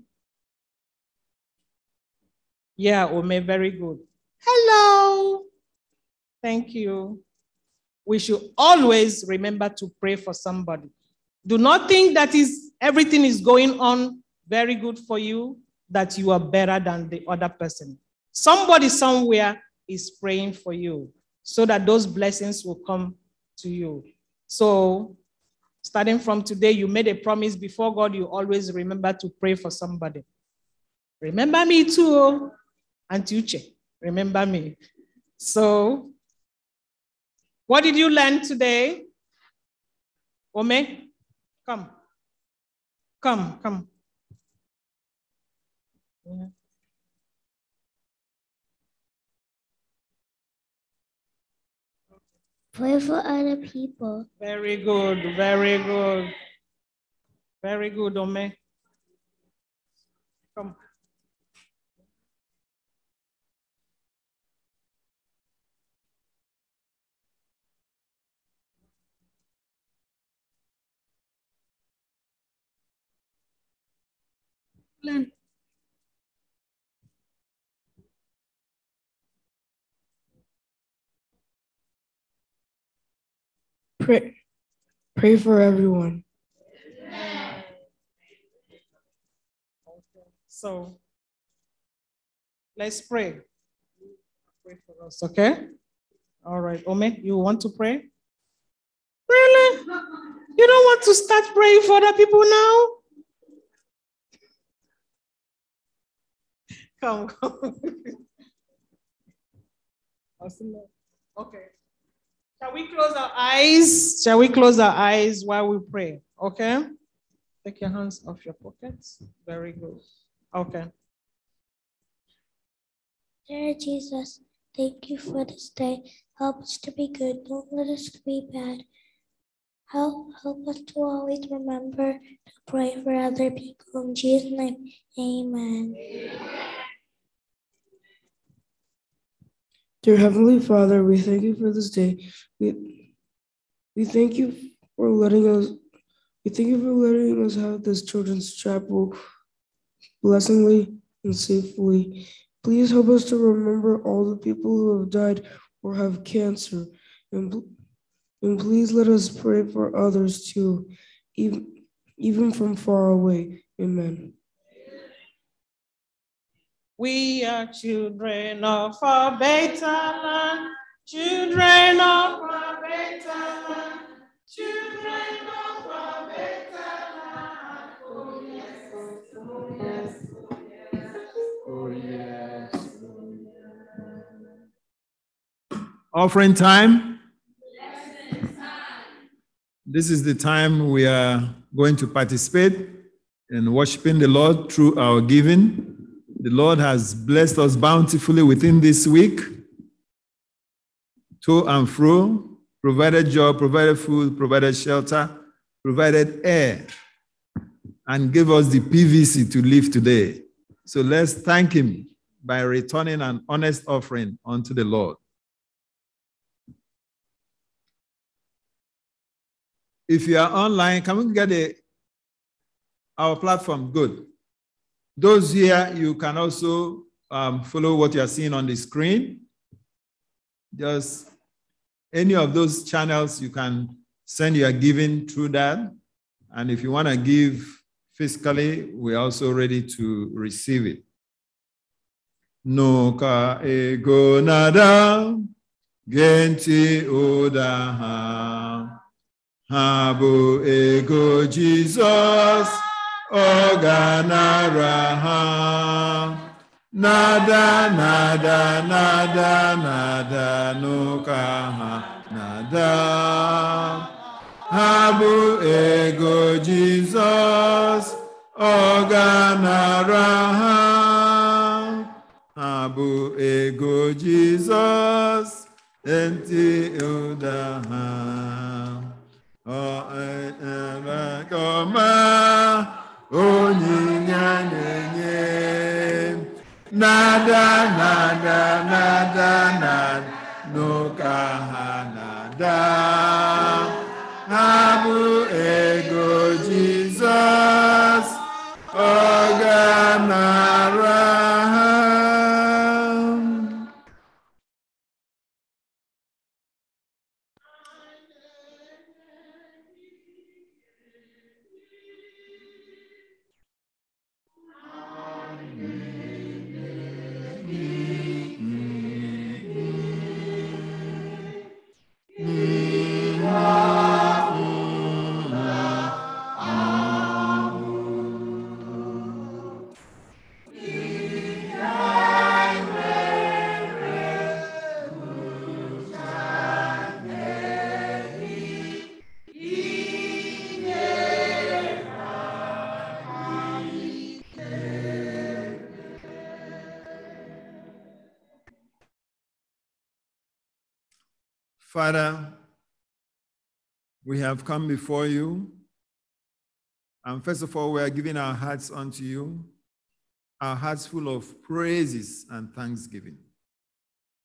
Yeah, Ome, very good. Hello. Thank you. We should always remember to pray for somebody. Do not think that is everything is going on very good for you, that you are better than the other person. Somebody somewhere is praying for you so that those blessings will come to you. So starting from today, you made a promise before God, you always remember to pray for somebody. Remember me too, oh. Aunt Uche, remember me. So, what did you learn today? Ome, come, come, come.
Yeah.
Pray for other people.
Very good, very good. Very good, Ome. Come.
Plan.
pray, pray for everyone.
Amen. So let's pray. Pray for us, okay? All right, Ome, you want to pray? Really? You don't want to start praying for other people now? Come, come. Okay. Shall we close our eyes? Shall we close our eyes while we pray? Okay. Take your hands off your pockets. Very good. Okay.
Dear Jesus, thank you for this day. Help us to be good. Don't let us be bad. Help, help us to always remember to pray for other people. In Jesus' name, amen. amen.
Dear Heavenly Father, we thank you for this day. We, we thank you for letting us we thank you for letting us have this children's chapel blessingly and safely. Please help us to remember all the people who have died or have cancer. And, and please let us pray for others too, even, even from far away. Amen.
We are children of a better land, children of
a better land, children of a better land. Oh yes, oh
yes, oh yes, oh yes.
Oh, yes. Offering time. time. This is the time we are going to participate in worshiping the Lord through our giving. The Lord has blessed us bountifully within this week, to and fro, provided job, provided food, provided shelter, provided air, and gave us the PVC to live today. So let's thank Him by returning an honest offering unto the Lord. If you are online, can we get a, our platform? Good. Those here, you can also um, follow what you are seeing on the screen. Just any of those channels, you can send your giving through that. And if you want to give fiscally, we're also ready to receive it. No ka ego nada genti oda ha. habu ego Jesus. Oganaraha. Nada, nada, nada, nada, nukaha nada. Habu ego Jesus, oganaraha. Habu ego Jesus, enti udaha. O enrakoma onyinye na-enye nada nada nada na, n'ụka ha nada ha bụ ee Father, we have come before you. And first of all, we are giving our hearts unto you, our hearts full of praises and thanksgiving.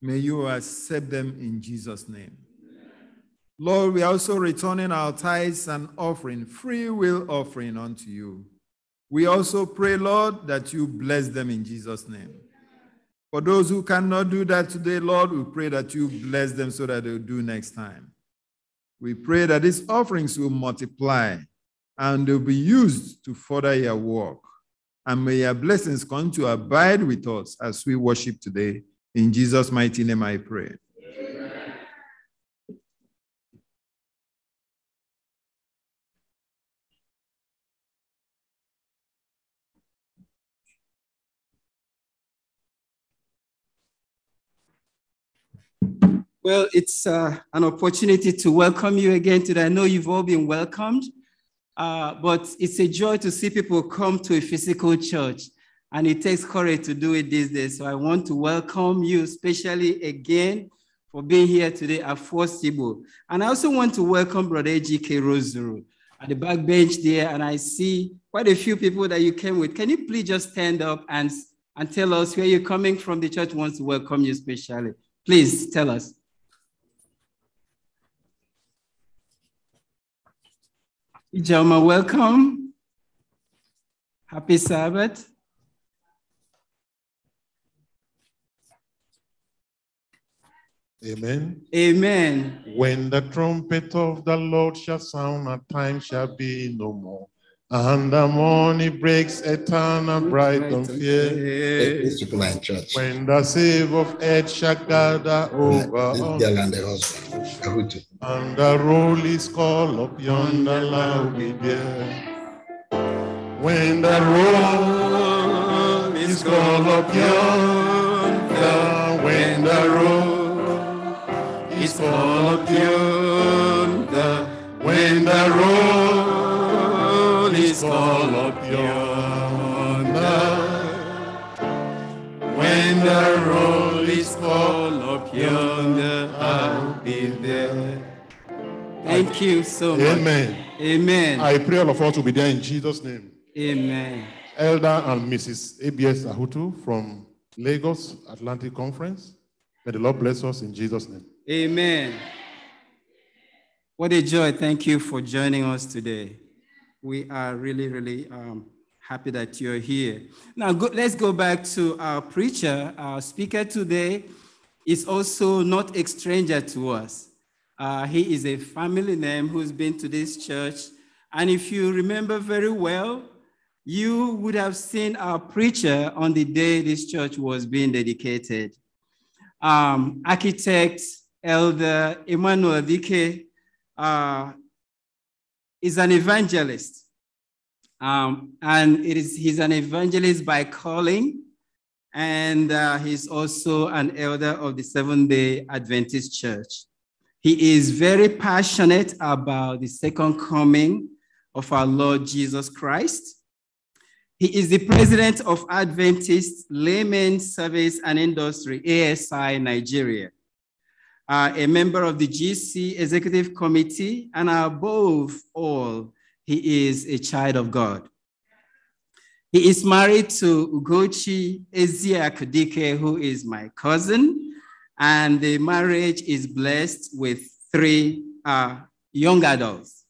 May you accept them in Jesus' name. Lord, we are also returning our tithes and offering, free will offering unto you. We also pray, Lord, that you bless them in Jesus' name. For those who cannot do that today, Lord, we pray that you bless them so that they'll do next time. We pray that these offerings will multiply and they'll be used to further your work. And may your blessings come to abide with us as we worship today. In Jesus' mighty name, I pray.
Well, it's uh, an opportunity to welcome you again today. I know you've all been welcomed, uh, but it's a joy to see people come to a physical church, and it takes courage to do it these days. So I want to welcome you, especially again for being here today at Force Sibo. And I also want to welcome Brother G.K. Rosuru at the back bench there, and I see quite a few people that you came with. Can you please just stand up and, and tell us where you're coming from? The church wants to welcome you especially. Please tell us. Ijoma, welcome. Happy Sabbath.
Amen. Amen. When the trumpet of the Lord shall sound, a time shall be no more. And the morning breaks eternal bright and fair. When the save of earth shall gather over this and
the
And the roll is called up yonder loud be
there.
When the roll is called up yonder, when the roll is called up yonder, when the roll when
the roll is full of yonder, I'll be there. Thank you so much. Amen.
Amen. I pray all of us will be there in Jesus' name. Amen. Elder and
Mrs. ABS Ahutu from Lagos Atlantic Conference.
May the Lord bless us in Jesus' name.
Amen. What a joy. Thank you for joining us today we are really, really um, happy that you're here. Now, go, let's go back to our preacher. Our speaker today is also not a stranger to us. Uh, he is a family name who's been to this church. And if you remember very well, you would have seen our preacher on the day this church was being dedicated. Um, architect, elder Emmanuel Dike, uh, is an evangelist. Um, and it is, he's an evangelist by calling, and uh, he's also an elder of the Seventh day Adventist Church. He is very passionate about the second coming of our Lord Jesus Christ. He is the president of Adventist Laymen Service and Industry, ASI Nigeria uh, a member of the GC Executive Committee, and above all, he is a child of God. He is married to Ugochi Ezia Kudike, who is my cousin, and the marriage is blessed with three uh, young adults.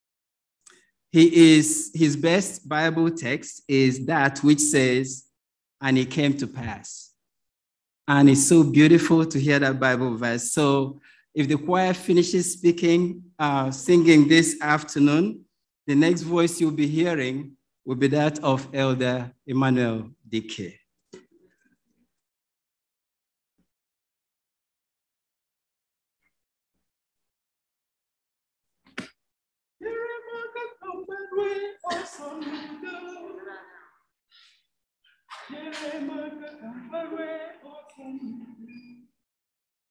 He is, his best Bible text is that which says, and it came to pass. And it's so beautiful to hear that Bible verse. So if the choir finishes speaking, uh, singing this afternoon, the next voice you'll be hearing will be that of Elder Emmanuel
Dike.
Yeah,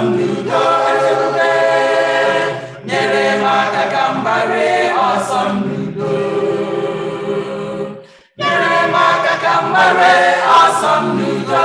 udo nyere m aka ka m ọsọ m n'udo
nyere m aka ka
m ọsọ m n'udo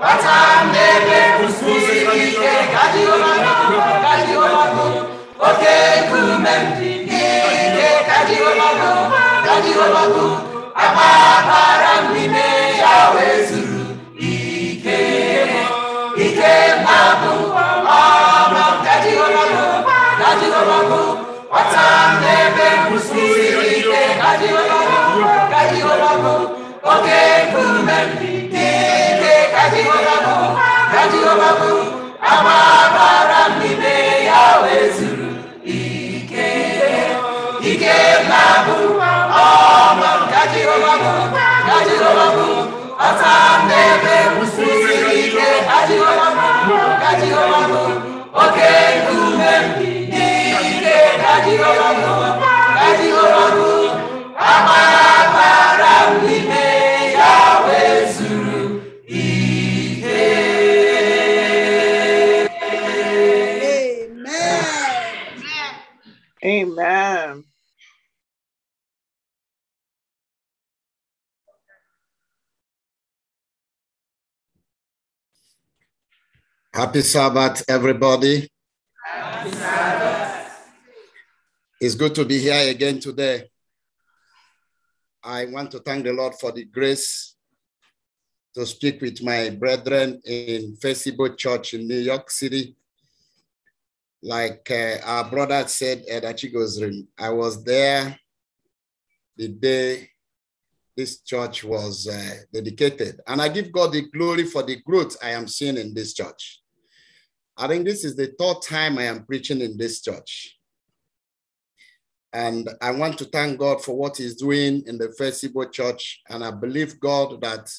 watambere kususikike kajiomano kajiomano ike
ike Kajiwa Babu, ike. Ike Babu, ike
Happy
Sabbath, everybody. Happy Sabbath. It's good to be here again today. I want to thank the Lord for the grace to speak with my brethren in Facebook Church in New York City. Like uh, our brother said at Achigo's room, I was there the day this church was uh, dedicated. And I give God the glory for the growth I am seeing in this church. I think this is the third time I am preaching in this church. And I want to thank God for what He's doing in the First Church. And I believe God that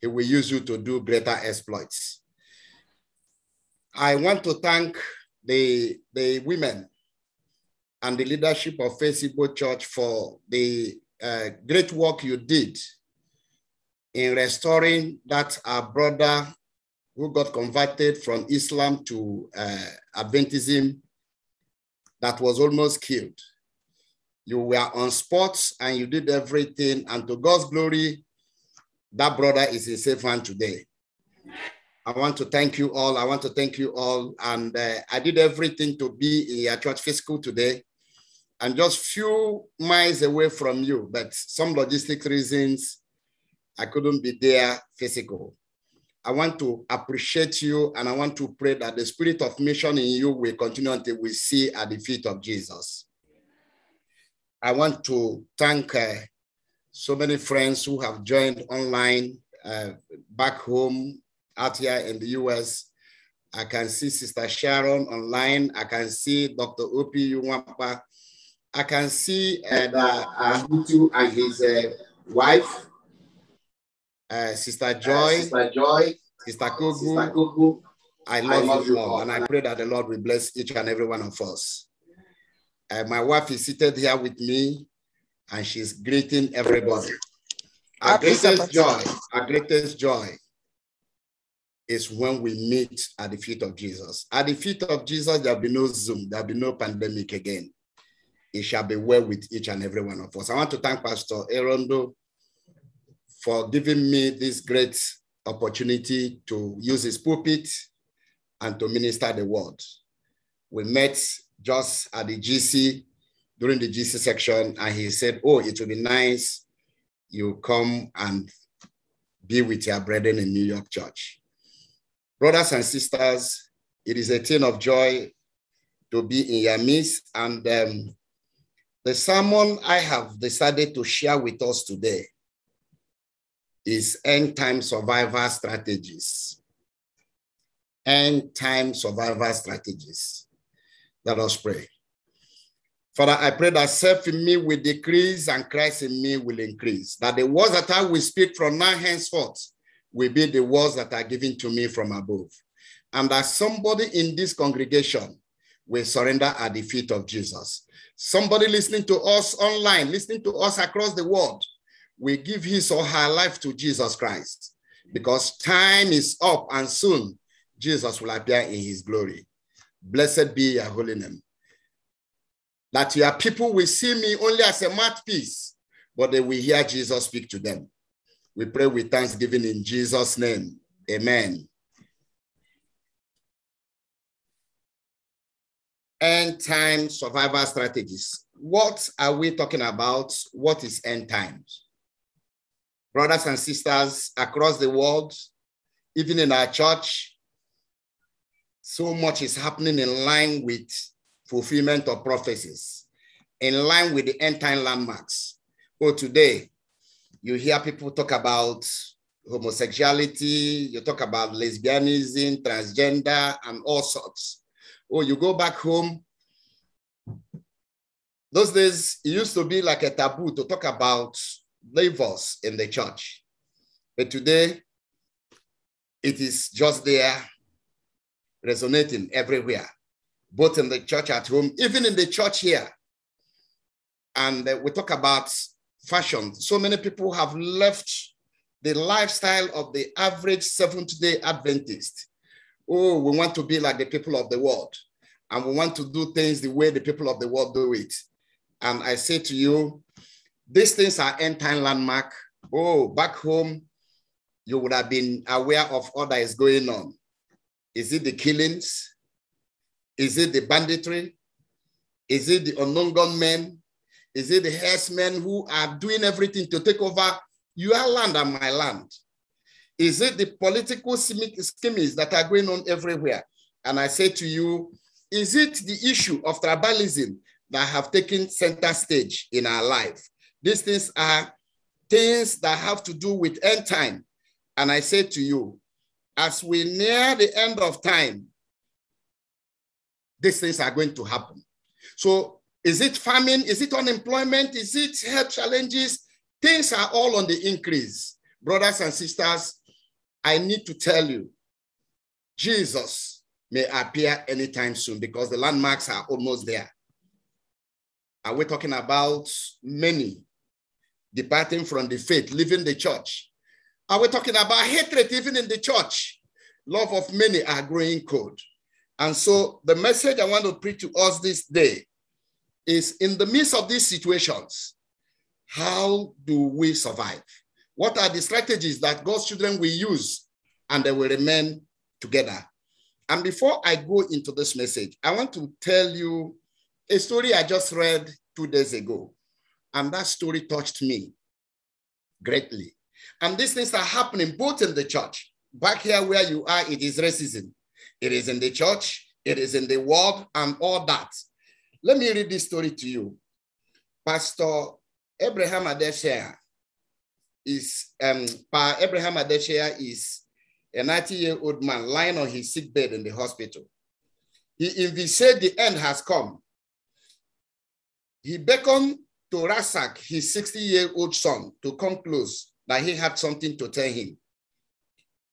He will use you to do greater exploits. I want to thank the, the women and the leadership of First Church for the uh, great work you did in restoring that our brother who got converted from Islam to uh, Adventism that was almost killed. You were on sports and you did everything. And to God's glory, that brother is in safe hand today. I want to thank you all. I want to thank you all. And uh, I did everything to be in your church fiscal today. I'm just few miles away from you, but some logistic reasons, I couldn't be there physical. I want to appreciate you and I want to pray that the spirit of mission in you will continue until we see at the feet of Jesus. I want to thank uh, so many friends who have joined online, uh, back home, out here in the US. I can see Sister Sharon online. I can see Dr. Opi Uwampa. I can see uh, that, uh, and his uh, wife uh, Sister uh, Joy, uh, Sister Joy, Sister Kugu. Sister Kugu. I love, I love you, Lord, and I pray that the Lord will bless each and every one of us. Uh, my wife is seated here with me, and she's greeting everybody. Our greatest joy, our greatest joy is when we meet at the feet of Jesus. At the feet of Jesus, there'll be no Zoom, there'll be no pandemic again. It shall be well with each and every one of us. I want to thank Pastor Erondo for giving me this great opportunity to use his pulpit and to minister the word. We met just at the GC during the GC section, and he said, Oh, it will be nice you come and be with your brethren in New York Church. Brothers and sisters, it is a thing of joy to be in your midst. And um, the sermon I have decided to share with us today is end time survival strategies. End time survival strategies. Let us pray. Father, I pray that self in me will decrease and Christ in me will increase. That the words that I will speak from now henceforth will be the words that are given to me from above. And that somebody in this congregation will surrender at the feet of Jesus. Somebody listening to us online, listening to us across the world, will give his or her life to Jesus Christ because time is up and soon Jesus will appear in his glory. Blessed be your holy name. That your people will see me only as a mouthpiece, but they will hear Jesus speak to them. We pray with thanksgiving in Jesus' name. Amen. End time survival strategies. What are we talking about? What is end times? brothers and sisters across the world, even in our church. So much is happening in line with fulfillment of prophecies, in line with the end time landmarks. Oh, today, you hear people talk about homosexuality, you talk about lesbianism, transgender, and all sorts. Oh, you go back home. Those days, it used to be like a taboo to talk about Levels in the church. But today, it is just there, resonating everywhere, both in the church at home, even in the church here. And uh, we talk about fashion. So many people have left the lifestyle of the average Seventh day Adventist. Oh, we want to be like the people of the world, and we want to do things the way the people of the world do it. And I say to you, these things are end time landmark. Oh, back home, you would have been aware of all that is going on. Is it the killings? Is it the banditry? Is it the unknown gunmen? Is it the herdsmen who are doing everything to take over your land and my land? Is it the political schemes that are going on everywhere? And I say to you, is it the issue of tribalism that have taken center stage in our life? These things are things that have to do with end time. And I say to you, as we near the end of time, these things are going to happen. So, is it famine? Is it unemployment? Is it health challenges? Things are all on the increase. Brothers and sisters, I need to tell you, Jesus may appear anytime soon because the landmarks are almost there. Are we talking about many departing from the faith, leaving the church. Are we talking about hatred even in the church? Love of many are growing cold. And so the message I want to preach to us this day is in the midst of these situations, how do we survive? What are the strategies that God's children will use and they will remain together? And before I go into this message, I want to tell you a story I just read two days ago. And that story touched me greatly. And these things are happening both in the church. Back here where you are, it is racism. It is in the church, it is in the world, and all that. Let me read this story to you. Pastor Abraham Adeshia is um pa Abraham Adeshia is a 90-year-old man lying on his sick bed in the hospital. He said the end has come. He beckoned to Rasak, his 60 year old son, to come close that he had something to tell him.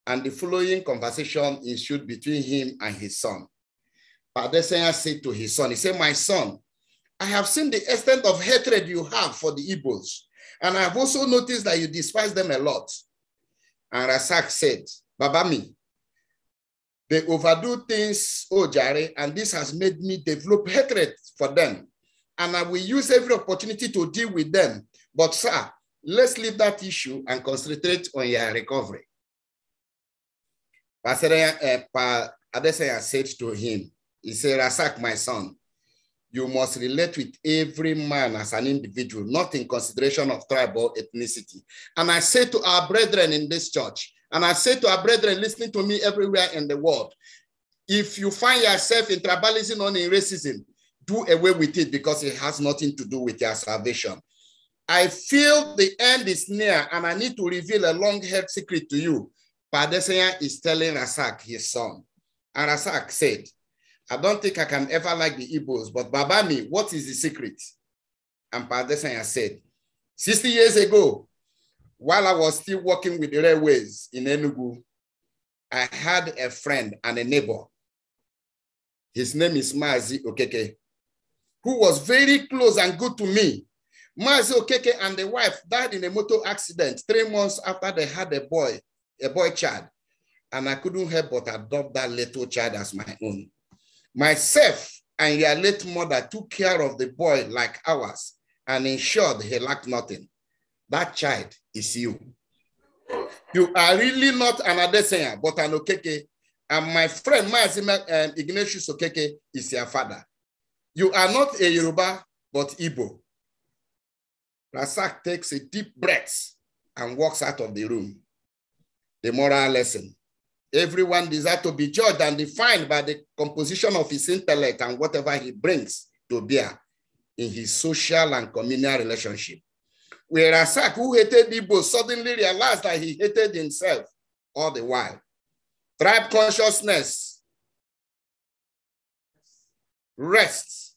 And the following conversation ensued between him and his son. Padesenya said to his son, He said, My son, I have seen the extent of hatred you have for the Igbos, and I have also noticed that you despise them a lot. And Rasak said, Babami, they overdo things, Ojare, oh and this has made me develop hatred for them and I will use every opportunity to deal with them. But, sir, let's leave that issue and concentrate on your recovery. Pastor eh, Adesanya said to him, He said, Rasak, my son, you must relate with every man as an individual, not in consideration of tribal ethnicity. And I say to our brethren in this church, and I say to our brethren listening to me everywhere in the world, if you find yourself in tribalism or in racism, do away with it because it has nothing to do with their salvation. I feel the end is near and I need to reveal a long held secret to you. Padesanya is telling Rasak, his son. And Rasak said, I don't think I can ever like the Igbos, but Babami, what is the secret? And Padesanya said, 60 years ago, while I was still working with the railways in Enugu, I had a friend and a neighbor. His name is Mazi Okeke who was very close and good to me. Mazi Okeke and the wife died in a motor accident three months after they had a boy, a boy child. And I couldn't help but adopt that little child as my own. Myself and your late mother took care of the boy like ours and ensured he lacked nothing. That child is you. You are really not an Adesanya, but an Okeke. And my friend, Mazi um, Ignatius Okeke, is your father. You are not a Yoruba, but Igbo. Rasak takes a deep breath and walks out of the room. The moral lesson. Everyone desires to be judged and defined by the composition of his intellect and whatever he brings to bear in his social and communal relationship. Where Rasak, who hated Igbo, suddenly realized that he hated himself all the while. Tribe consciousness rests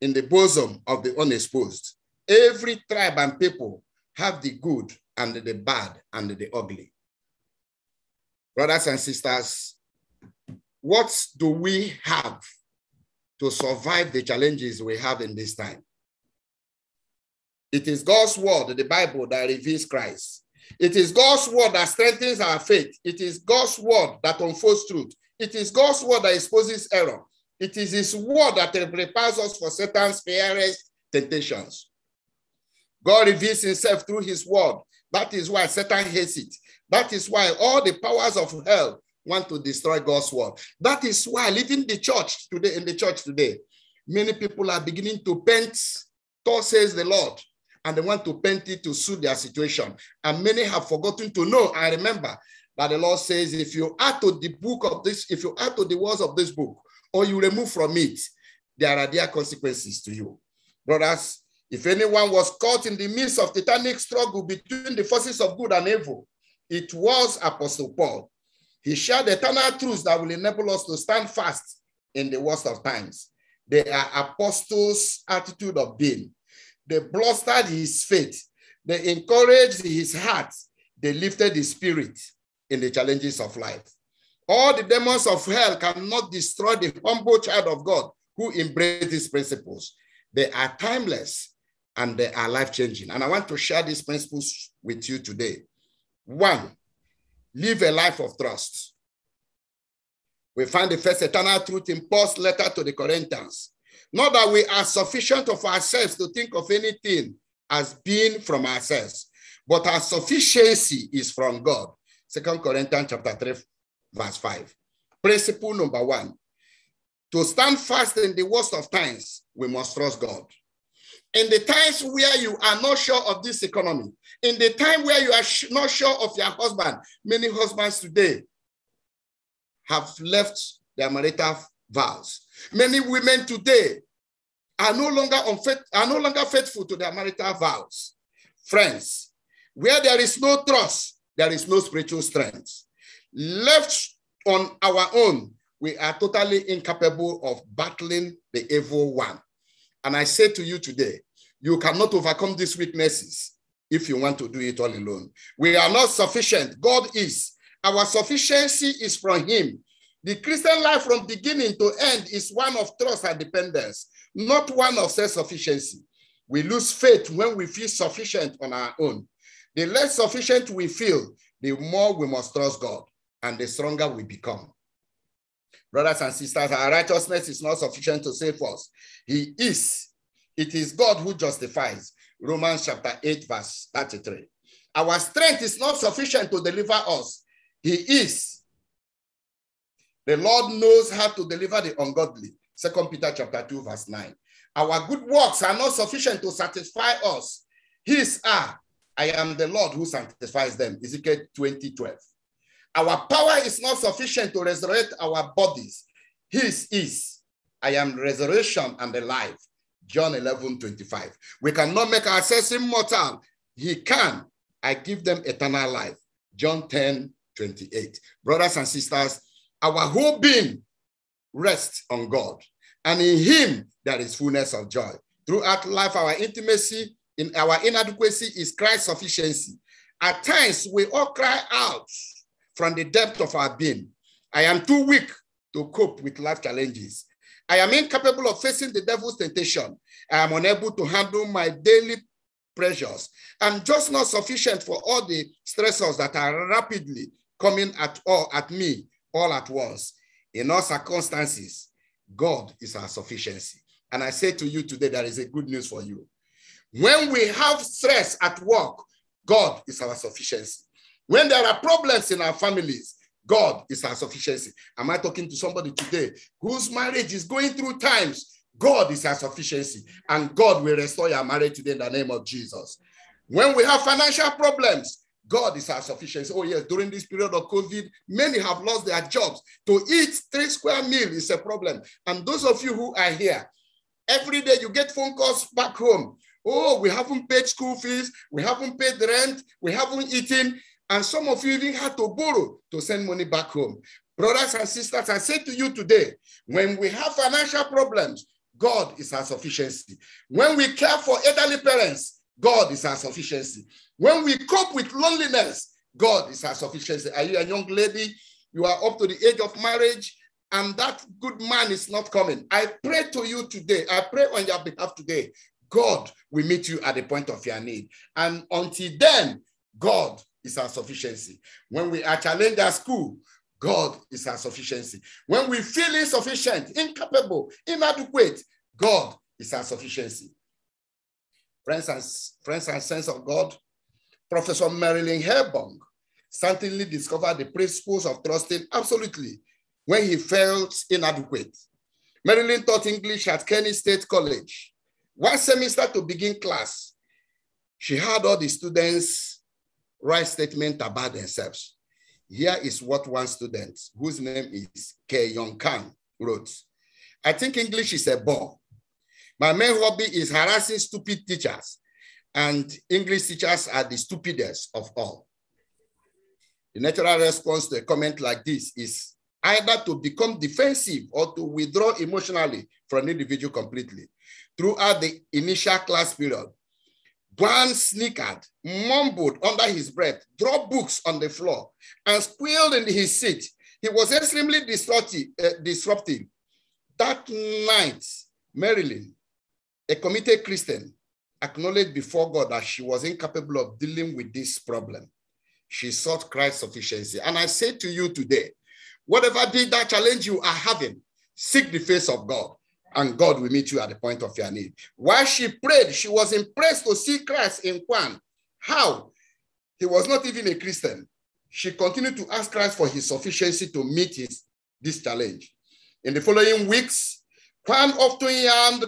in the bosom of the unexposed. Every tribe and people have the good and the bad and the ugly. Brothers and sisters, what do we have to survive the challenges we have in this time? It is God's word, the Bible, that reveals Christ. It is God's word that strengthens our faith. It is God's word that unfolds truth. It is God's word that exposes error. It is his word that prepares us for Satan's fiercest temptations. God reveals himself through his word. That is why Satan hates it. That is why all the powers of hell want to destroy God's word. That is why leaving the church today, in the church today, many people are beginning to paint, God says the Lord, and they want to paint it to suit their situation. And many have forgotten to know I remember that the Lord says, if you add to the book of this, if you add to the words of this book, or you remove from it, there are their consequences to you. Brothers, if anyone was caught in the midst of titanic struggle between the forces of good and evil, it was Apostle Paul. He shared eternal truths that will enable us to stand fast in the worst of times. They are apostles' attitude of being. They bolstered his faith. They encouraged his heart. They lifted his spirit in the challenges of life. All the demons of hell cannot destroy the humble child of God who embrace these principles. They are timeless and they are life changing. And I want to share these principles with you today. One, live a life of trust. We find the first eternal truth in Paul's letter to the Corinthians. Not that we are sufficient of ourselves to think of anything as being from ourselves, but our sufficiency is from God. Second Corinthians chapter 3, verse 5. Principle number one to stand fast in the worst of times, we must trust God. In the times where you are not sure of this economy, in the time where you are not sure of your husband, many husbands today have left their marital vows. Many women today are no longer are no longer faithful to their marital vows. Friends, where there is no trust, there is no spiritual strength. Left on our own, we are totally incapable of battling the evil one. And I say to you today, you cannot overcome these weaknesses if you want to do it all alone. We are not sufficient. God is. Our sufficiency is from Him. The Christian life from beginning to end is one of trust and dependence, not one of self sufficiency. We lose faith when we feel sufficient on our own. The less sufficient we feel, the more we must trust God and the stronger we become. Brothers and sisters, our righteousness is not sufficient to save us. He is. It is God who justifies. Romans chapter 8, verse 33. Our strength is not sufficient to deliver us. He is. The Lord knows how to deliver the ungodly. Second Peter chapter 2, verse 9. Our good works are not sufficient to satisfy us. His are. I am the Lord who sanctifies them. Ezekiel 20, 12. Our power is not sufficient to resurrect our bodies. His is. I am resurrection and the life. John 11, 25. We cannot make ourselves immortal. He can. I give them eternal life. John 10, 28. Brothers and sisters, our whole being rests on God. And in him, there is fullness of joy. Throughout life, our intimacy in our inadequacy is Christ's sufficiency. At times, we all cry out from the depth of our being. I am too weak to cope with life challenges. I am incapable of facing the devil's temptation. I am unable to handle my daily pressures. I'm just not sufficient for all the stressors that are rapidly coming at all at me all at once. In all circumstances, God is our sufficiency. And I say to you today, there is a good news for you. When we have stress at work, God is our sufficiency. When there are problems in our families, God is our sufficiency. Am I talking to somebody today whose marriage is going through times? God is our sufficiency, and God will restore your marriage today in the name of Jesus. When we have financial problems, God is our sufficiency. Oh, yes, during this period of COVID, many have lost their jobs. To eat three square meals is a problem. And those of you who are here, every day you get phone calls back home. Oh, we haven't paid school fees, we haven't paid rent, we haven't eaten. And some of you even had to borrow to send money back home. Brothers and sisters, I say to you today, when we have financial problems, God is our sufficiency. When we care for elderly parents, God is our sufficiency. When we cope with loneliness, God is our sufficiency. Are you a young lady? You are up to the age of marriage, and that good man is not coming. I pray to you today. I pray on your behalf today. God will meet you at the point of your need. And until then, God is our sufficiency. When we are challenged at school, God is our sufficiency. When we feel insufficient, incapable, inadequate, God is our sufficiency. Friends and, friends and sons of God, Professor Marilyn Herbong suddenly discovered the principles of trusting absolutely when he felt inadequate. Marilyn taught English at Kenny State College. One semester to begin class, she had all the students write statements about themselves. Here is what one student, whose name is Ke Yong Kang, wrote. I think English is a bore. My main hobby is harassing stupid teachers, and English teachers are the stupidest of all. The natural response to a comment like this is either to become defensive or to withdraw emotionally from an individual completely. Throughout the initial class period, Bran snickered, mumbled under his breath, dropped books on the floor, and squealed in his seat. He was extremely disruptive. Uh, That night, Marilyn, a committed Christian, acknowledged before God that she was incapable of dealing with this problem. She sought Christ's sufficiency. And I say to you today, whatever be that challenge you are having, seek the face of God and God will meet you at the point of your need. While she prayed, she was impressed to see Christ in Juan. How? He was not even a Christian. She continued to ask Christ for his sufficiency to meet his, this challenge. In the following weeks, Juan often yawned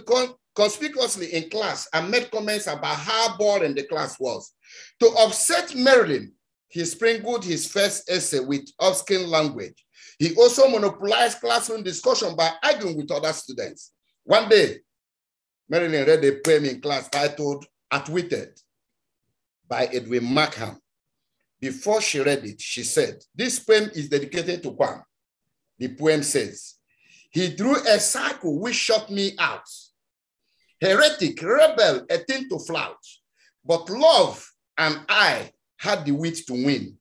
conspicuously in class and made comments about how boring the class was. To upset Marilyn, he sprinkled his first essay with obscene language. He also monopolized classroom discussion by arguing with other students. One day, Marilyn read a poem in class titled Outwitted by Edwin Markham. Before she read it, she said, This poem is dedicated to Kwam. The poem says, He drew a circle which shut me out. Heretic, rebel, a thing to flout. But love and I had the wit to win.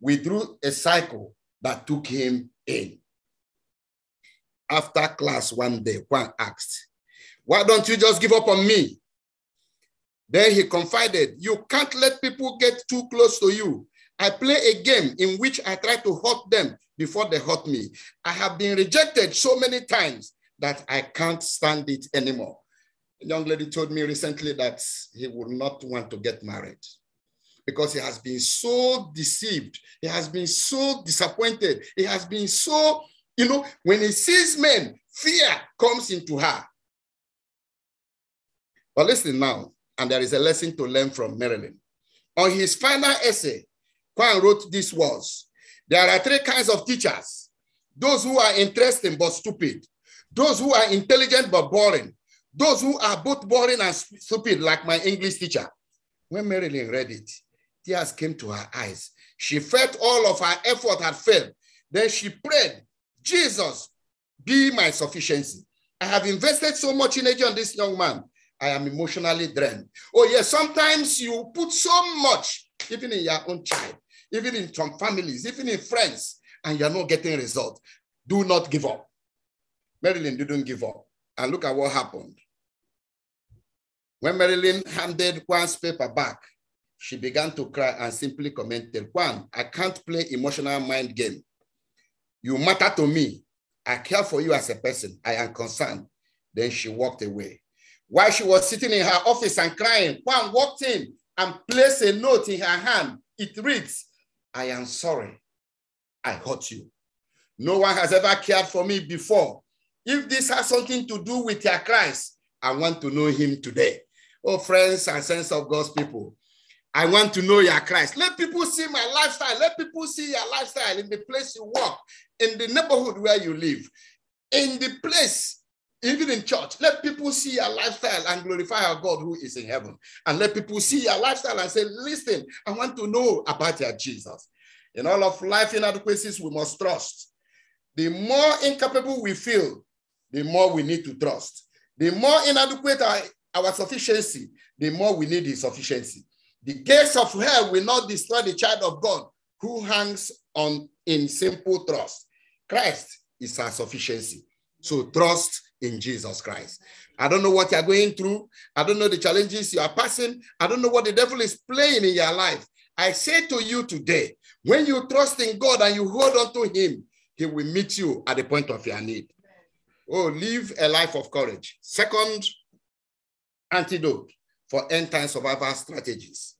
We drew a circle that took him in after class one day, Juan asked, Why don't you just give up on me? Then he confided, You can't let people get too close to you. I play a game in which I try to hurt them before they hurt me. I have been rejected so many times that I can't stand it anymore. A young lady told me recently that he would not want to get married because he has been so deceived. He has been so disappointed. He has been so you know, when he sees men, fear comes into her. But listen now, and there is a lesson to learn from Marilyn. On his final essay, Kwan wrote these words There are three kinds of teachers those who are interesting but stupid, those who are intelligent but boring, those who are both boring and stupid, like my English teacher. When Marilyn read it, tears came to her eyes. She felt all of her effort had failed. Then she prayed Jesus, be my sufficiency. I have invested so much energy on this young man. I am emotionally drained. Oh, yes, sometimes you put so much, even in your own child, even in some families, even in friends, and you're not getting result. Do not give up. Marilyn didn't give up. And look at what happened. When Marilyn handed Juan's paper back, she began to cry and simply commented, "Juan, I can't play emotional mind game. You matter to me. I care for you as a person. I am concerned. Then she walked away. While she was sitting in her office and crying, Juan walked in and placed a note in her hand. It reads, I am sorry. I hurt you. No one has ever cared for me before. If this has something to do with your Christ, I want to know him today. Oh, friends and sense of God's people, I want to know your Christ. Let people see my lifestyle. Let people see your lifestyle in the place you work." in the neighborhood where you live, in the place even in church, let people see your lifestyle and glorify our God who is in heaven. And let people see your lifestyle and say, listen, I want to know about your Jesus. In all of life inadequacies, we must trust. The more incapable we feel, the more we need to trust. The more inadequate our, our sufficiency, the more we need his sufficiency. The gates of hell will not destroy the child of God who hangs on in simple trust. Christ is our sufficiency. So trust in Jesus Christ. I don't know what you're going through. I don't know the challenges you are passing. I don't know what the devil is playing in your life. I say to you today, when you trust in God and you hold on to Him, He will meet you at the point of your need. Oh, live a life of courage. Second antidote for end time survival strategies.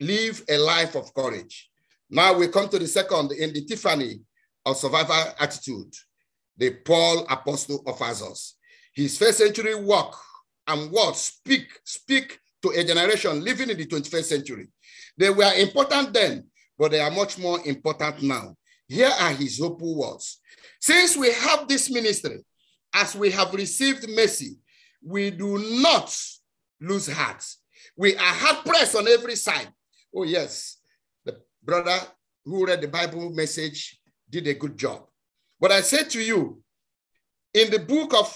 Live a life of courage. Now we come to the second in the Tiffany of survival attitude the Paul apostle offers us. His first century work and words speak, speak to a generation living in the 21st century. They were important then, but they are much more important now. Here are his hopeful words. Since we have this ministry, as we have received mercy, we do not lose heart. We are hard pressed on every side. Oh, yes. The brother who read the Bible message did a good job. But I say to you, in the book of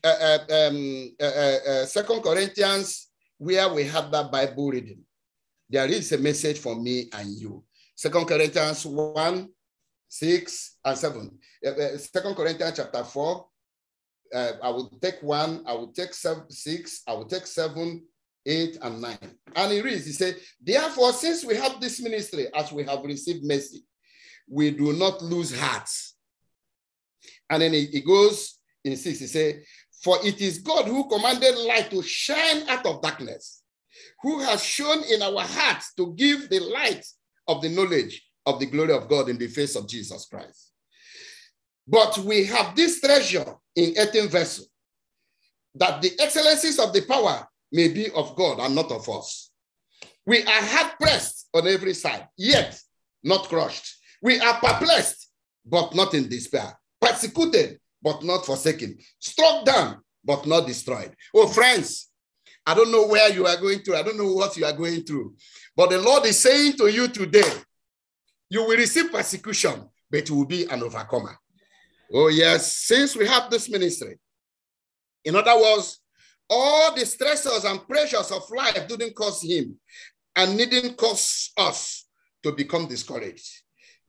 uh, uh um, uh, uh, uh, Second Corinthians, where we have that Bible reading, there is a message for me and you. Second Corinthians 1, 6, and 7. Uh, Second Corinthians chapter 4. I will take one, I will take seven, six, I will take seven, eight, and nine. And he reads, he said, Therefore, since we have this ministry, as we have received mercy, we do not lose heart. And then he, goes in six, he says, For it is God who commanded light to shine out of darkness, who has shown in our hearts to give the light of the knowledge of the glory of God in the face of Jesus Christ. But we have this treasure in 18 vessel, that the excellencies of the power may be of God and not of us. We are hard pressed on every side, yet not crushed, we are perplexed, but not in despair. Persecuted, but not forsaken. Struck down, but not destroyed. Oh, friends, I don't know where you are going through. I don't know what you are going through. But the Lord is saying to you today, you will receive persecution, but you will be an overcomer. Oh, yes. Since we have this ministry, in other words, all the stressors and pressures of life didn't cause him and didn't cause us to become discouraged.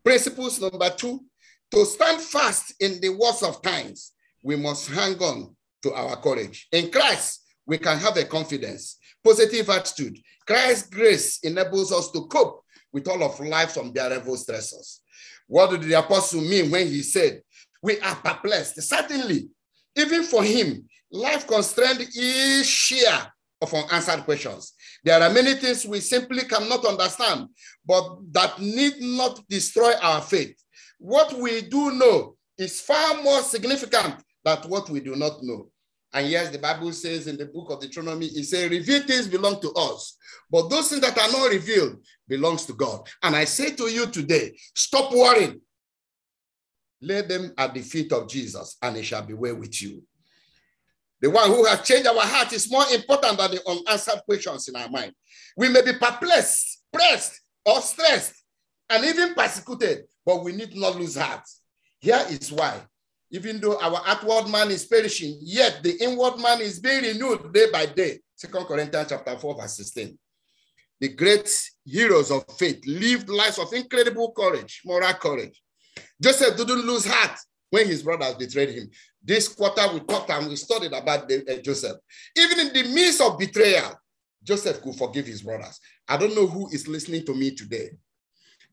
Principles number two, to stand fast in the worst of times, we must hang on to our courage. In Christ, we can have a confidence, positive attitude. Christ's grace enables us to cope with all of life's unbearable stressors. What did the apostle mean when he said, We are perplexed? Certainly, even for him, life constraint is sheer of unanswered questions. There are many things we simply cannot understand, but that need not destroy our faith. What we do know is far more significant than what we do not know. And yes, the Bible says in the book of Deuteronomy, it says, revealed things belong to us, but those things that are not revealed belongs to God. And I say to you today, stop worrying. Lay them at the feet of Jesus, and it shall be well with you. The one who has changed our heart is more important than the unanswered questions in our mind. We may be perplexed, pressed, or stressed, and even persecuted, but we need not lose heart. Here is why. Even though our outward man is perishing, yet the inward man is being renewed day by day. Second Corinthians chapter 4, verse 16. The great heroes of faith lived lives of incredible courage, moral courage. Joseph didn't lose heart when his brothers betrayed him. This quarter we talked and we studied about the, uh, Joseph. Even in the midst of betrayal, Joseph could forgive his brothers. I don't know who is listening to me today.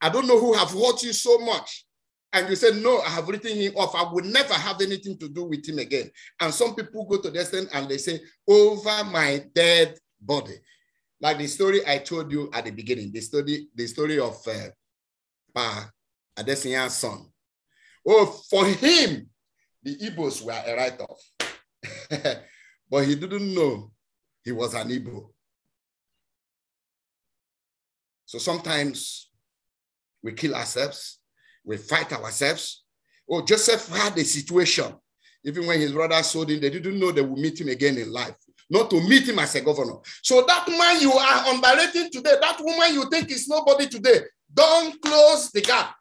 I don't know who have hurt you so much. And you said, no, I have written him off. I will never have anything to do with him again. And some people go to the extent and they say, over my dead body. Like the story I told you at the beginning, the story, the story of uh, Pa Adesinya's son. Oh, for him, the Igbos were a write off. but he didn't know he was an Igbo. So sometimes we kill ourselves, we fight ourselves. Oh, Joseph had a situation. Even when his brother sold him, they didn't know they would meet him again in life, not to meet him as a governor. So that man you are underrating today, that woman you think is nobody today, don't close the gap.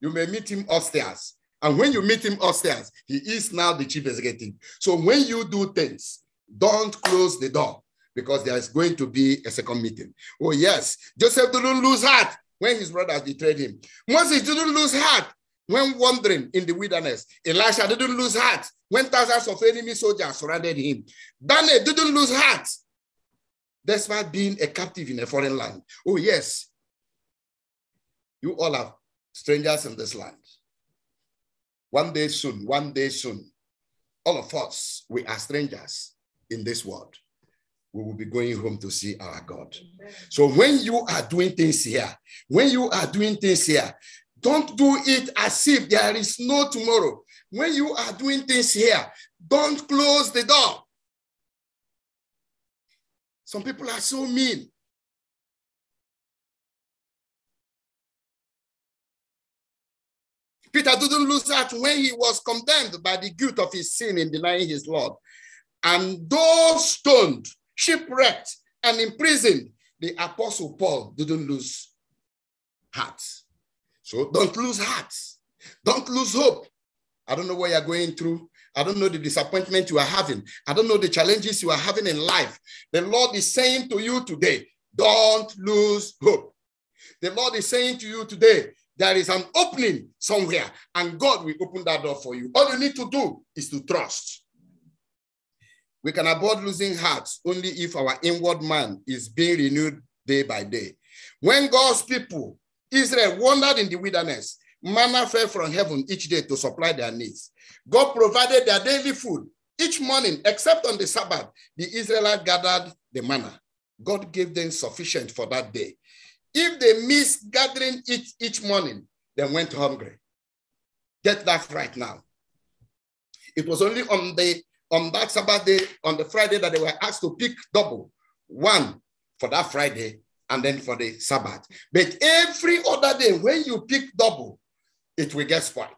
You may meet him upstairs and when you meet him upstairs, he is now the chief executive. So when you do things, don't close the door because there is going to be a second meeting. Oh, yes. Joseph didn't lose heart when his brothers betrayed him. Moses didn't lose heart when wandering in the wilderness. Elisha didn't lose heart when thousands of enemy soldiers surrounded him. Daniel didn't lose heart despite being a captive in a foreign land. Oh, yes. You all are strangers in this land. One day soon, one day soon, all of us, we are strangers in this world. We will be going home to see our God. So when you are doing things here, when you are doing things here, don't do it as if there is no tomorrow. When you are doing things here, don't close the door. Some people
are so mean.
Peter didn't lose that when he was condemned by the guilt of his sin in denying his Lord. And though stoned, shipwrecked, and imprisoned, the apostle Paul didn't lose heart. So don't lose heart. Don't lose hope. I don't know what you're going through. I don't know the disappointment you are having. I don't know the challenges you are having in life. The Lord is saying to you today, don't lose hope. The Lord is saying to you today, there is an opening somewhere, and God will open that door for you. All you need to do is to trust. We can avoid losing hearts only if our inward man is being renewed day by day. When God's people, Israel, wandered in the wilderness, manna fell from heaven each day to supply their needs. God provided their daily food. Each morning, except on the Sabbath, the Israelites gathered the manna. God gave them sufficient for that day. If they miss gathering each, each morning, they went hungry. Get that right now. It was only on the on that Sabbath day, on the Friday, that they were asked to pick double, one for that Friday and then for the Sabbath. But every other day, when you pick double, it will get spoiled.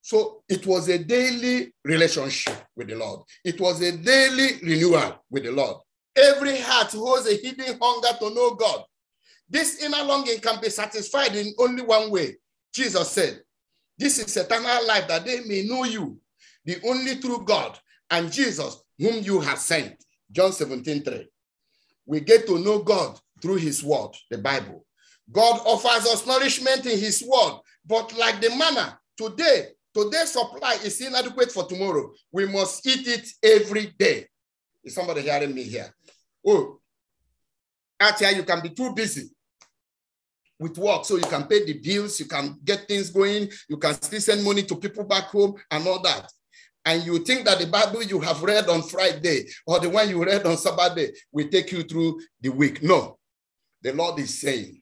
So it was a daily relationship with the Lord. It was a daily renewal with the Lord. Every heart holds a hidden hunger to know God. This inner longing can be satisfied in only one way. Jesus said, This is eternal life that they may know you, the only true God, and Jesus, whom you have sent. John 17 3. We get to know God through his word, the Bible. God offers us nourishment in his word, but like the manna, today, today's supply is inadequate for tomorrow. We must eat it every day. Is somebody hearing me here? Oh, out here you can be too busy with work so you can pay the bills, you can get things going, you can still send money to people back home and all that. And you think that the Bible you have read on Friday or the one you read on Saturday will take you through the week. No, the Lord is saying,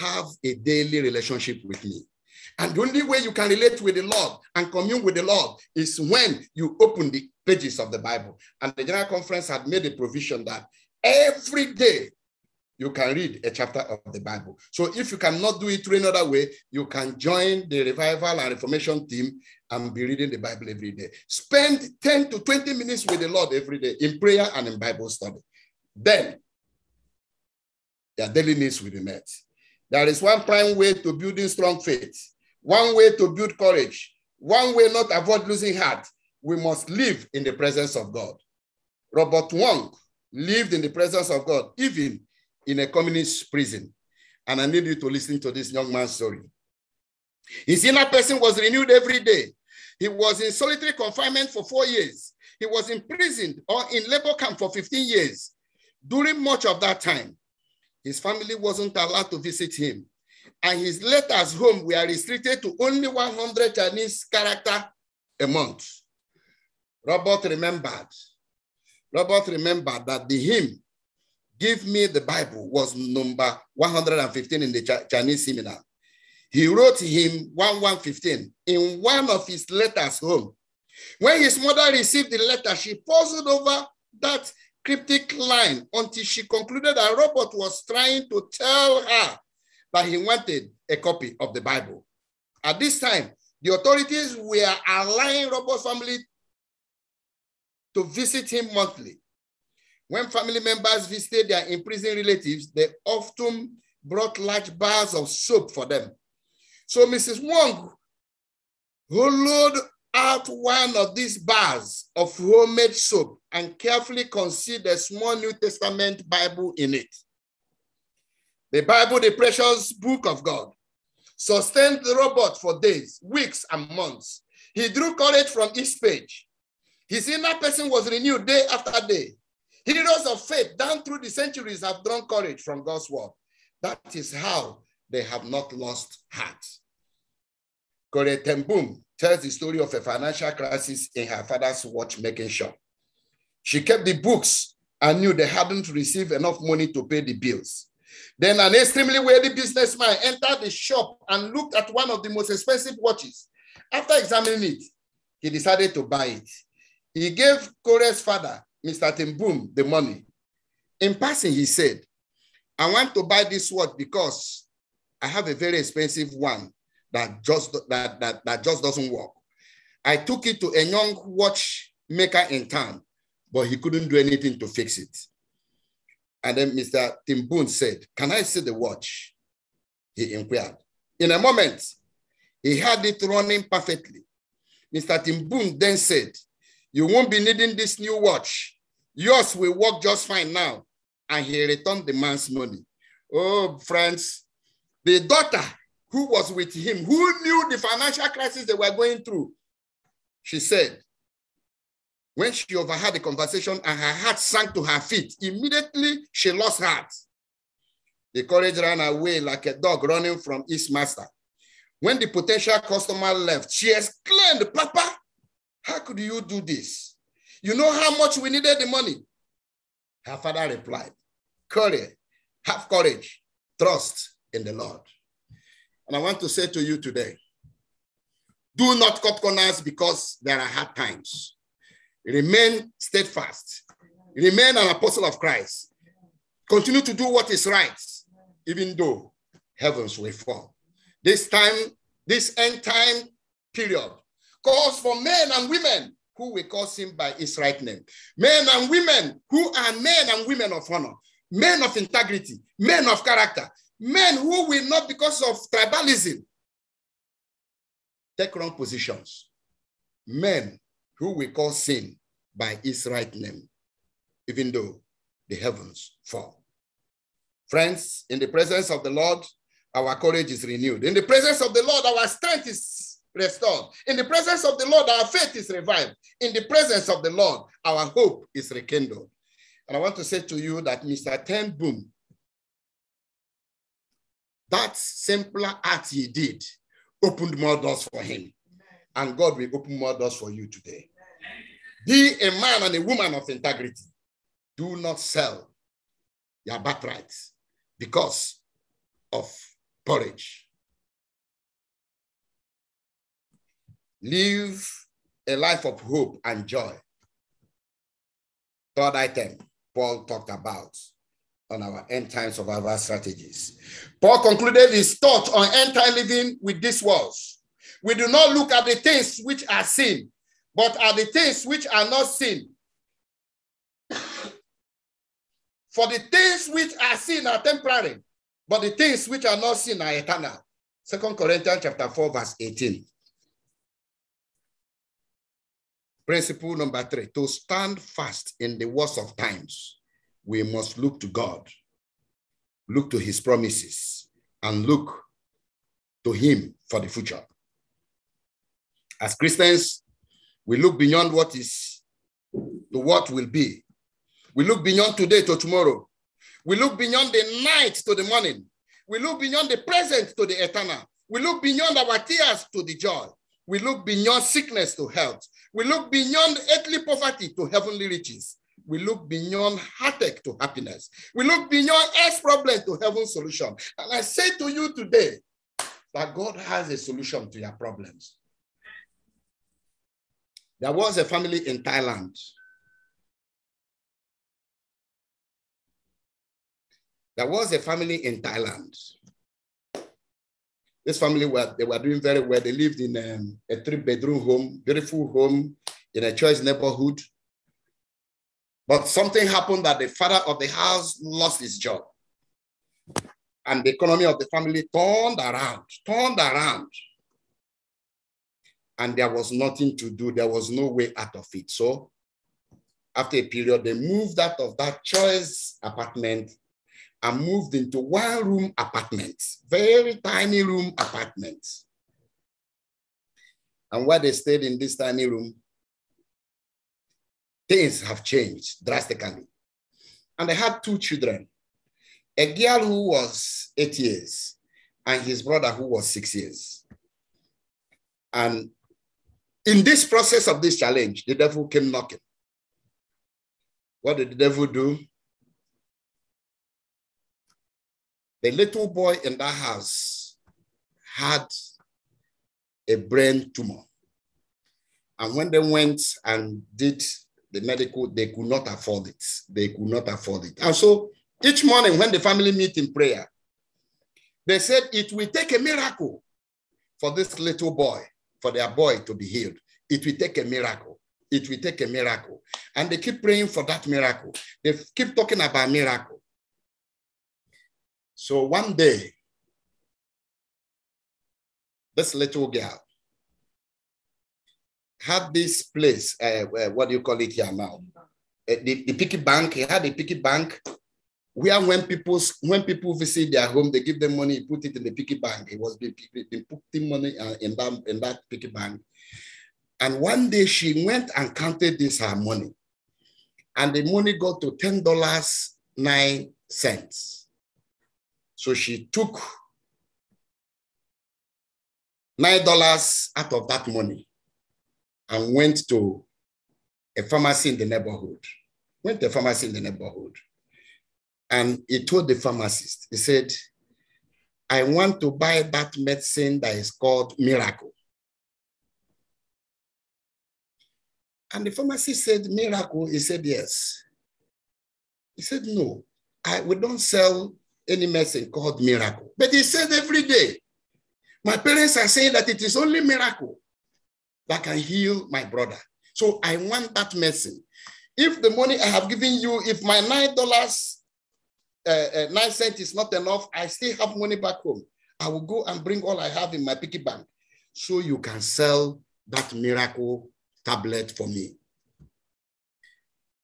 have a daily relationship with me. And the only way you can relate with the Lord and commune with the Lord is when you open the pages of the Bible. And the General Conference had made a provision that every day you can read a chapter of the Bible. So if you cannot do it through another way, you can join the revival and reformation team and be reading the Bible every day. Spend 10 to 20 minutes with the Lord every day in prayer and in Bible study. Then your daily needs will be met. There is one prime way to building strong faith one way to build courage, one way not avoid losing heart, we must live in the presence of God. Robert Wong lived in the presence of God, even in a communist prison. And I need you to listen to this young man's story. His inner person was renewed every day. He was in solitary confinement for four years. He was imprisoned or in labor camp for 15 years. During much of that time, his family wasn't allowed to visit him and his letters home were restricted to only 100 Chinese character a month. Robert remembered. Robert remembered that the hymn, Give Me the Bible, was number 115 in the Ch Chinese seminar. He wrote him 1115 in one of his letters home. When his mother received the letter, she puzzled over that cryptic line until she concluded that Robert was trying to tell her but he wanted a copy of the Bible. At this time, the authorities were allowing Robert's family to visit him monthly. When family members visited their imprisoned relatives, they often brought large bars of soap for them. So Mrs. Wong, who out one of these bars of homemade soap and carefully concealed a small New Testament Bible in it. The Bible, the precious book of God, sustained the robot for days, weeks, and months. He drew courage from each page. His inner person was renewed day after day. Heroes of faith down through the centuries have drawn courage from God's word. That is how they have not lost heart. Kore Tembum tells the story of a financial crisis in her father's watchmaking shop. She kept the books and knew they hadn't received enough money to pay the bills. Then an extremely wealthy businessman entered the shop and looked at one of the most expensive watches. After examining it, he decided to buy it. He gave Corey's father, Mr. Timboom, the money. In passing, he said, I want to buy this watch because I have a very expensive one that just, that, that, that just doesn't work. I took it to a young watchmaker in town, but he couldn't do anything to fix it. And then Mr. Timboon said, Can I see the watch? He inquired. In a moment, he had it running perfectly. Mr. Timboon then said, You won't be needing this new watch. Yours will work just fine now. And he returned the man's money. Oh, friends, the daughter who was with him, who knew the financial crisis they were going through, she said, when she overheard the conversation and her heart sank to her feet, immediately she lost heart. The courage ran away like a dog running from its master. When the potential customer left, she exclaimed, Papa, how could you do this? You know how much we needed the money. Her father replied, Courage, have courage, trust in the Lord. And I want to say to you today do not cut corners because there are hard times. Remain steadfast. Remain an apostle of Christ. Continue to do what is right, even though heavens will fall. This time, this end time period calls for men and women who will call him by his right name. Men and women who are men and women of honor, men of integrity, men of character, men who will not, because of tribalism, take wrong positions. Men who we call sin by his right name, even though the heavens fall. Friends, in the presence of the Lord, our courage is renewed. In the presence of the Lord, our strength is restored. In the presence of the Lord, our faith is revived. In the presence of the Lord, our hope is rekindled. And I want to say to you that Mr. Ten Boom, that simpler act he did opened more doors for him and God will open more doors for you today. Be a man and a woman of integrity. Do not sell your birthrights because of porridge.
Live a
life of hope and joy. Third item Paul talked about on our end time survival strategies. Paul concluded his thought on end time living with these words we do not look at the things which are seen, but at the things which are not seen. For the things which are seen are temporary, but the things which are not seen are eternal. Second Corinthians chapter 4, verse 18. Principle number three to stand fast in the worst of times, we must look to God, look to his promises, and look to him for the future. As Christians, we look beyond what is to what will be. We look beyond today to tomorrow. We look beyond the night to the morning. We look beyond the present to the eternal. We look beyond our tears to the joy. We look beyond sickness to health. We look beyond earthly poverty to heavenly riches. We look beyond heartache to happiness. We look beyond earth's problem to heaven's solution. And I say to you today that God has a solution to your problems.
There was a family in Thailand.
There was a family in Thailand. This family were they were doing very well. They lived in a, um, a three-bedroom home, beautiful home in a church neighborhood. But something happened that the father of the house lost his job. And the economy of the family turned around, turned around and there was nothing to do. There was no way out of it. So after a period, they moved out of that choice apartment and moved into one room apartments, very tiny room apartments. And while they stayed in this tiny room, things have changed drastically. And they had two children, a girl who was eight years and his brother who was six years. And in this process of this challenge, the devil came knocking. What did the devil do?
The little boy in that house
had a brain tumor. And when they went and did the medical, they could not afford it. They could not afford it. And so each morning when the family meet in prayer, they said it will take a miracle for this little boy for their boy to be healed. It will take a miracle. It will take a miracle. And they keep praying for that miracle. They keep talking about miracle. So one day, this little girl had this place, uh, uh what do you call it here now? Uh, the, the piggy bank, he had a piggy bank where when people when people visit their home, they give them money, put it in the piggy bank. It was been, been putting money uh, in that in that piggy bank. And one day she went and counted this her money, and the money got to ten dollars nine cents. So she took nine dollars out of that money and went to a pharmacy in the neighborhood. Went to a pharmacy in the neighborhood and he told the pharmacist, he said, I want to buy that medicine that is called Miracle. And the pharmacist said, Miracle? He said, Yes. He said, No, I, we don't sell any medicine called Miracle. But he said every day, my parents are saying that it is only Miracle that can heal my brother. So I want that medicine. If the money I have given you, if my $9 uh, uh, nine cents is not enough. I still have money back home. I will go and bring all I have in my piggy bank so you can sell that miracle tablet for me.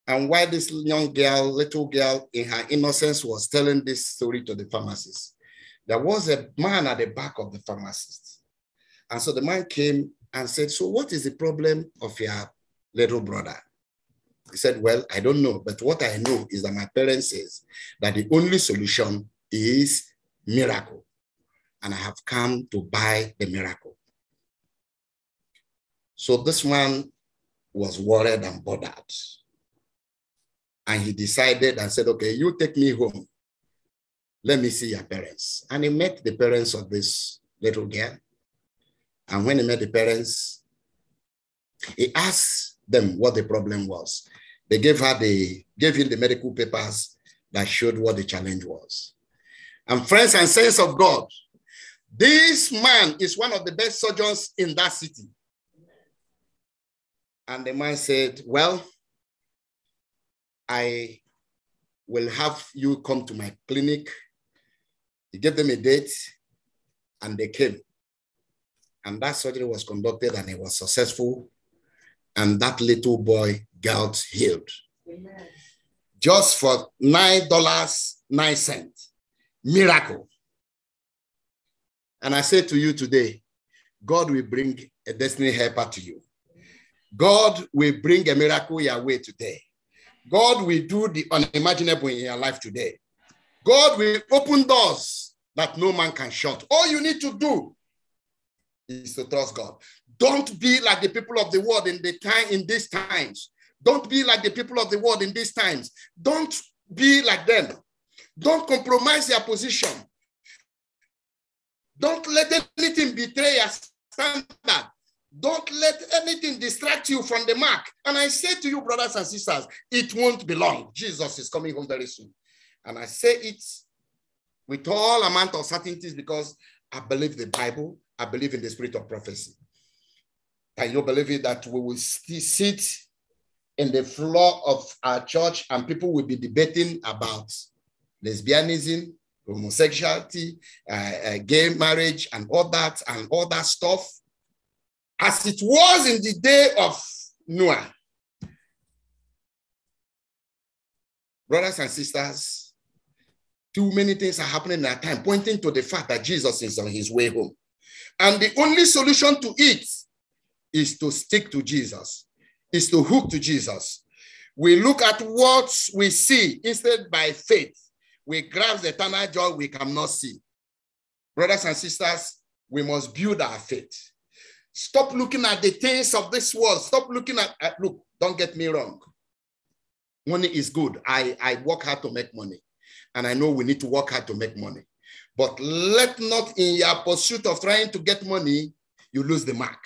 And while this young girl, little girl, in her innocence was telling this story to the pharmacist, there was a man at the back of the pharmacist. And so the man came and said, So, what is the problem of your little brother? He said, well, I don't know, but what I know is that my parents says that the only solution is miracle. And I have come to buy the miracle. So this man was worried and bothered. And he decided and said, okay, you take me home. Let me see your parents. And he met the parents of this little girl. And when he met the parents, he asked them what the problem was. They gave her the gave him the medical papers that showed what the challenge was. And friends and saints of God, this man is one of the best surgeons in that city. And the man said, Well, I will have you come to my clinic. He gave them a date and they came. And that surgery was conducted and it was successful. And that little boy got healed. Amen. Just for $9.09. Miracle. And I say to you today, God will bring a destiny helper to you. God will bring a miracle your way today. God will do the unimaginable in your life today. God will open doors that no man can shut. All you need to do is to trust God. Don't be like the people of the world in the time in these times. Don't be like the people of the world in these times. Don't be like them. Don't compromise your position. Don't let anything betray your standard. Don't let anything distract you from the mark. And I say to you, brothers and sisters, it won't be long. Jesus is coming home very soon. And I say it with all amount of certainties because I believe the Bible, I believe in the spirit of prophecy. And you believe it that we will see sit in the floor of our church, and people will be debating about lesbianism, homosexuality, uh, uh, gay marriage, and all that, and all that stuff, as it was in the day of Noah. Brothers and sisters, too many things are happening at a time, pointing to the fact that Jesus is on his way home. And the only solution to it is to stick to Jesus is to hook to Jesus. We look at what we see instead by faith. We grasp the eternal joy we cannot see. Brothers and sisters, we must build our faith. Stop looking at the things of this world. Stop looking at, at look, don't get me wrong. Money is good. I, I work hard to make money. And I know we need to work hard to make money. But let not in your pursuit of trying to get money, you lose the mark.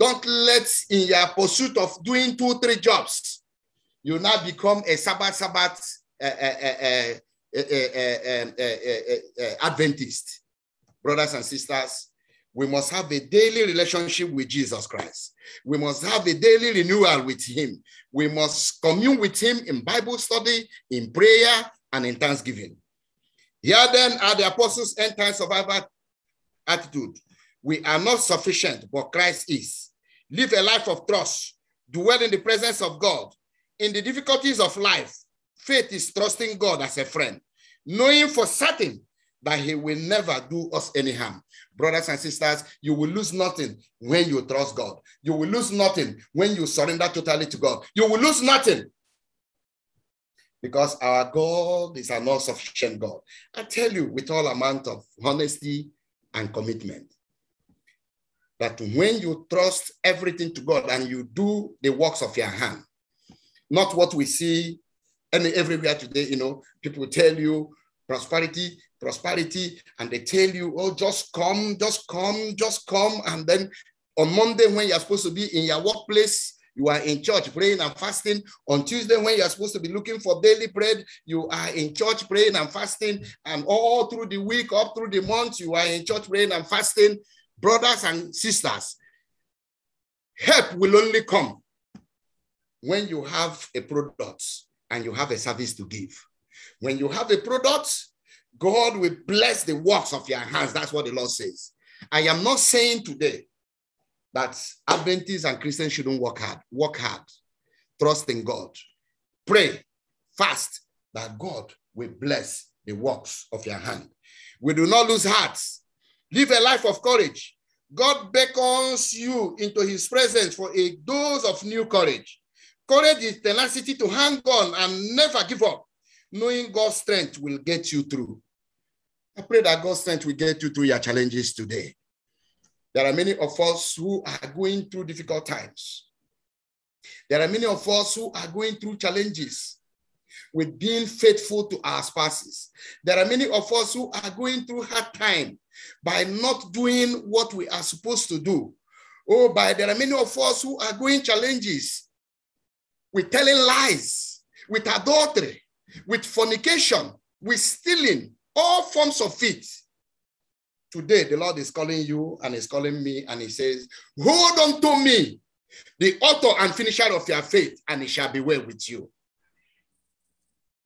Don't let in your pursuit of doing two, three jobs, you now become a Sabbath, Sabbath uh, uh, uh, Adventist. Brothers and sisters, we must have a daily relationship with Jesus Christ. We must have a daily renewal with Him. We must commune with Him in Bible study, in prayer, and in thanksgiving. Here then are the apostles' end time survivor attitude. We are not sufficient, but Christ is live a life of trust, dwell in the presence of God. In the difficulties of life, faith is trusting God as a friend, knowing for certain that he will never do us any harm. Brothers and sisters, you will lose nothing when you trust God. You will lose nothing when you surrender totally to God. You will lose nothing because our God is an all sufficient God. I tell you with all amount of honesty and commitment, that when you trust everything to God and you do the works of your hand, not what we see and everywhere today, you know, people tell you prosperity, prosperity, and they tell you, oh, just come, just come, just come. And then on Monday, when you're supposed to be in your workplace, you are in church praying and fasting. On Tuesday, when you're supposed to be looking for daily bread, you are in church praying and fasting. And all through the week, up through the month, you are in church praying and fasting brothers and sisters, help will only come when you have a product and you have a service to give. When you have a product, God will bless the works of your hands. That's what the Lord says. I am not saying today that Adventists and Christians shouldn't work hard. Work hard. Trust in God. Pray fast that God will bless the works of your hand. We do not lose hearts Live a life of courage. God beckons you into his presence for a dose of new courage. Courage is tenacity to hang on and never give up. Knowing God's strength will get you through. I pray that God's strength will get you through your challenges today. There are many of us who are going through difficult times. There are many of us who are going through challenges with being faithful to our spouses. There are many of us who are going through hard time by not doing what we are supposed to do. Oh, by there are many of us who are going challenges with telling lies, with adultery, with fornication, with stealing, all forms of it. Today, the Lord is calling you and is calling me, and He says, Hold on to me, the author and finisher of your faith, and it shall be well with you.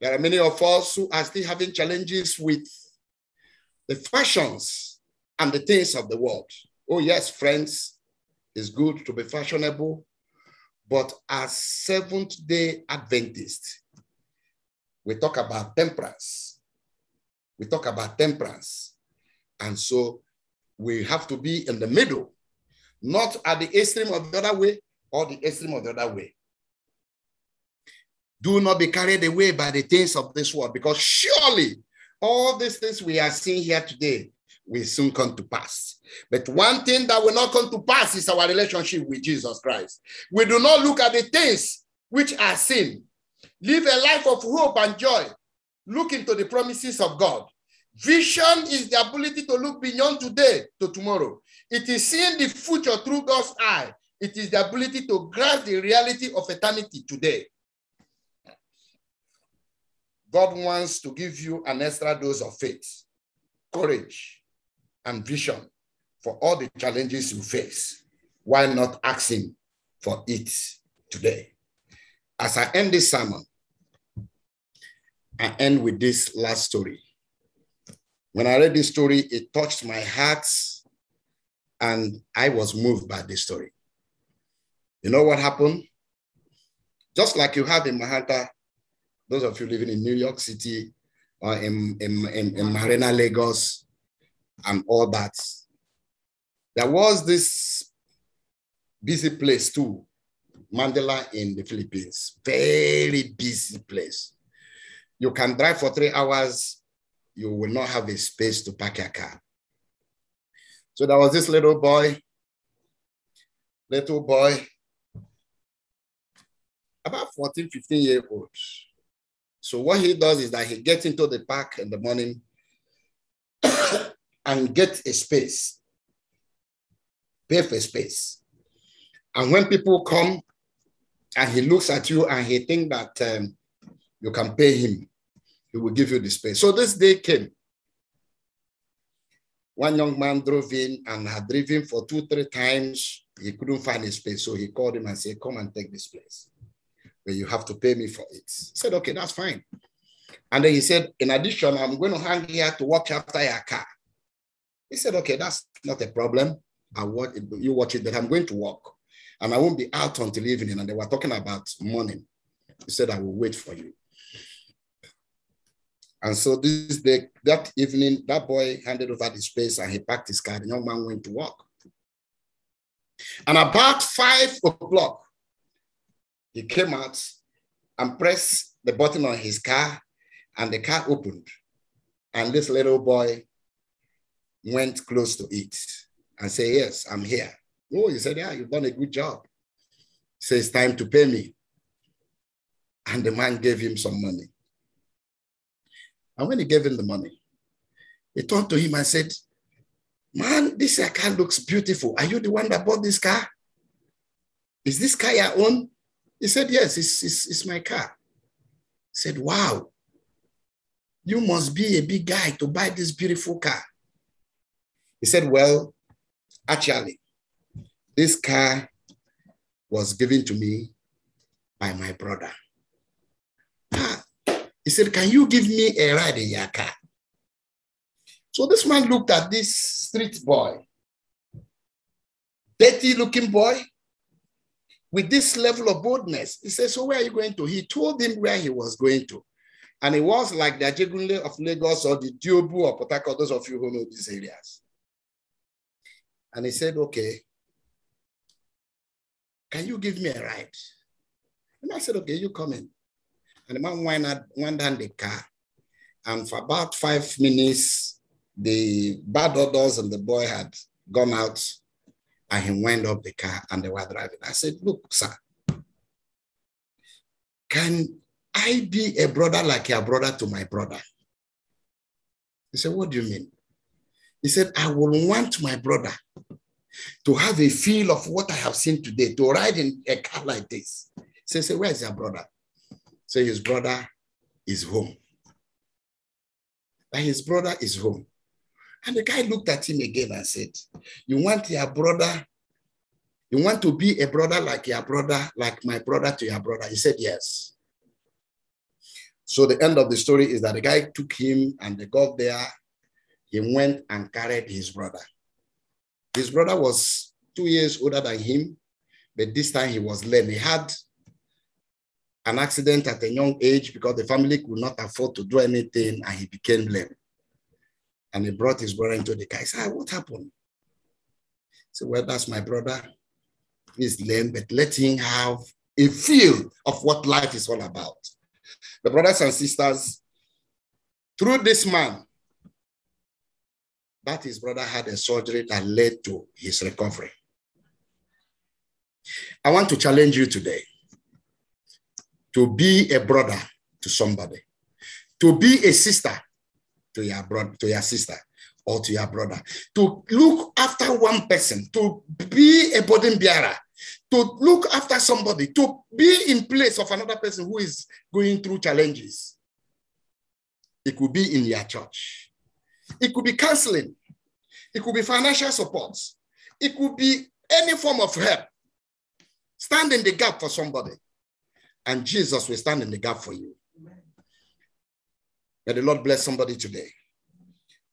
There are many of us who are still having challenges with the fashions and the things of the world. Oh, yes, friends, it's good to be fashionable, but as Seventh day Adventists, we talk about temperance. We talk about temperance. And so we have to be in the middle, not at the extreme of the other way or the extreme of the other way. Do not be carried away by the things of this world, because surely all these things we are seeing here today will soon come to pass. But one thing that will not come to pass is our relationship with Jesus Christ. We do not look at the things which are seen. Live a life of hope and joy. Look into the promises of God. Vision is the ability to look beyond today to tomorrow. It is seeing the future through God's eye. It is the ability to grasp the reality of eternity today. God wants to give you an extra dose of faith, courage, and vision for all the challenges you face. Why not ask Him for it today? As I end this sermon, I end with this last story. When I read this story, it touched my heart and I was moved by this story. You know what happened? Just like you have in Mahanta those of you living in New York City or in, in, in, in Marina, Lagos, and all that, there was this busy place too, Mandela in the Philippines, very busy place. You can drive for three hours, you will not have a space to park your car. So there was this little boy, little boy, about 14, 15 year old. So what he does is that he gets into the park in the morning and get a space, pay for space. And when people come and he looks at you and he think that um, you can pay him, he will give you the space. So this day came. One young man drove in and had driven for two, three times. He couldn't find a space. So he called him and said, come and
take this place but
you have to pay me for it. I said, okay, that's fine. And then he said, in addition, I'm going to hang here to watch after your car. He said, okay, that's not a problem. I watch it, you watch it, but I'm going to walk, And I won't be out until evening. And they were talking about morning. He said, I will wait for you. And so this day, that evening, that boy handed over the space and he packed his car. The young man went to work. And about five o'clock, he came out and pressed the button on his car, and the car opened. And this little boy went close to it and said, Yes, I'm here. Oh, he said, Yeah, you've done a good job. Says It's time to pay me. And the man gave him some money. And when he gave him the money, he turned to him and said, Man, this car looks beautiful. Are you the one that bought this car? Is this car your own? He said, Yes, it's, it's, it's my car. He said, Wow, you must be a big guy to buy this beautiful car. He said, Well, actually, this car was given to me by my brother. Ah. he said, Can you give me a ride in your car? So this man looked at this street boy, dirty looking boy, with this level of boldness. He said, So where are you going to? He told him where he was going to. And it was like the Ajegunle of Lagos or the Diobu or Potako, those of you who know these areas. And he said, Okay, can you give me a ride? And I said, Okay, you come in. And the man went, out, went down the car. And for about five minutes, the bad odors and the boy had gone out and he went up the car and they were driving. I said, Look, sir, can I be a brother like your brother to my brother? He said, What do you mean? He said, I will want my brother to have a feel of what I have seen today, to ride in a car like this. So he said, Where is your brother? So his brother is home. But his brother is home. And the guy looked at him again and said, You want your brother? You want to be a brother like your brother, like my brother to your brother? He said, Yes. So the end of the story is that the guy took him and they got there. He went and carried his brother. His brother was two years older than him, but this time he was lame. He had an accident at a young age because the family could not afford to do anything and he became lame. And he brought his brother into the car. He said, ah, What happened? He said, Well, that's my brother. He's lame, but let him have a feel of what life is all about. The brothers and sisters, through this man, that his brother had a surgery that led to his recovery. I want to challenge you today to be a brother to somebody, to be a sister to your brother, to your sister, or to your brother. To look after one person, to be a burden bearer, to look after somebody, to be in place of another person who is going through challenges. It could be in your church. It could be counseling. It could be financial support. It could be any form of help. Stand in the gap for somebody. And Jesus will stand in the gap for you. May the Lord bless somebody today.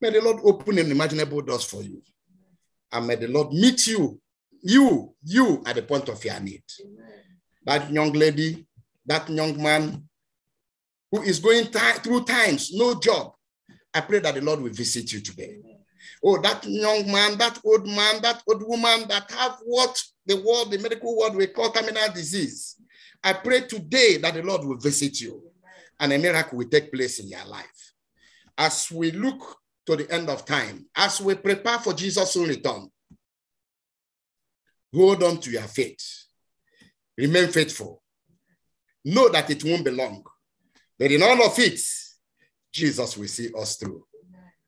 May the Lord open unimaginable doors for you. And may the Lord meet you, you, you at the point of your need. That young lady, that young man who is going through times, no job, I pray that the Lord will visit you today. Oh, that young man, that old man, that old woman that have what the world, the medical world, we call terminal disease. I pray today that the Lord will visit you and a miracle will take place in your life. As we look to the end of time, as we prepare for Jesus' return, hold on to your faith. Remain faithful. Know that it won't be long, but in all of it, Jesus will see us through.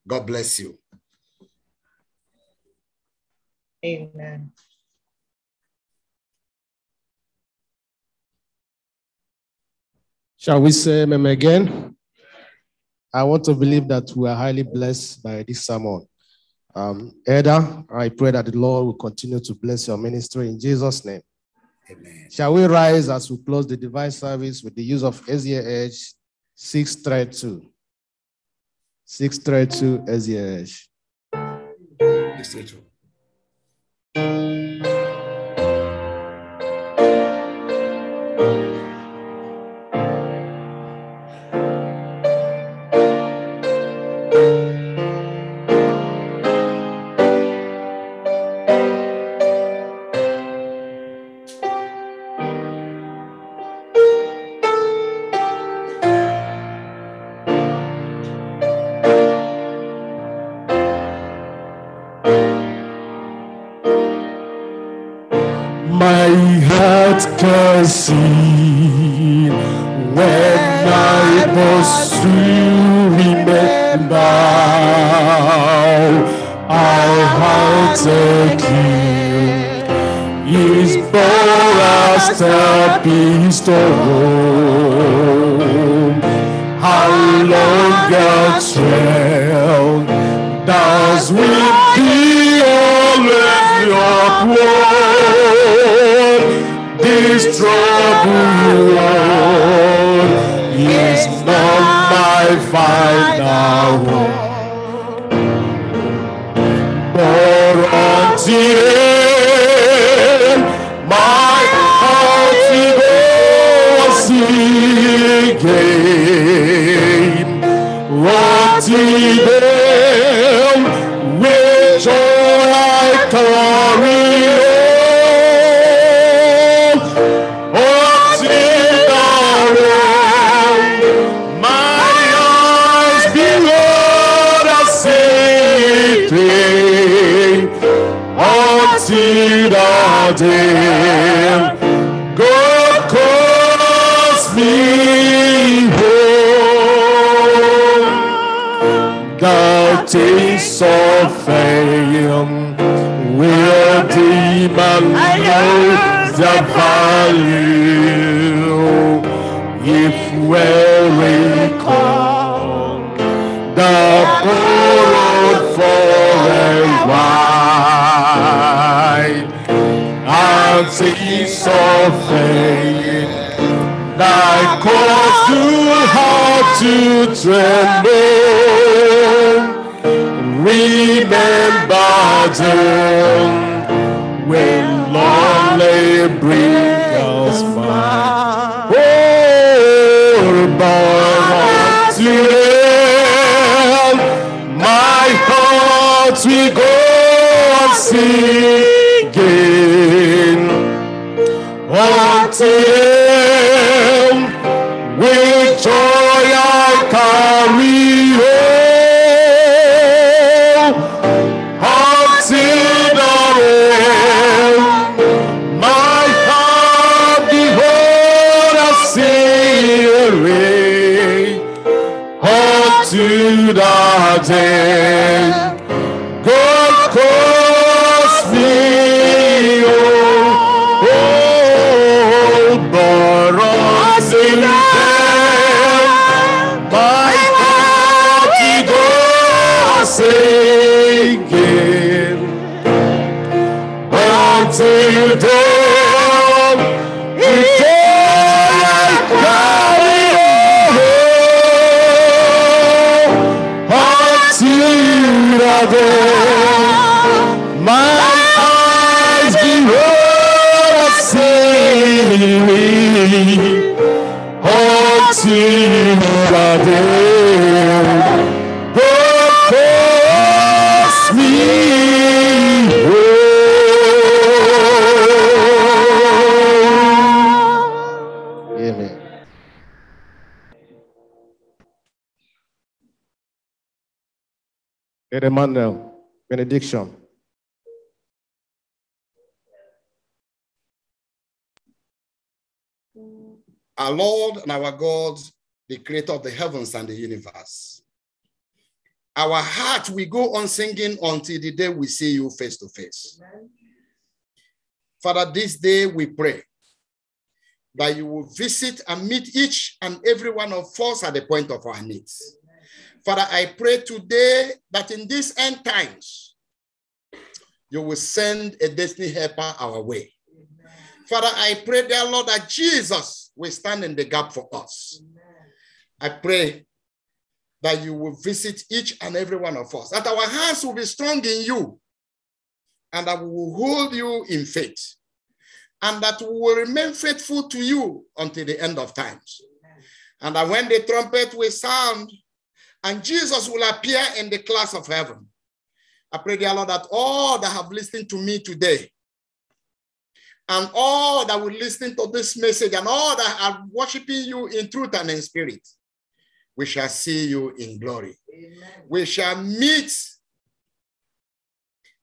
God bless you.
Amen.
Shall we say amen again?
I want to believe that we are highly blessed by this sermon. Um, Eda, I pray that the Lord will continue to bless your ministry in Jesus' name. Amen. Shall we rise
as we close the divine service with the use of SEH 632?
632 SEH. 632.
man knows the value if we recall the poor for a while and see so offering thy cause to heart to tremble remember them when lonely brings us Oh, but still, my heart we go Jai
Ed Emmanuel, benediction.
Our Lord and our God, the creator of the heavens and the universe. Our heart will go on singing until the day we see you face to face. Father, this day we pray that you will visit and meet each and every one of us at the point of our needs. Father, I pray today that in these end times, you will send a destiny helper our way. Amen. Father, I pray, dear Lord, that Jesus will stand in the gap for us. Amen. I pray that you will visit each and every one of us, that our hands will be strong in you, and that we will hold you in faith, and that we will remain faithful to you until the end of times. Amen. And that when the trumpet will sound, and Jesus will appear in the class of heaven. I pray, dear Lord, that all that have listened to me today and all that will listen to this message and all that are worshiping you in truth and in spirit, we shall see you in glory. Amen. We shall meet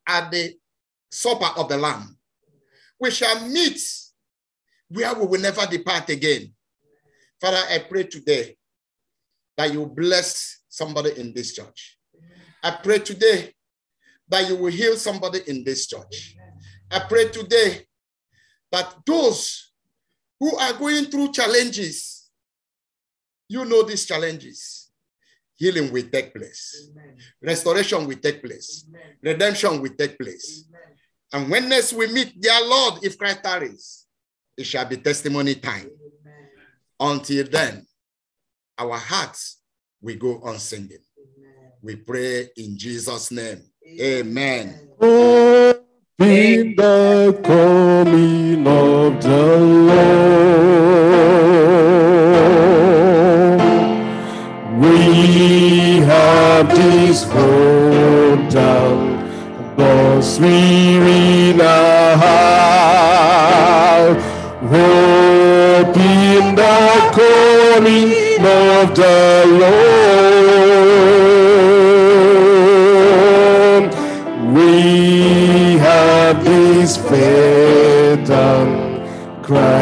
at the supper of the Lamb. We shall meet where we will never depart again. Father, I pray today that you bless somebody in this church. I pray today that you will heal somebody in this church. I pray today that those who are going through challenges, you know these challenges. Healing will take place, Amen. restoration will take place, Amen. redemption will take place. Amen. And when next we meet their Lord, if Christ tarries, it shall be testimony time. Until then, our hearts we go on singing. Amen. We pray in Jesus' name. Amen. Amen. In the coming of the
Lord, we have this hope down, thus we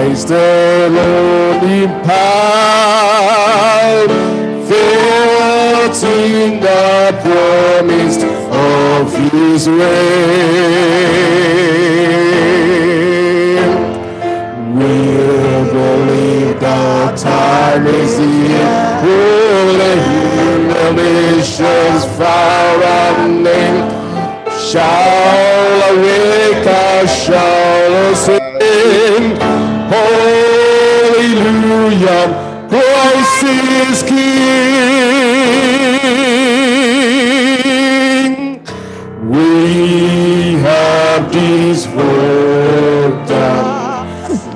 Is the Lord in power, filled the promise of His reign. we believe the time is here. Will the humiliations far and near. shall awake our shall sing. Hallelujah. Christ is King. We have this work done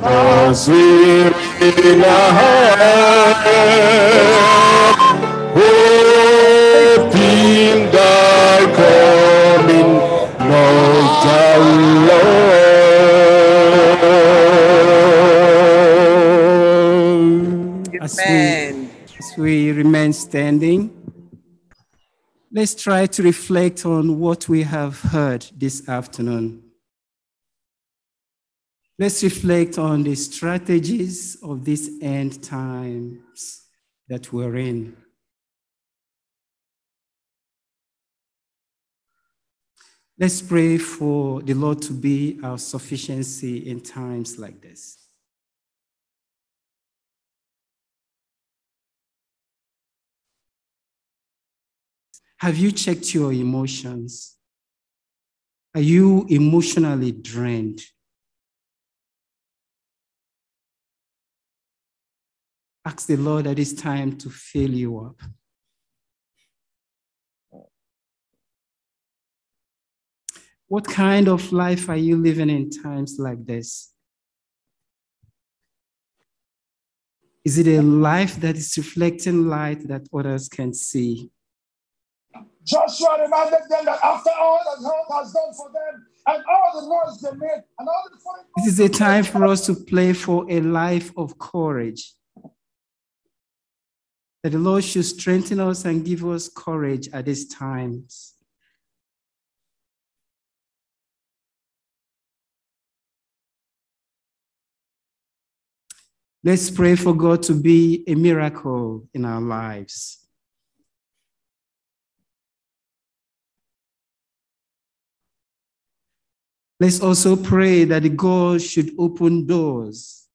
as we in our hands.
remain standing, let's try to reflect on what we have heard this afternoon. Let's reflect on the strategies of these end times that we're in.
Let's pray for the Lord to be our sufficiency in times like this. Have you checked your emotions? Are you emotionally drained? Ask the Lord that it's time to fill you up. What kind
of life are you living in times like this? Is it a life that is reflecting light that others can see?
Joshua reminded them that after all that God has done for them and all the noise they made and all the foreign.
This is a time for us to play for a life of courage. That the Lord should strengthen us and give
us courage at these times. Let's pray for God to be a miracle in our lives. Let's also pray that God should open doors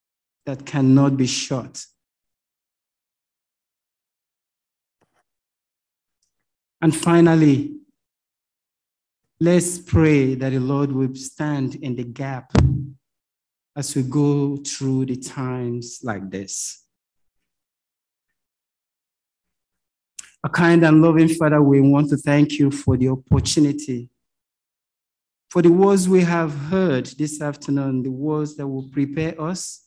that cannot be shut.
And finally, let's pray that the Lord will stand in the gap as we go through the times like this. A kind and loving Father, we want to thank you for the opportunity for the words we have heard this afternoon, the words that will prepare us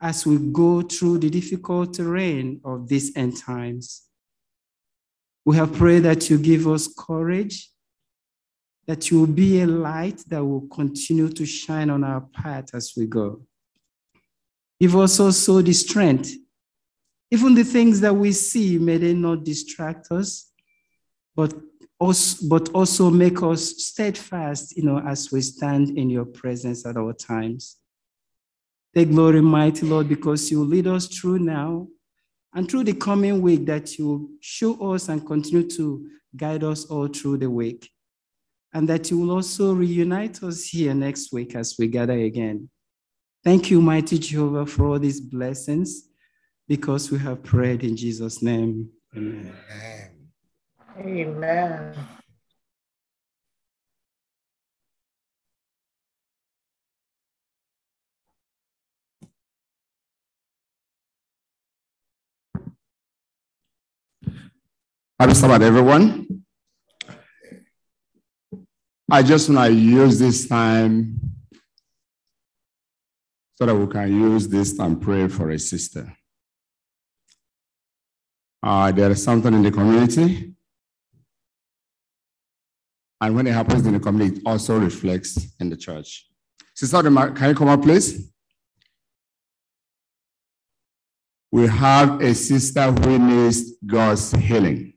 as we go through the difficult terrain of these end times. We have prayed that you give us courage, that you will be a light that will continue to shine on our path as we go. Give us also the strength. Even the things that we see, may they not distract us, but also, but also make us steadfast, you know, as we stand in your presence at all times. Take glory, mighty Lord, because you lead us through now and through the coming week that you show us and continue to guide us all through the week. And that you will also reunite us here next week as we gather again. Thank you, mighty Jehovah, for all these blessings because we have prayed in Jesus' name. Amen. Amen.
Amen.
Happy Sabbath, everyone. I just want to use this time so that we can use this time
pray for a sister. Uh, there is something in the community and when it happens in the community, it also reflects
in the church. Sister can you come up, please? We have a sister who needs God's healing.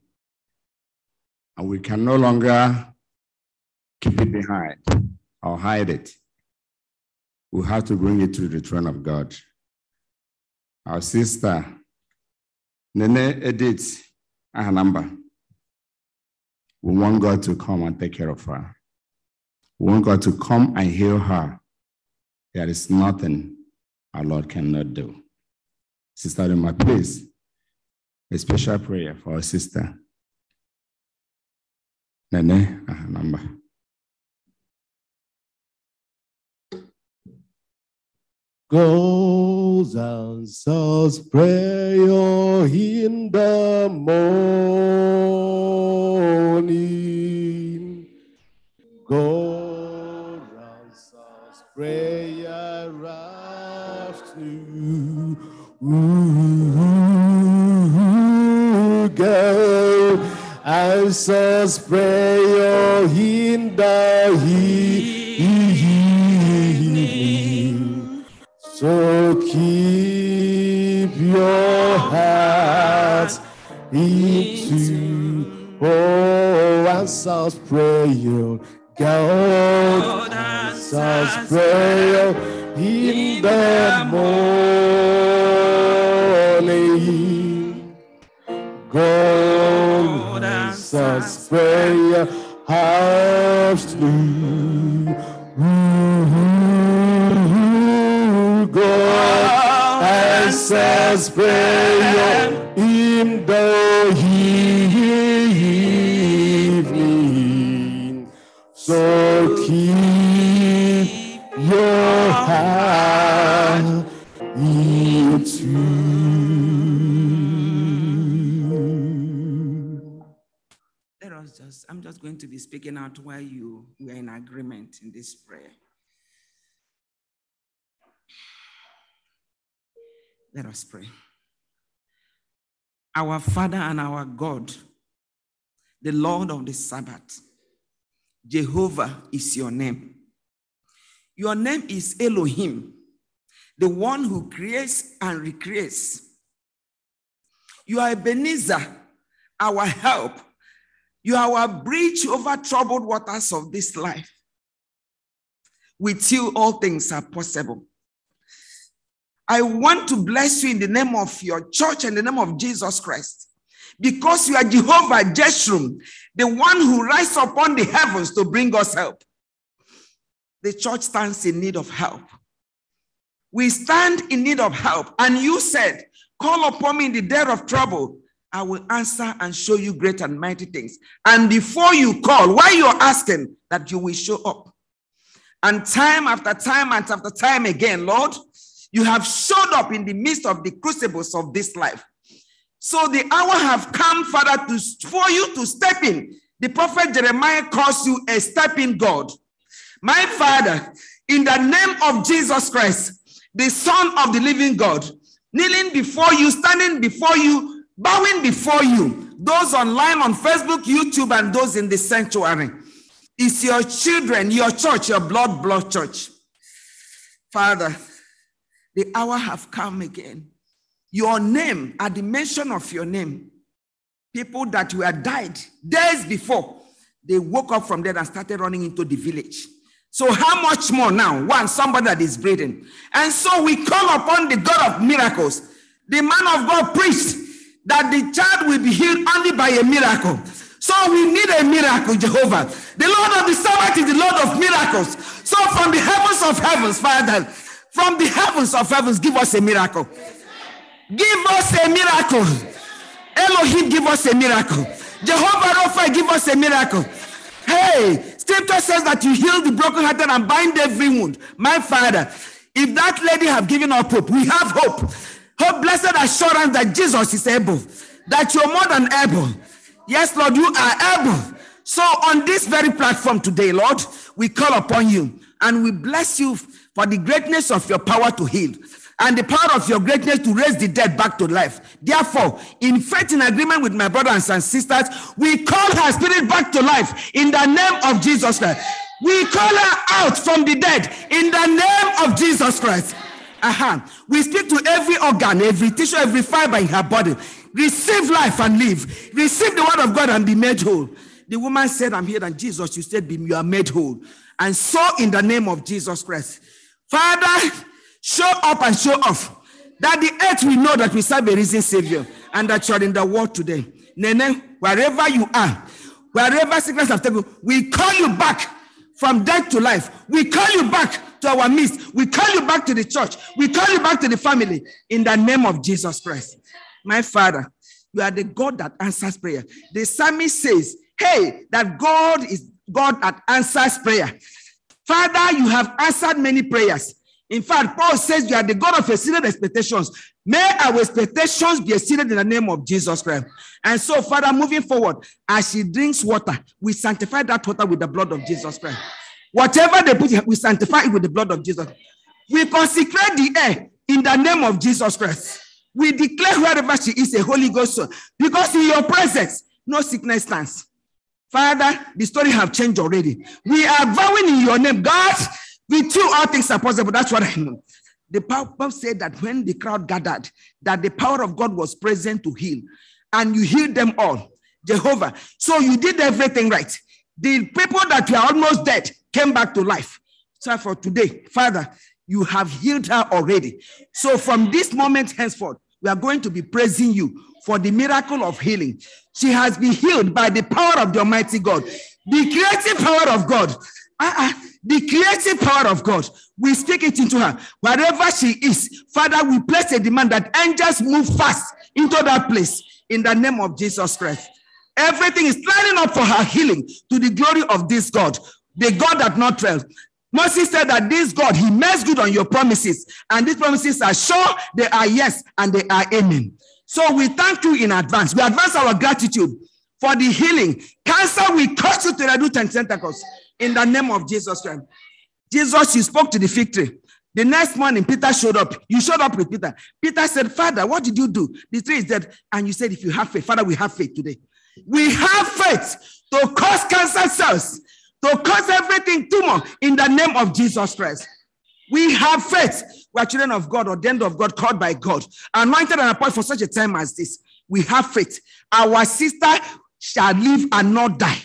And we can no longer keep it behind
or hide it. We have to bring it to the throne of God. Our sister, Nene Edith Ahanamba. We want God to come and take care of her. We want God to come and heal her. There is nothing our Lord cannot do. Sister Rima, please, a special prayer for our sister.
Nene, her number.
goes and say's prayer in the morning. Go and say's prayer afternoon. Ooh, go and say's prayer in the evening. Oh, answers prayer. God answers prayer in the morning. God answers prayer afternoon. God answers prayer.
going to be speaking out while you were in agreement in this prayer. Let us pray. Our Father and our God, the Lord of the Sabbath, Jehovah is your name. Your name is Elohim, the one who creates and recreates. You are Ebenezer, our help you are our bridge over troubled waters of this life. With you, all things are possible. I want to bless you in the name of your church and the name of Jesus Christ. Because you are Jehovah Jeshurun, the one who rises upon the heavens to bring us help. The church stands in need of help. We stand in need of help. And you said, Call upon me in the day of trouble, I will answer and show you great and mighty things. And before you call, while you're asking, that you will show up. And time after time and after time again, Lord, you have showed up in the midst of the crucibles of this life. So the hour have come, Father, to, for you to step in. The prophet Jeremiah calls you a stepping God. My Father, in the name of Jesus Christ, the Son of the living God, kneeling before you, standing before you, bowing before you, those online on Facebook, YouTube, and those in the sanctuary. It's your children, your church, your blood, blood church. Father, the hour have come again. Your name, at the mention of your name, people that were died days before, they woke up from there and started running into the village. So, how much more now? One, somebody that is breathing. And so we call upon the God of miracles. The man of God preached that the child will be healed only by a miracle. So we need a miracle, Jehovah. The Lord of the Sabbath is the Lord of miracles. So from the heavens of heavens, Father, from the heavens of heavens, give us a miracle. Give us a miracle. Elohim, give us a miracle. Jehovah Rapha, give us a miracle. Hey, scripture says that you heal the brokenhearted and bind every wound. My Father, if that lady have given up hope, we have hope. Hope, blessed assurance that Jesus is able, that you're more than able. Yes, Lord, you are able. So, on this very platform today, Lord, we call upon you and we bless you for the greatness of your power to heal and the power of your greatness to raise the dead back to life. Therefore, in faith, in agreement with my brothers and sisters, we call her spirit back to life in the name of Jesus Christ. We call her out from the dead in the name of Jesus Christ. Uh-huh. We speak to every organ, every tissue, every fiber in her body. Receive life and live. Receive the word of God and be made whole. The woman said, I'm here. And Jesus, you said, You are made whole. And so, in the name of Jesus Christ, Father, show up and show off that the earth will know that we serve a risen Savior and that you are in the world today. Nene, wherever you are, wherever sickness have taken, we call you back from death to life. We call you back to our midst. We call you back to the church. We call you back to the family in the name of Jesus Christ. My Father, you are the God that answers prayer. The psalmist says, Hey, that God is God that answers prayer. Father, you have answered many prayers. In fact, Paul says you are the God of exceeded expectations. May our expectations be exceeded in the name of Jesus Christ. And so, Father, moving forward, as she drinks water, we sanctify that water with the blood of Jesus Christ. Whatever they put, we sanctify it with the blood of Jesus. We consecrate the air in the name of Jesus Christ. We declare wherever she is a Holy Ghost soul because in your presence, no sickness stands. Father, the story have changed already. We are vowing in your name, God, We you all things are possible. That's what I know. The Pope said that when the crowd gathered, that the power of God was present to heal, and you healed them all, Jehovah. So you did everything right. The people that were almost dead, came back to life. So for today, Father, you have healed her already. So from this moment henceforth, we are going to be praising you for the miracle of healing. She has been healed by the power of the Almighty God, the creative power of God. Uh-uh. The creative power of God, we speak it into her. Wherever she is, Father, we place a demand that angels move fast into that place in the name of Jesus Christ. Everything is lining up for her healing to the glory of this God. The God that not failed. Moses said that this God, he makes good on your promises. And these promises are sure, they are yes, and they are amen. So we thank you in advance. We advance our gratitude for the healing. Cancer, we curse you to the root and tentacles in the name of Jesus Christ. Jesus, you spoke to the fig tree. The next morning, Peter showed up. You showed up with Peter. Peter said, Father, what did you do? The tree is dead. And you said, if you have faith, Father, we have faith today. We have faith to cause cancer cells to cause everything tumor in the name of Jesus Christ. We have faith. We are children of God, ordained of God, called by God, anointed and appointed for such a time as this. We have faith. Our sister shall live and not die.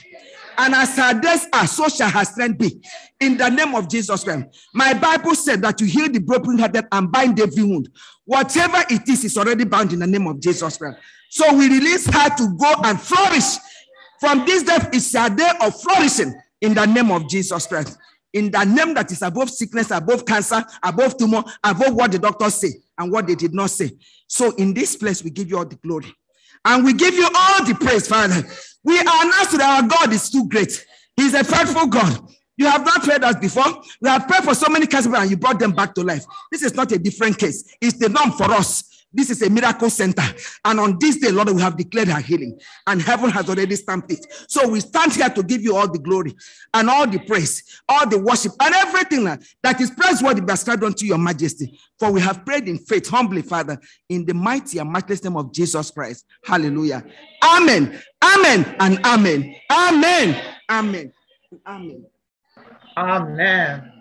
And as her days are, so shall her strength be. In the name of Jesus Christ. My Bible said that you heal the brokenhearted and bind every wound. Whatever it is, is already bound in the name of Jesus Christ. So we release her to go and flourish. From this death it's a day of flourishing in the name of Jesus Christ. In the name that is above sickness, above cancer, above tumor, above what the doctors say and what they did not say. So in this place, we give you all the glory. And we give you all the praise, Father. We announce that our God is too great. He's a faithful God. You have not prayed us before. We have prayed for so many cancer and you brought them back to life. This is not a different case. It's the norm for us. This is a miracle center. And on this day, Lord, we have declared her healing. And heaven has already stamped it. So we stand here to give you all the glory and all the praise, all the worship, and everything that is praiseworthy be ascribed unto your majesty. For we have prayed in faith, humbly, Father, in the mighty and matchless name of Jesus Christ. Hallelujah. Amen. Amen. And amen. Amen. Amen. Amen. Amen.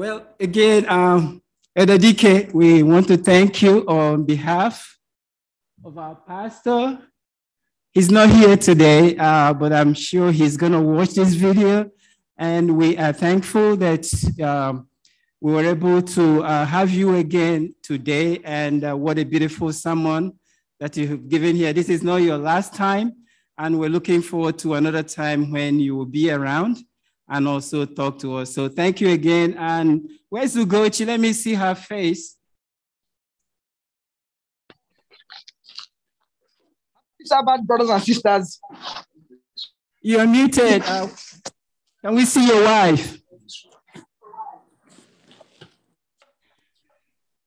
Well, again, um, Elder
we want to thank you on behalf of our pastor. He's not here today, uh, but I'm sure he's going to watch this video. And we are thankful that um, we were able to uh, have you again today. And uh, what a beautiful sermon that you've given here. This is not your last time, and we're looking forward to another time when you will be around and also talk to us. So thank you again. And where's Ugochi? Let me see her face.
Sabbath, brothers and sisters. You're muted. Uh, Can we see your wife?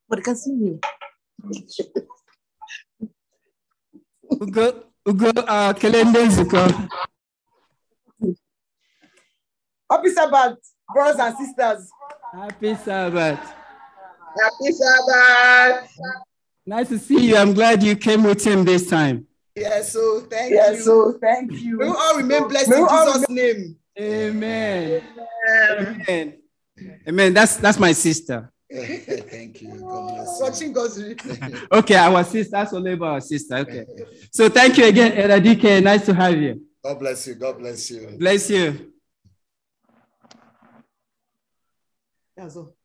But can see you. Ugo,
Ugo, uh, Kelende Zuko.
Happy Sabbath, brothers and sisters. Happy Sabbath. Happy Sabbath. Nice to see you. I'm glad you came with him this time.
Yes, yeah, so thank
yeah, you. so thank you. May we all remain blessed in Jesus' name. Amen. Amen. Amen. Amen. That's that's my sister. Thank you. God Watching God's Okay, our sister, that's labor, our sister. Okay. So thank you again, Elder Nice to have you.
God bless you. God bless you.
Bless you. Also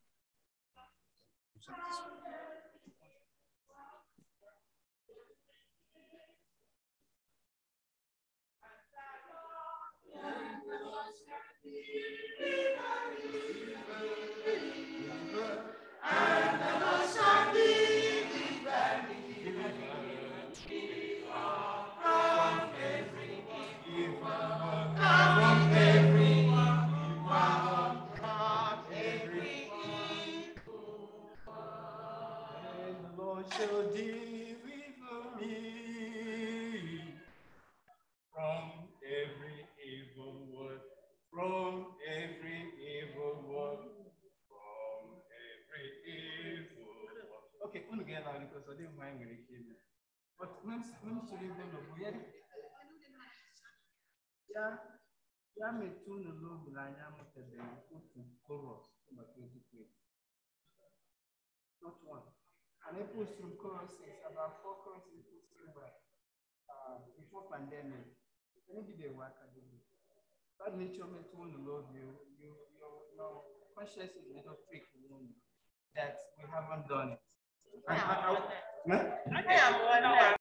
Angrekliğine. Bak nem, nem söylediğimde bu yer. Ya, ya metunu lo bulanya mutede kutu koros kuma twenty twenty. Not one. And I put some courses, about four courses put uh, before pandemic. Let me be the work I do. That nature metunu you, you, you, your conscious is little trick that we haven't done it. Hãy subscribe cho kênh Ghiền Mì Gõ Để không bỏ lỡ những video hấp dẫn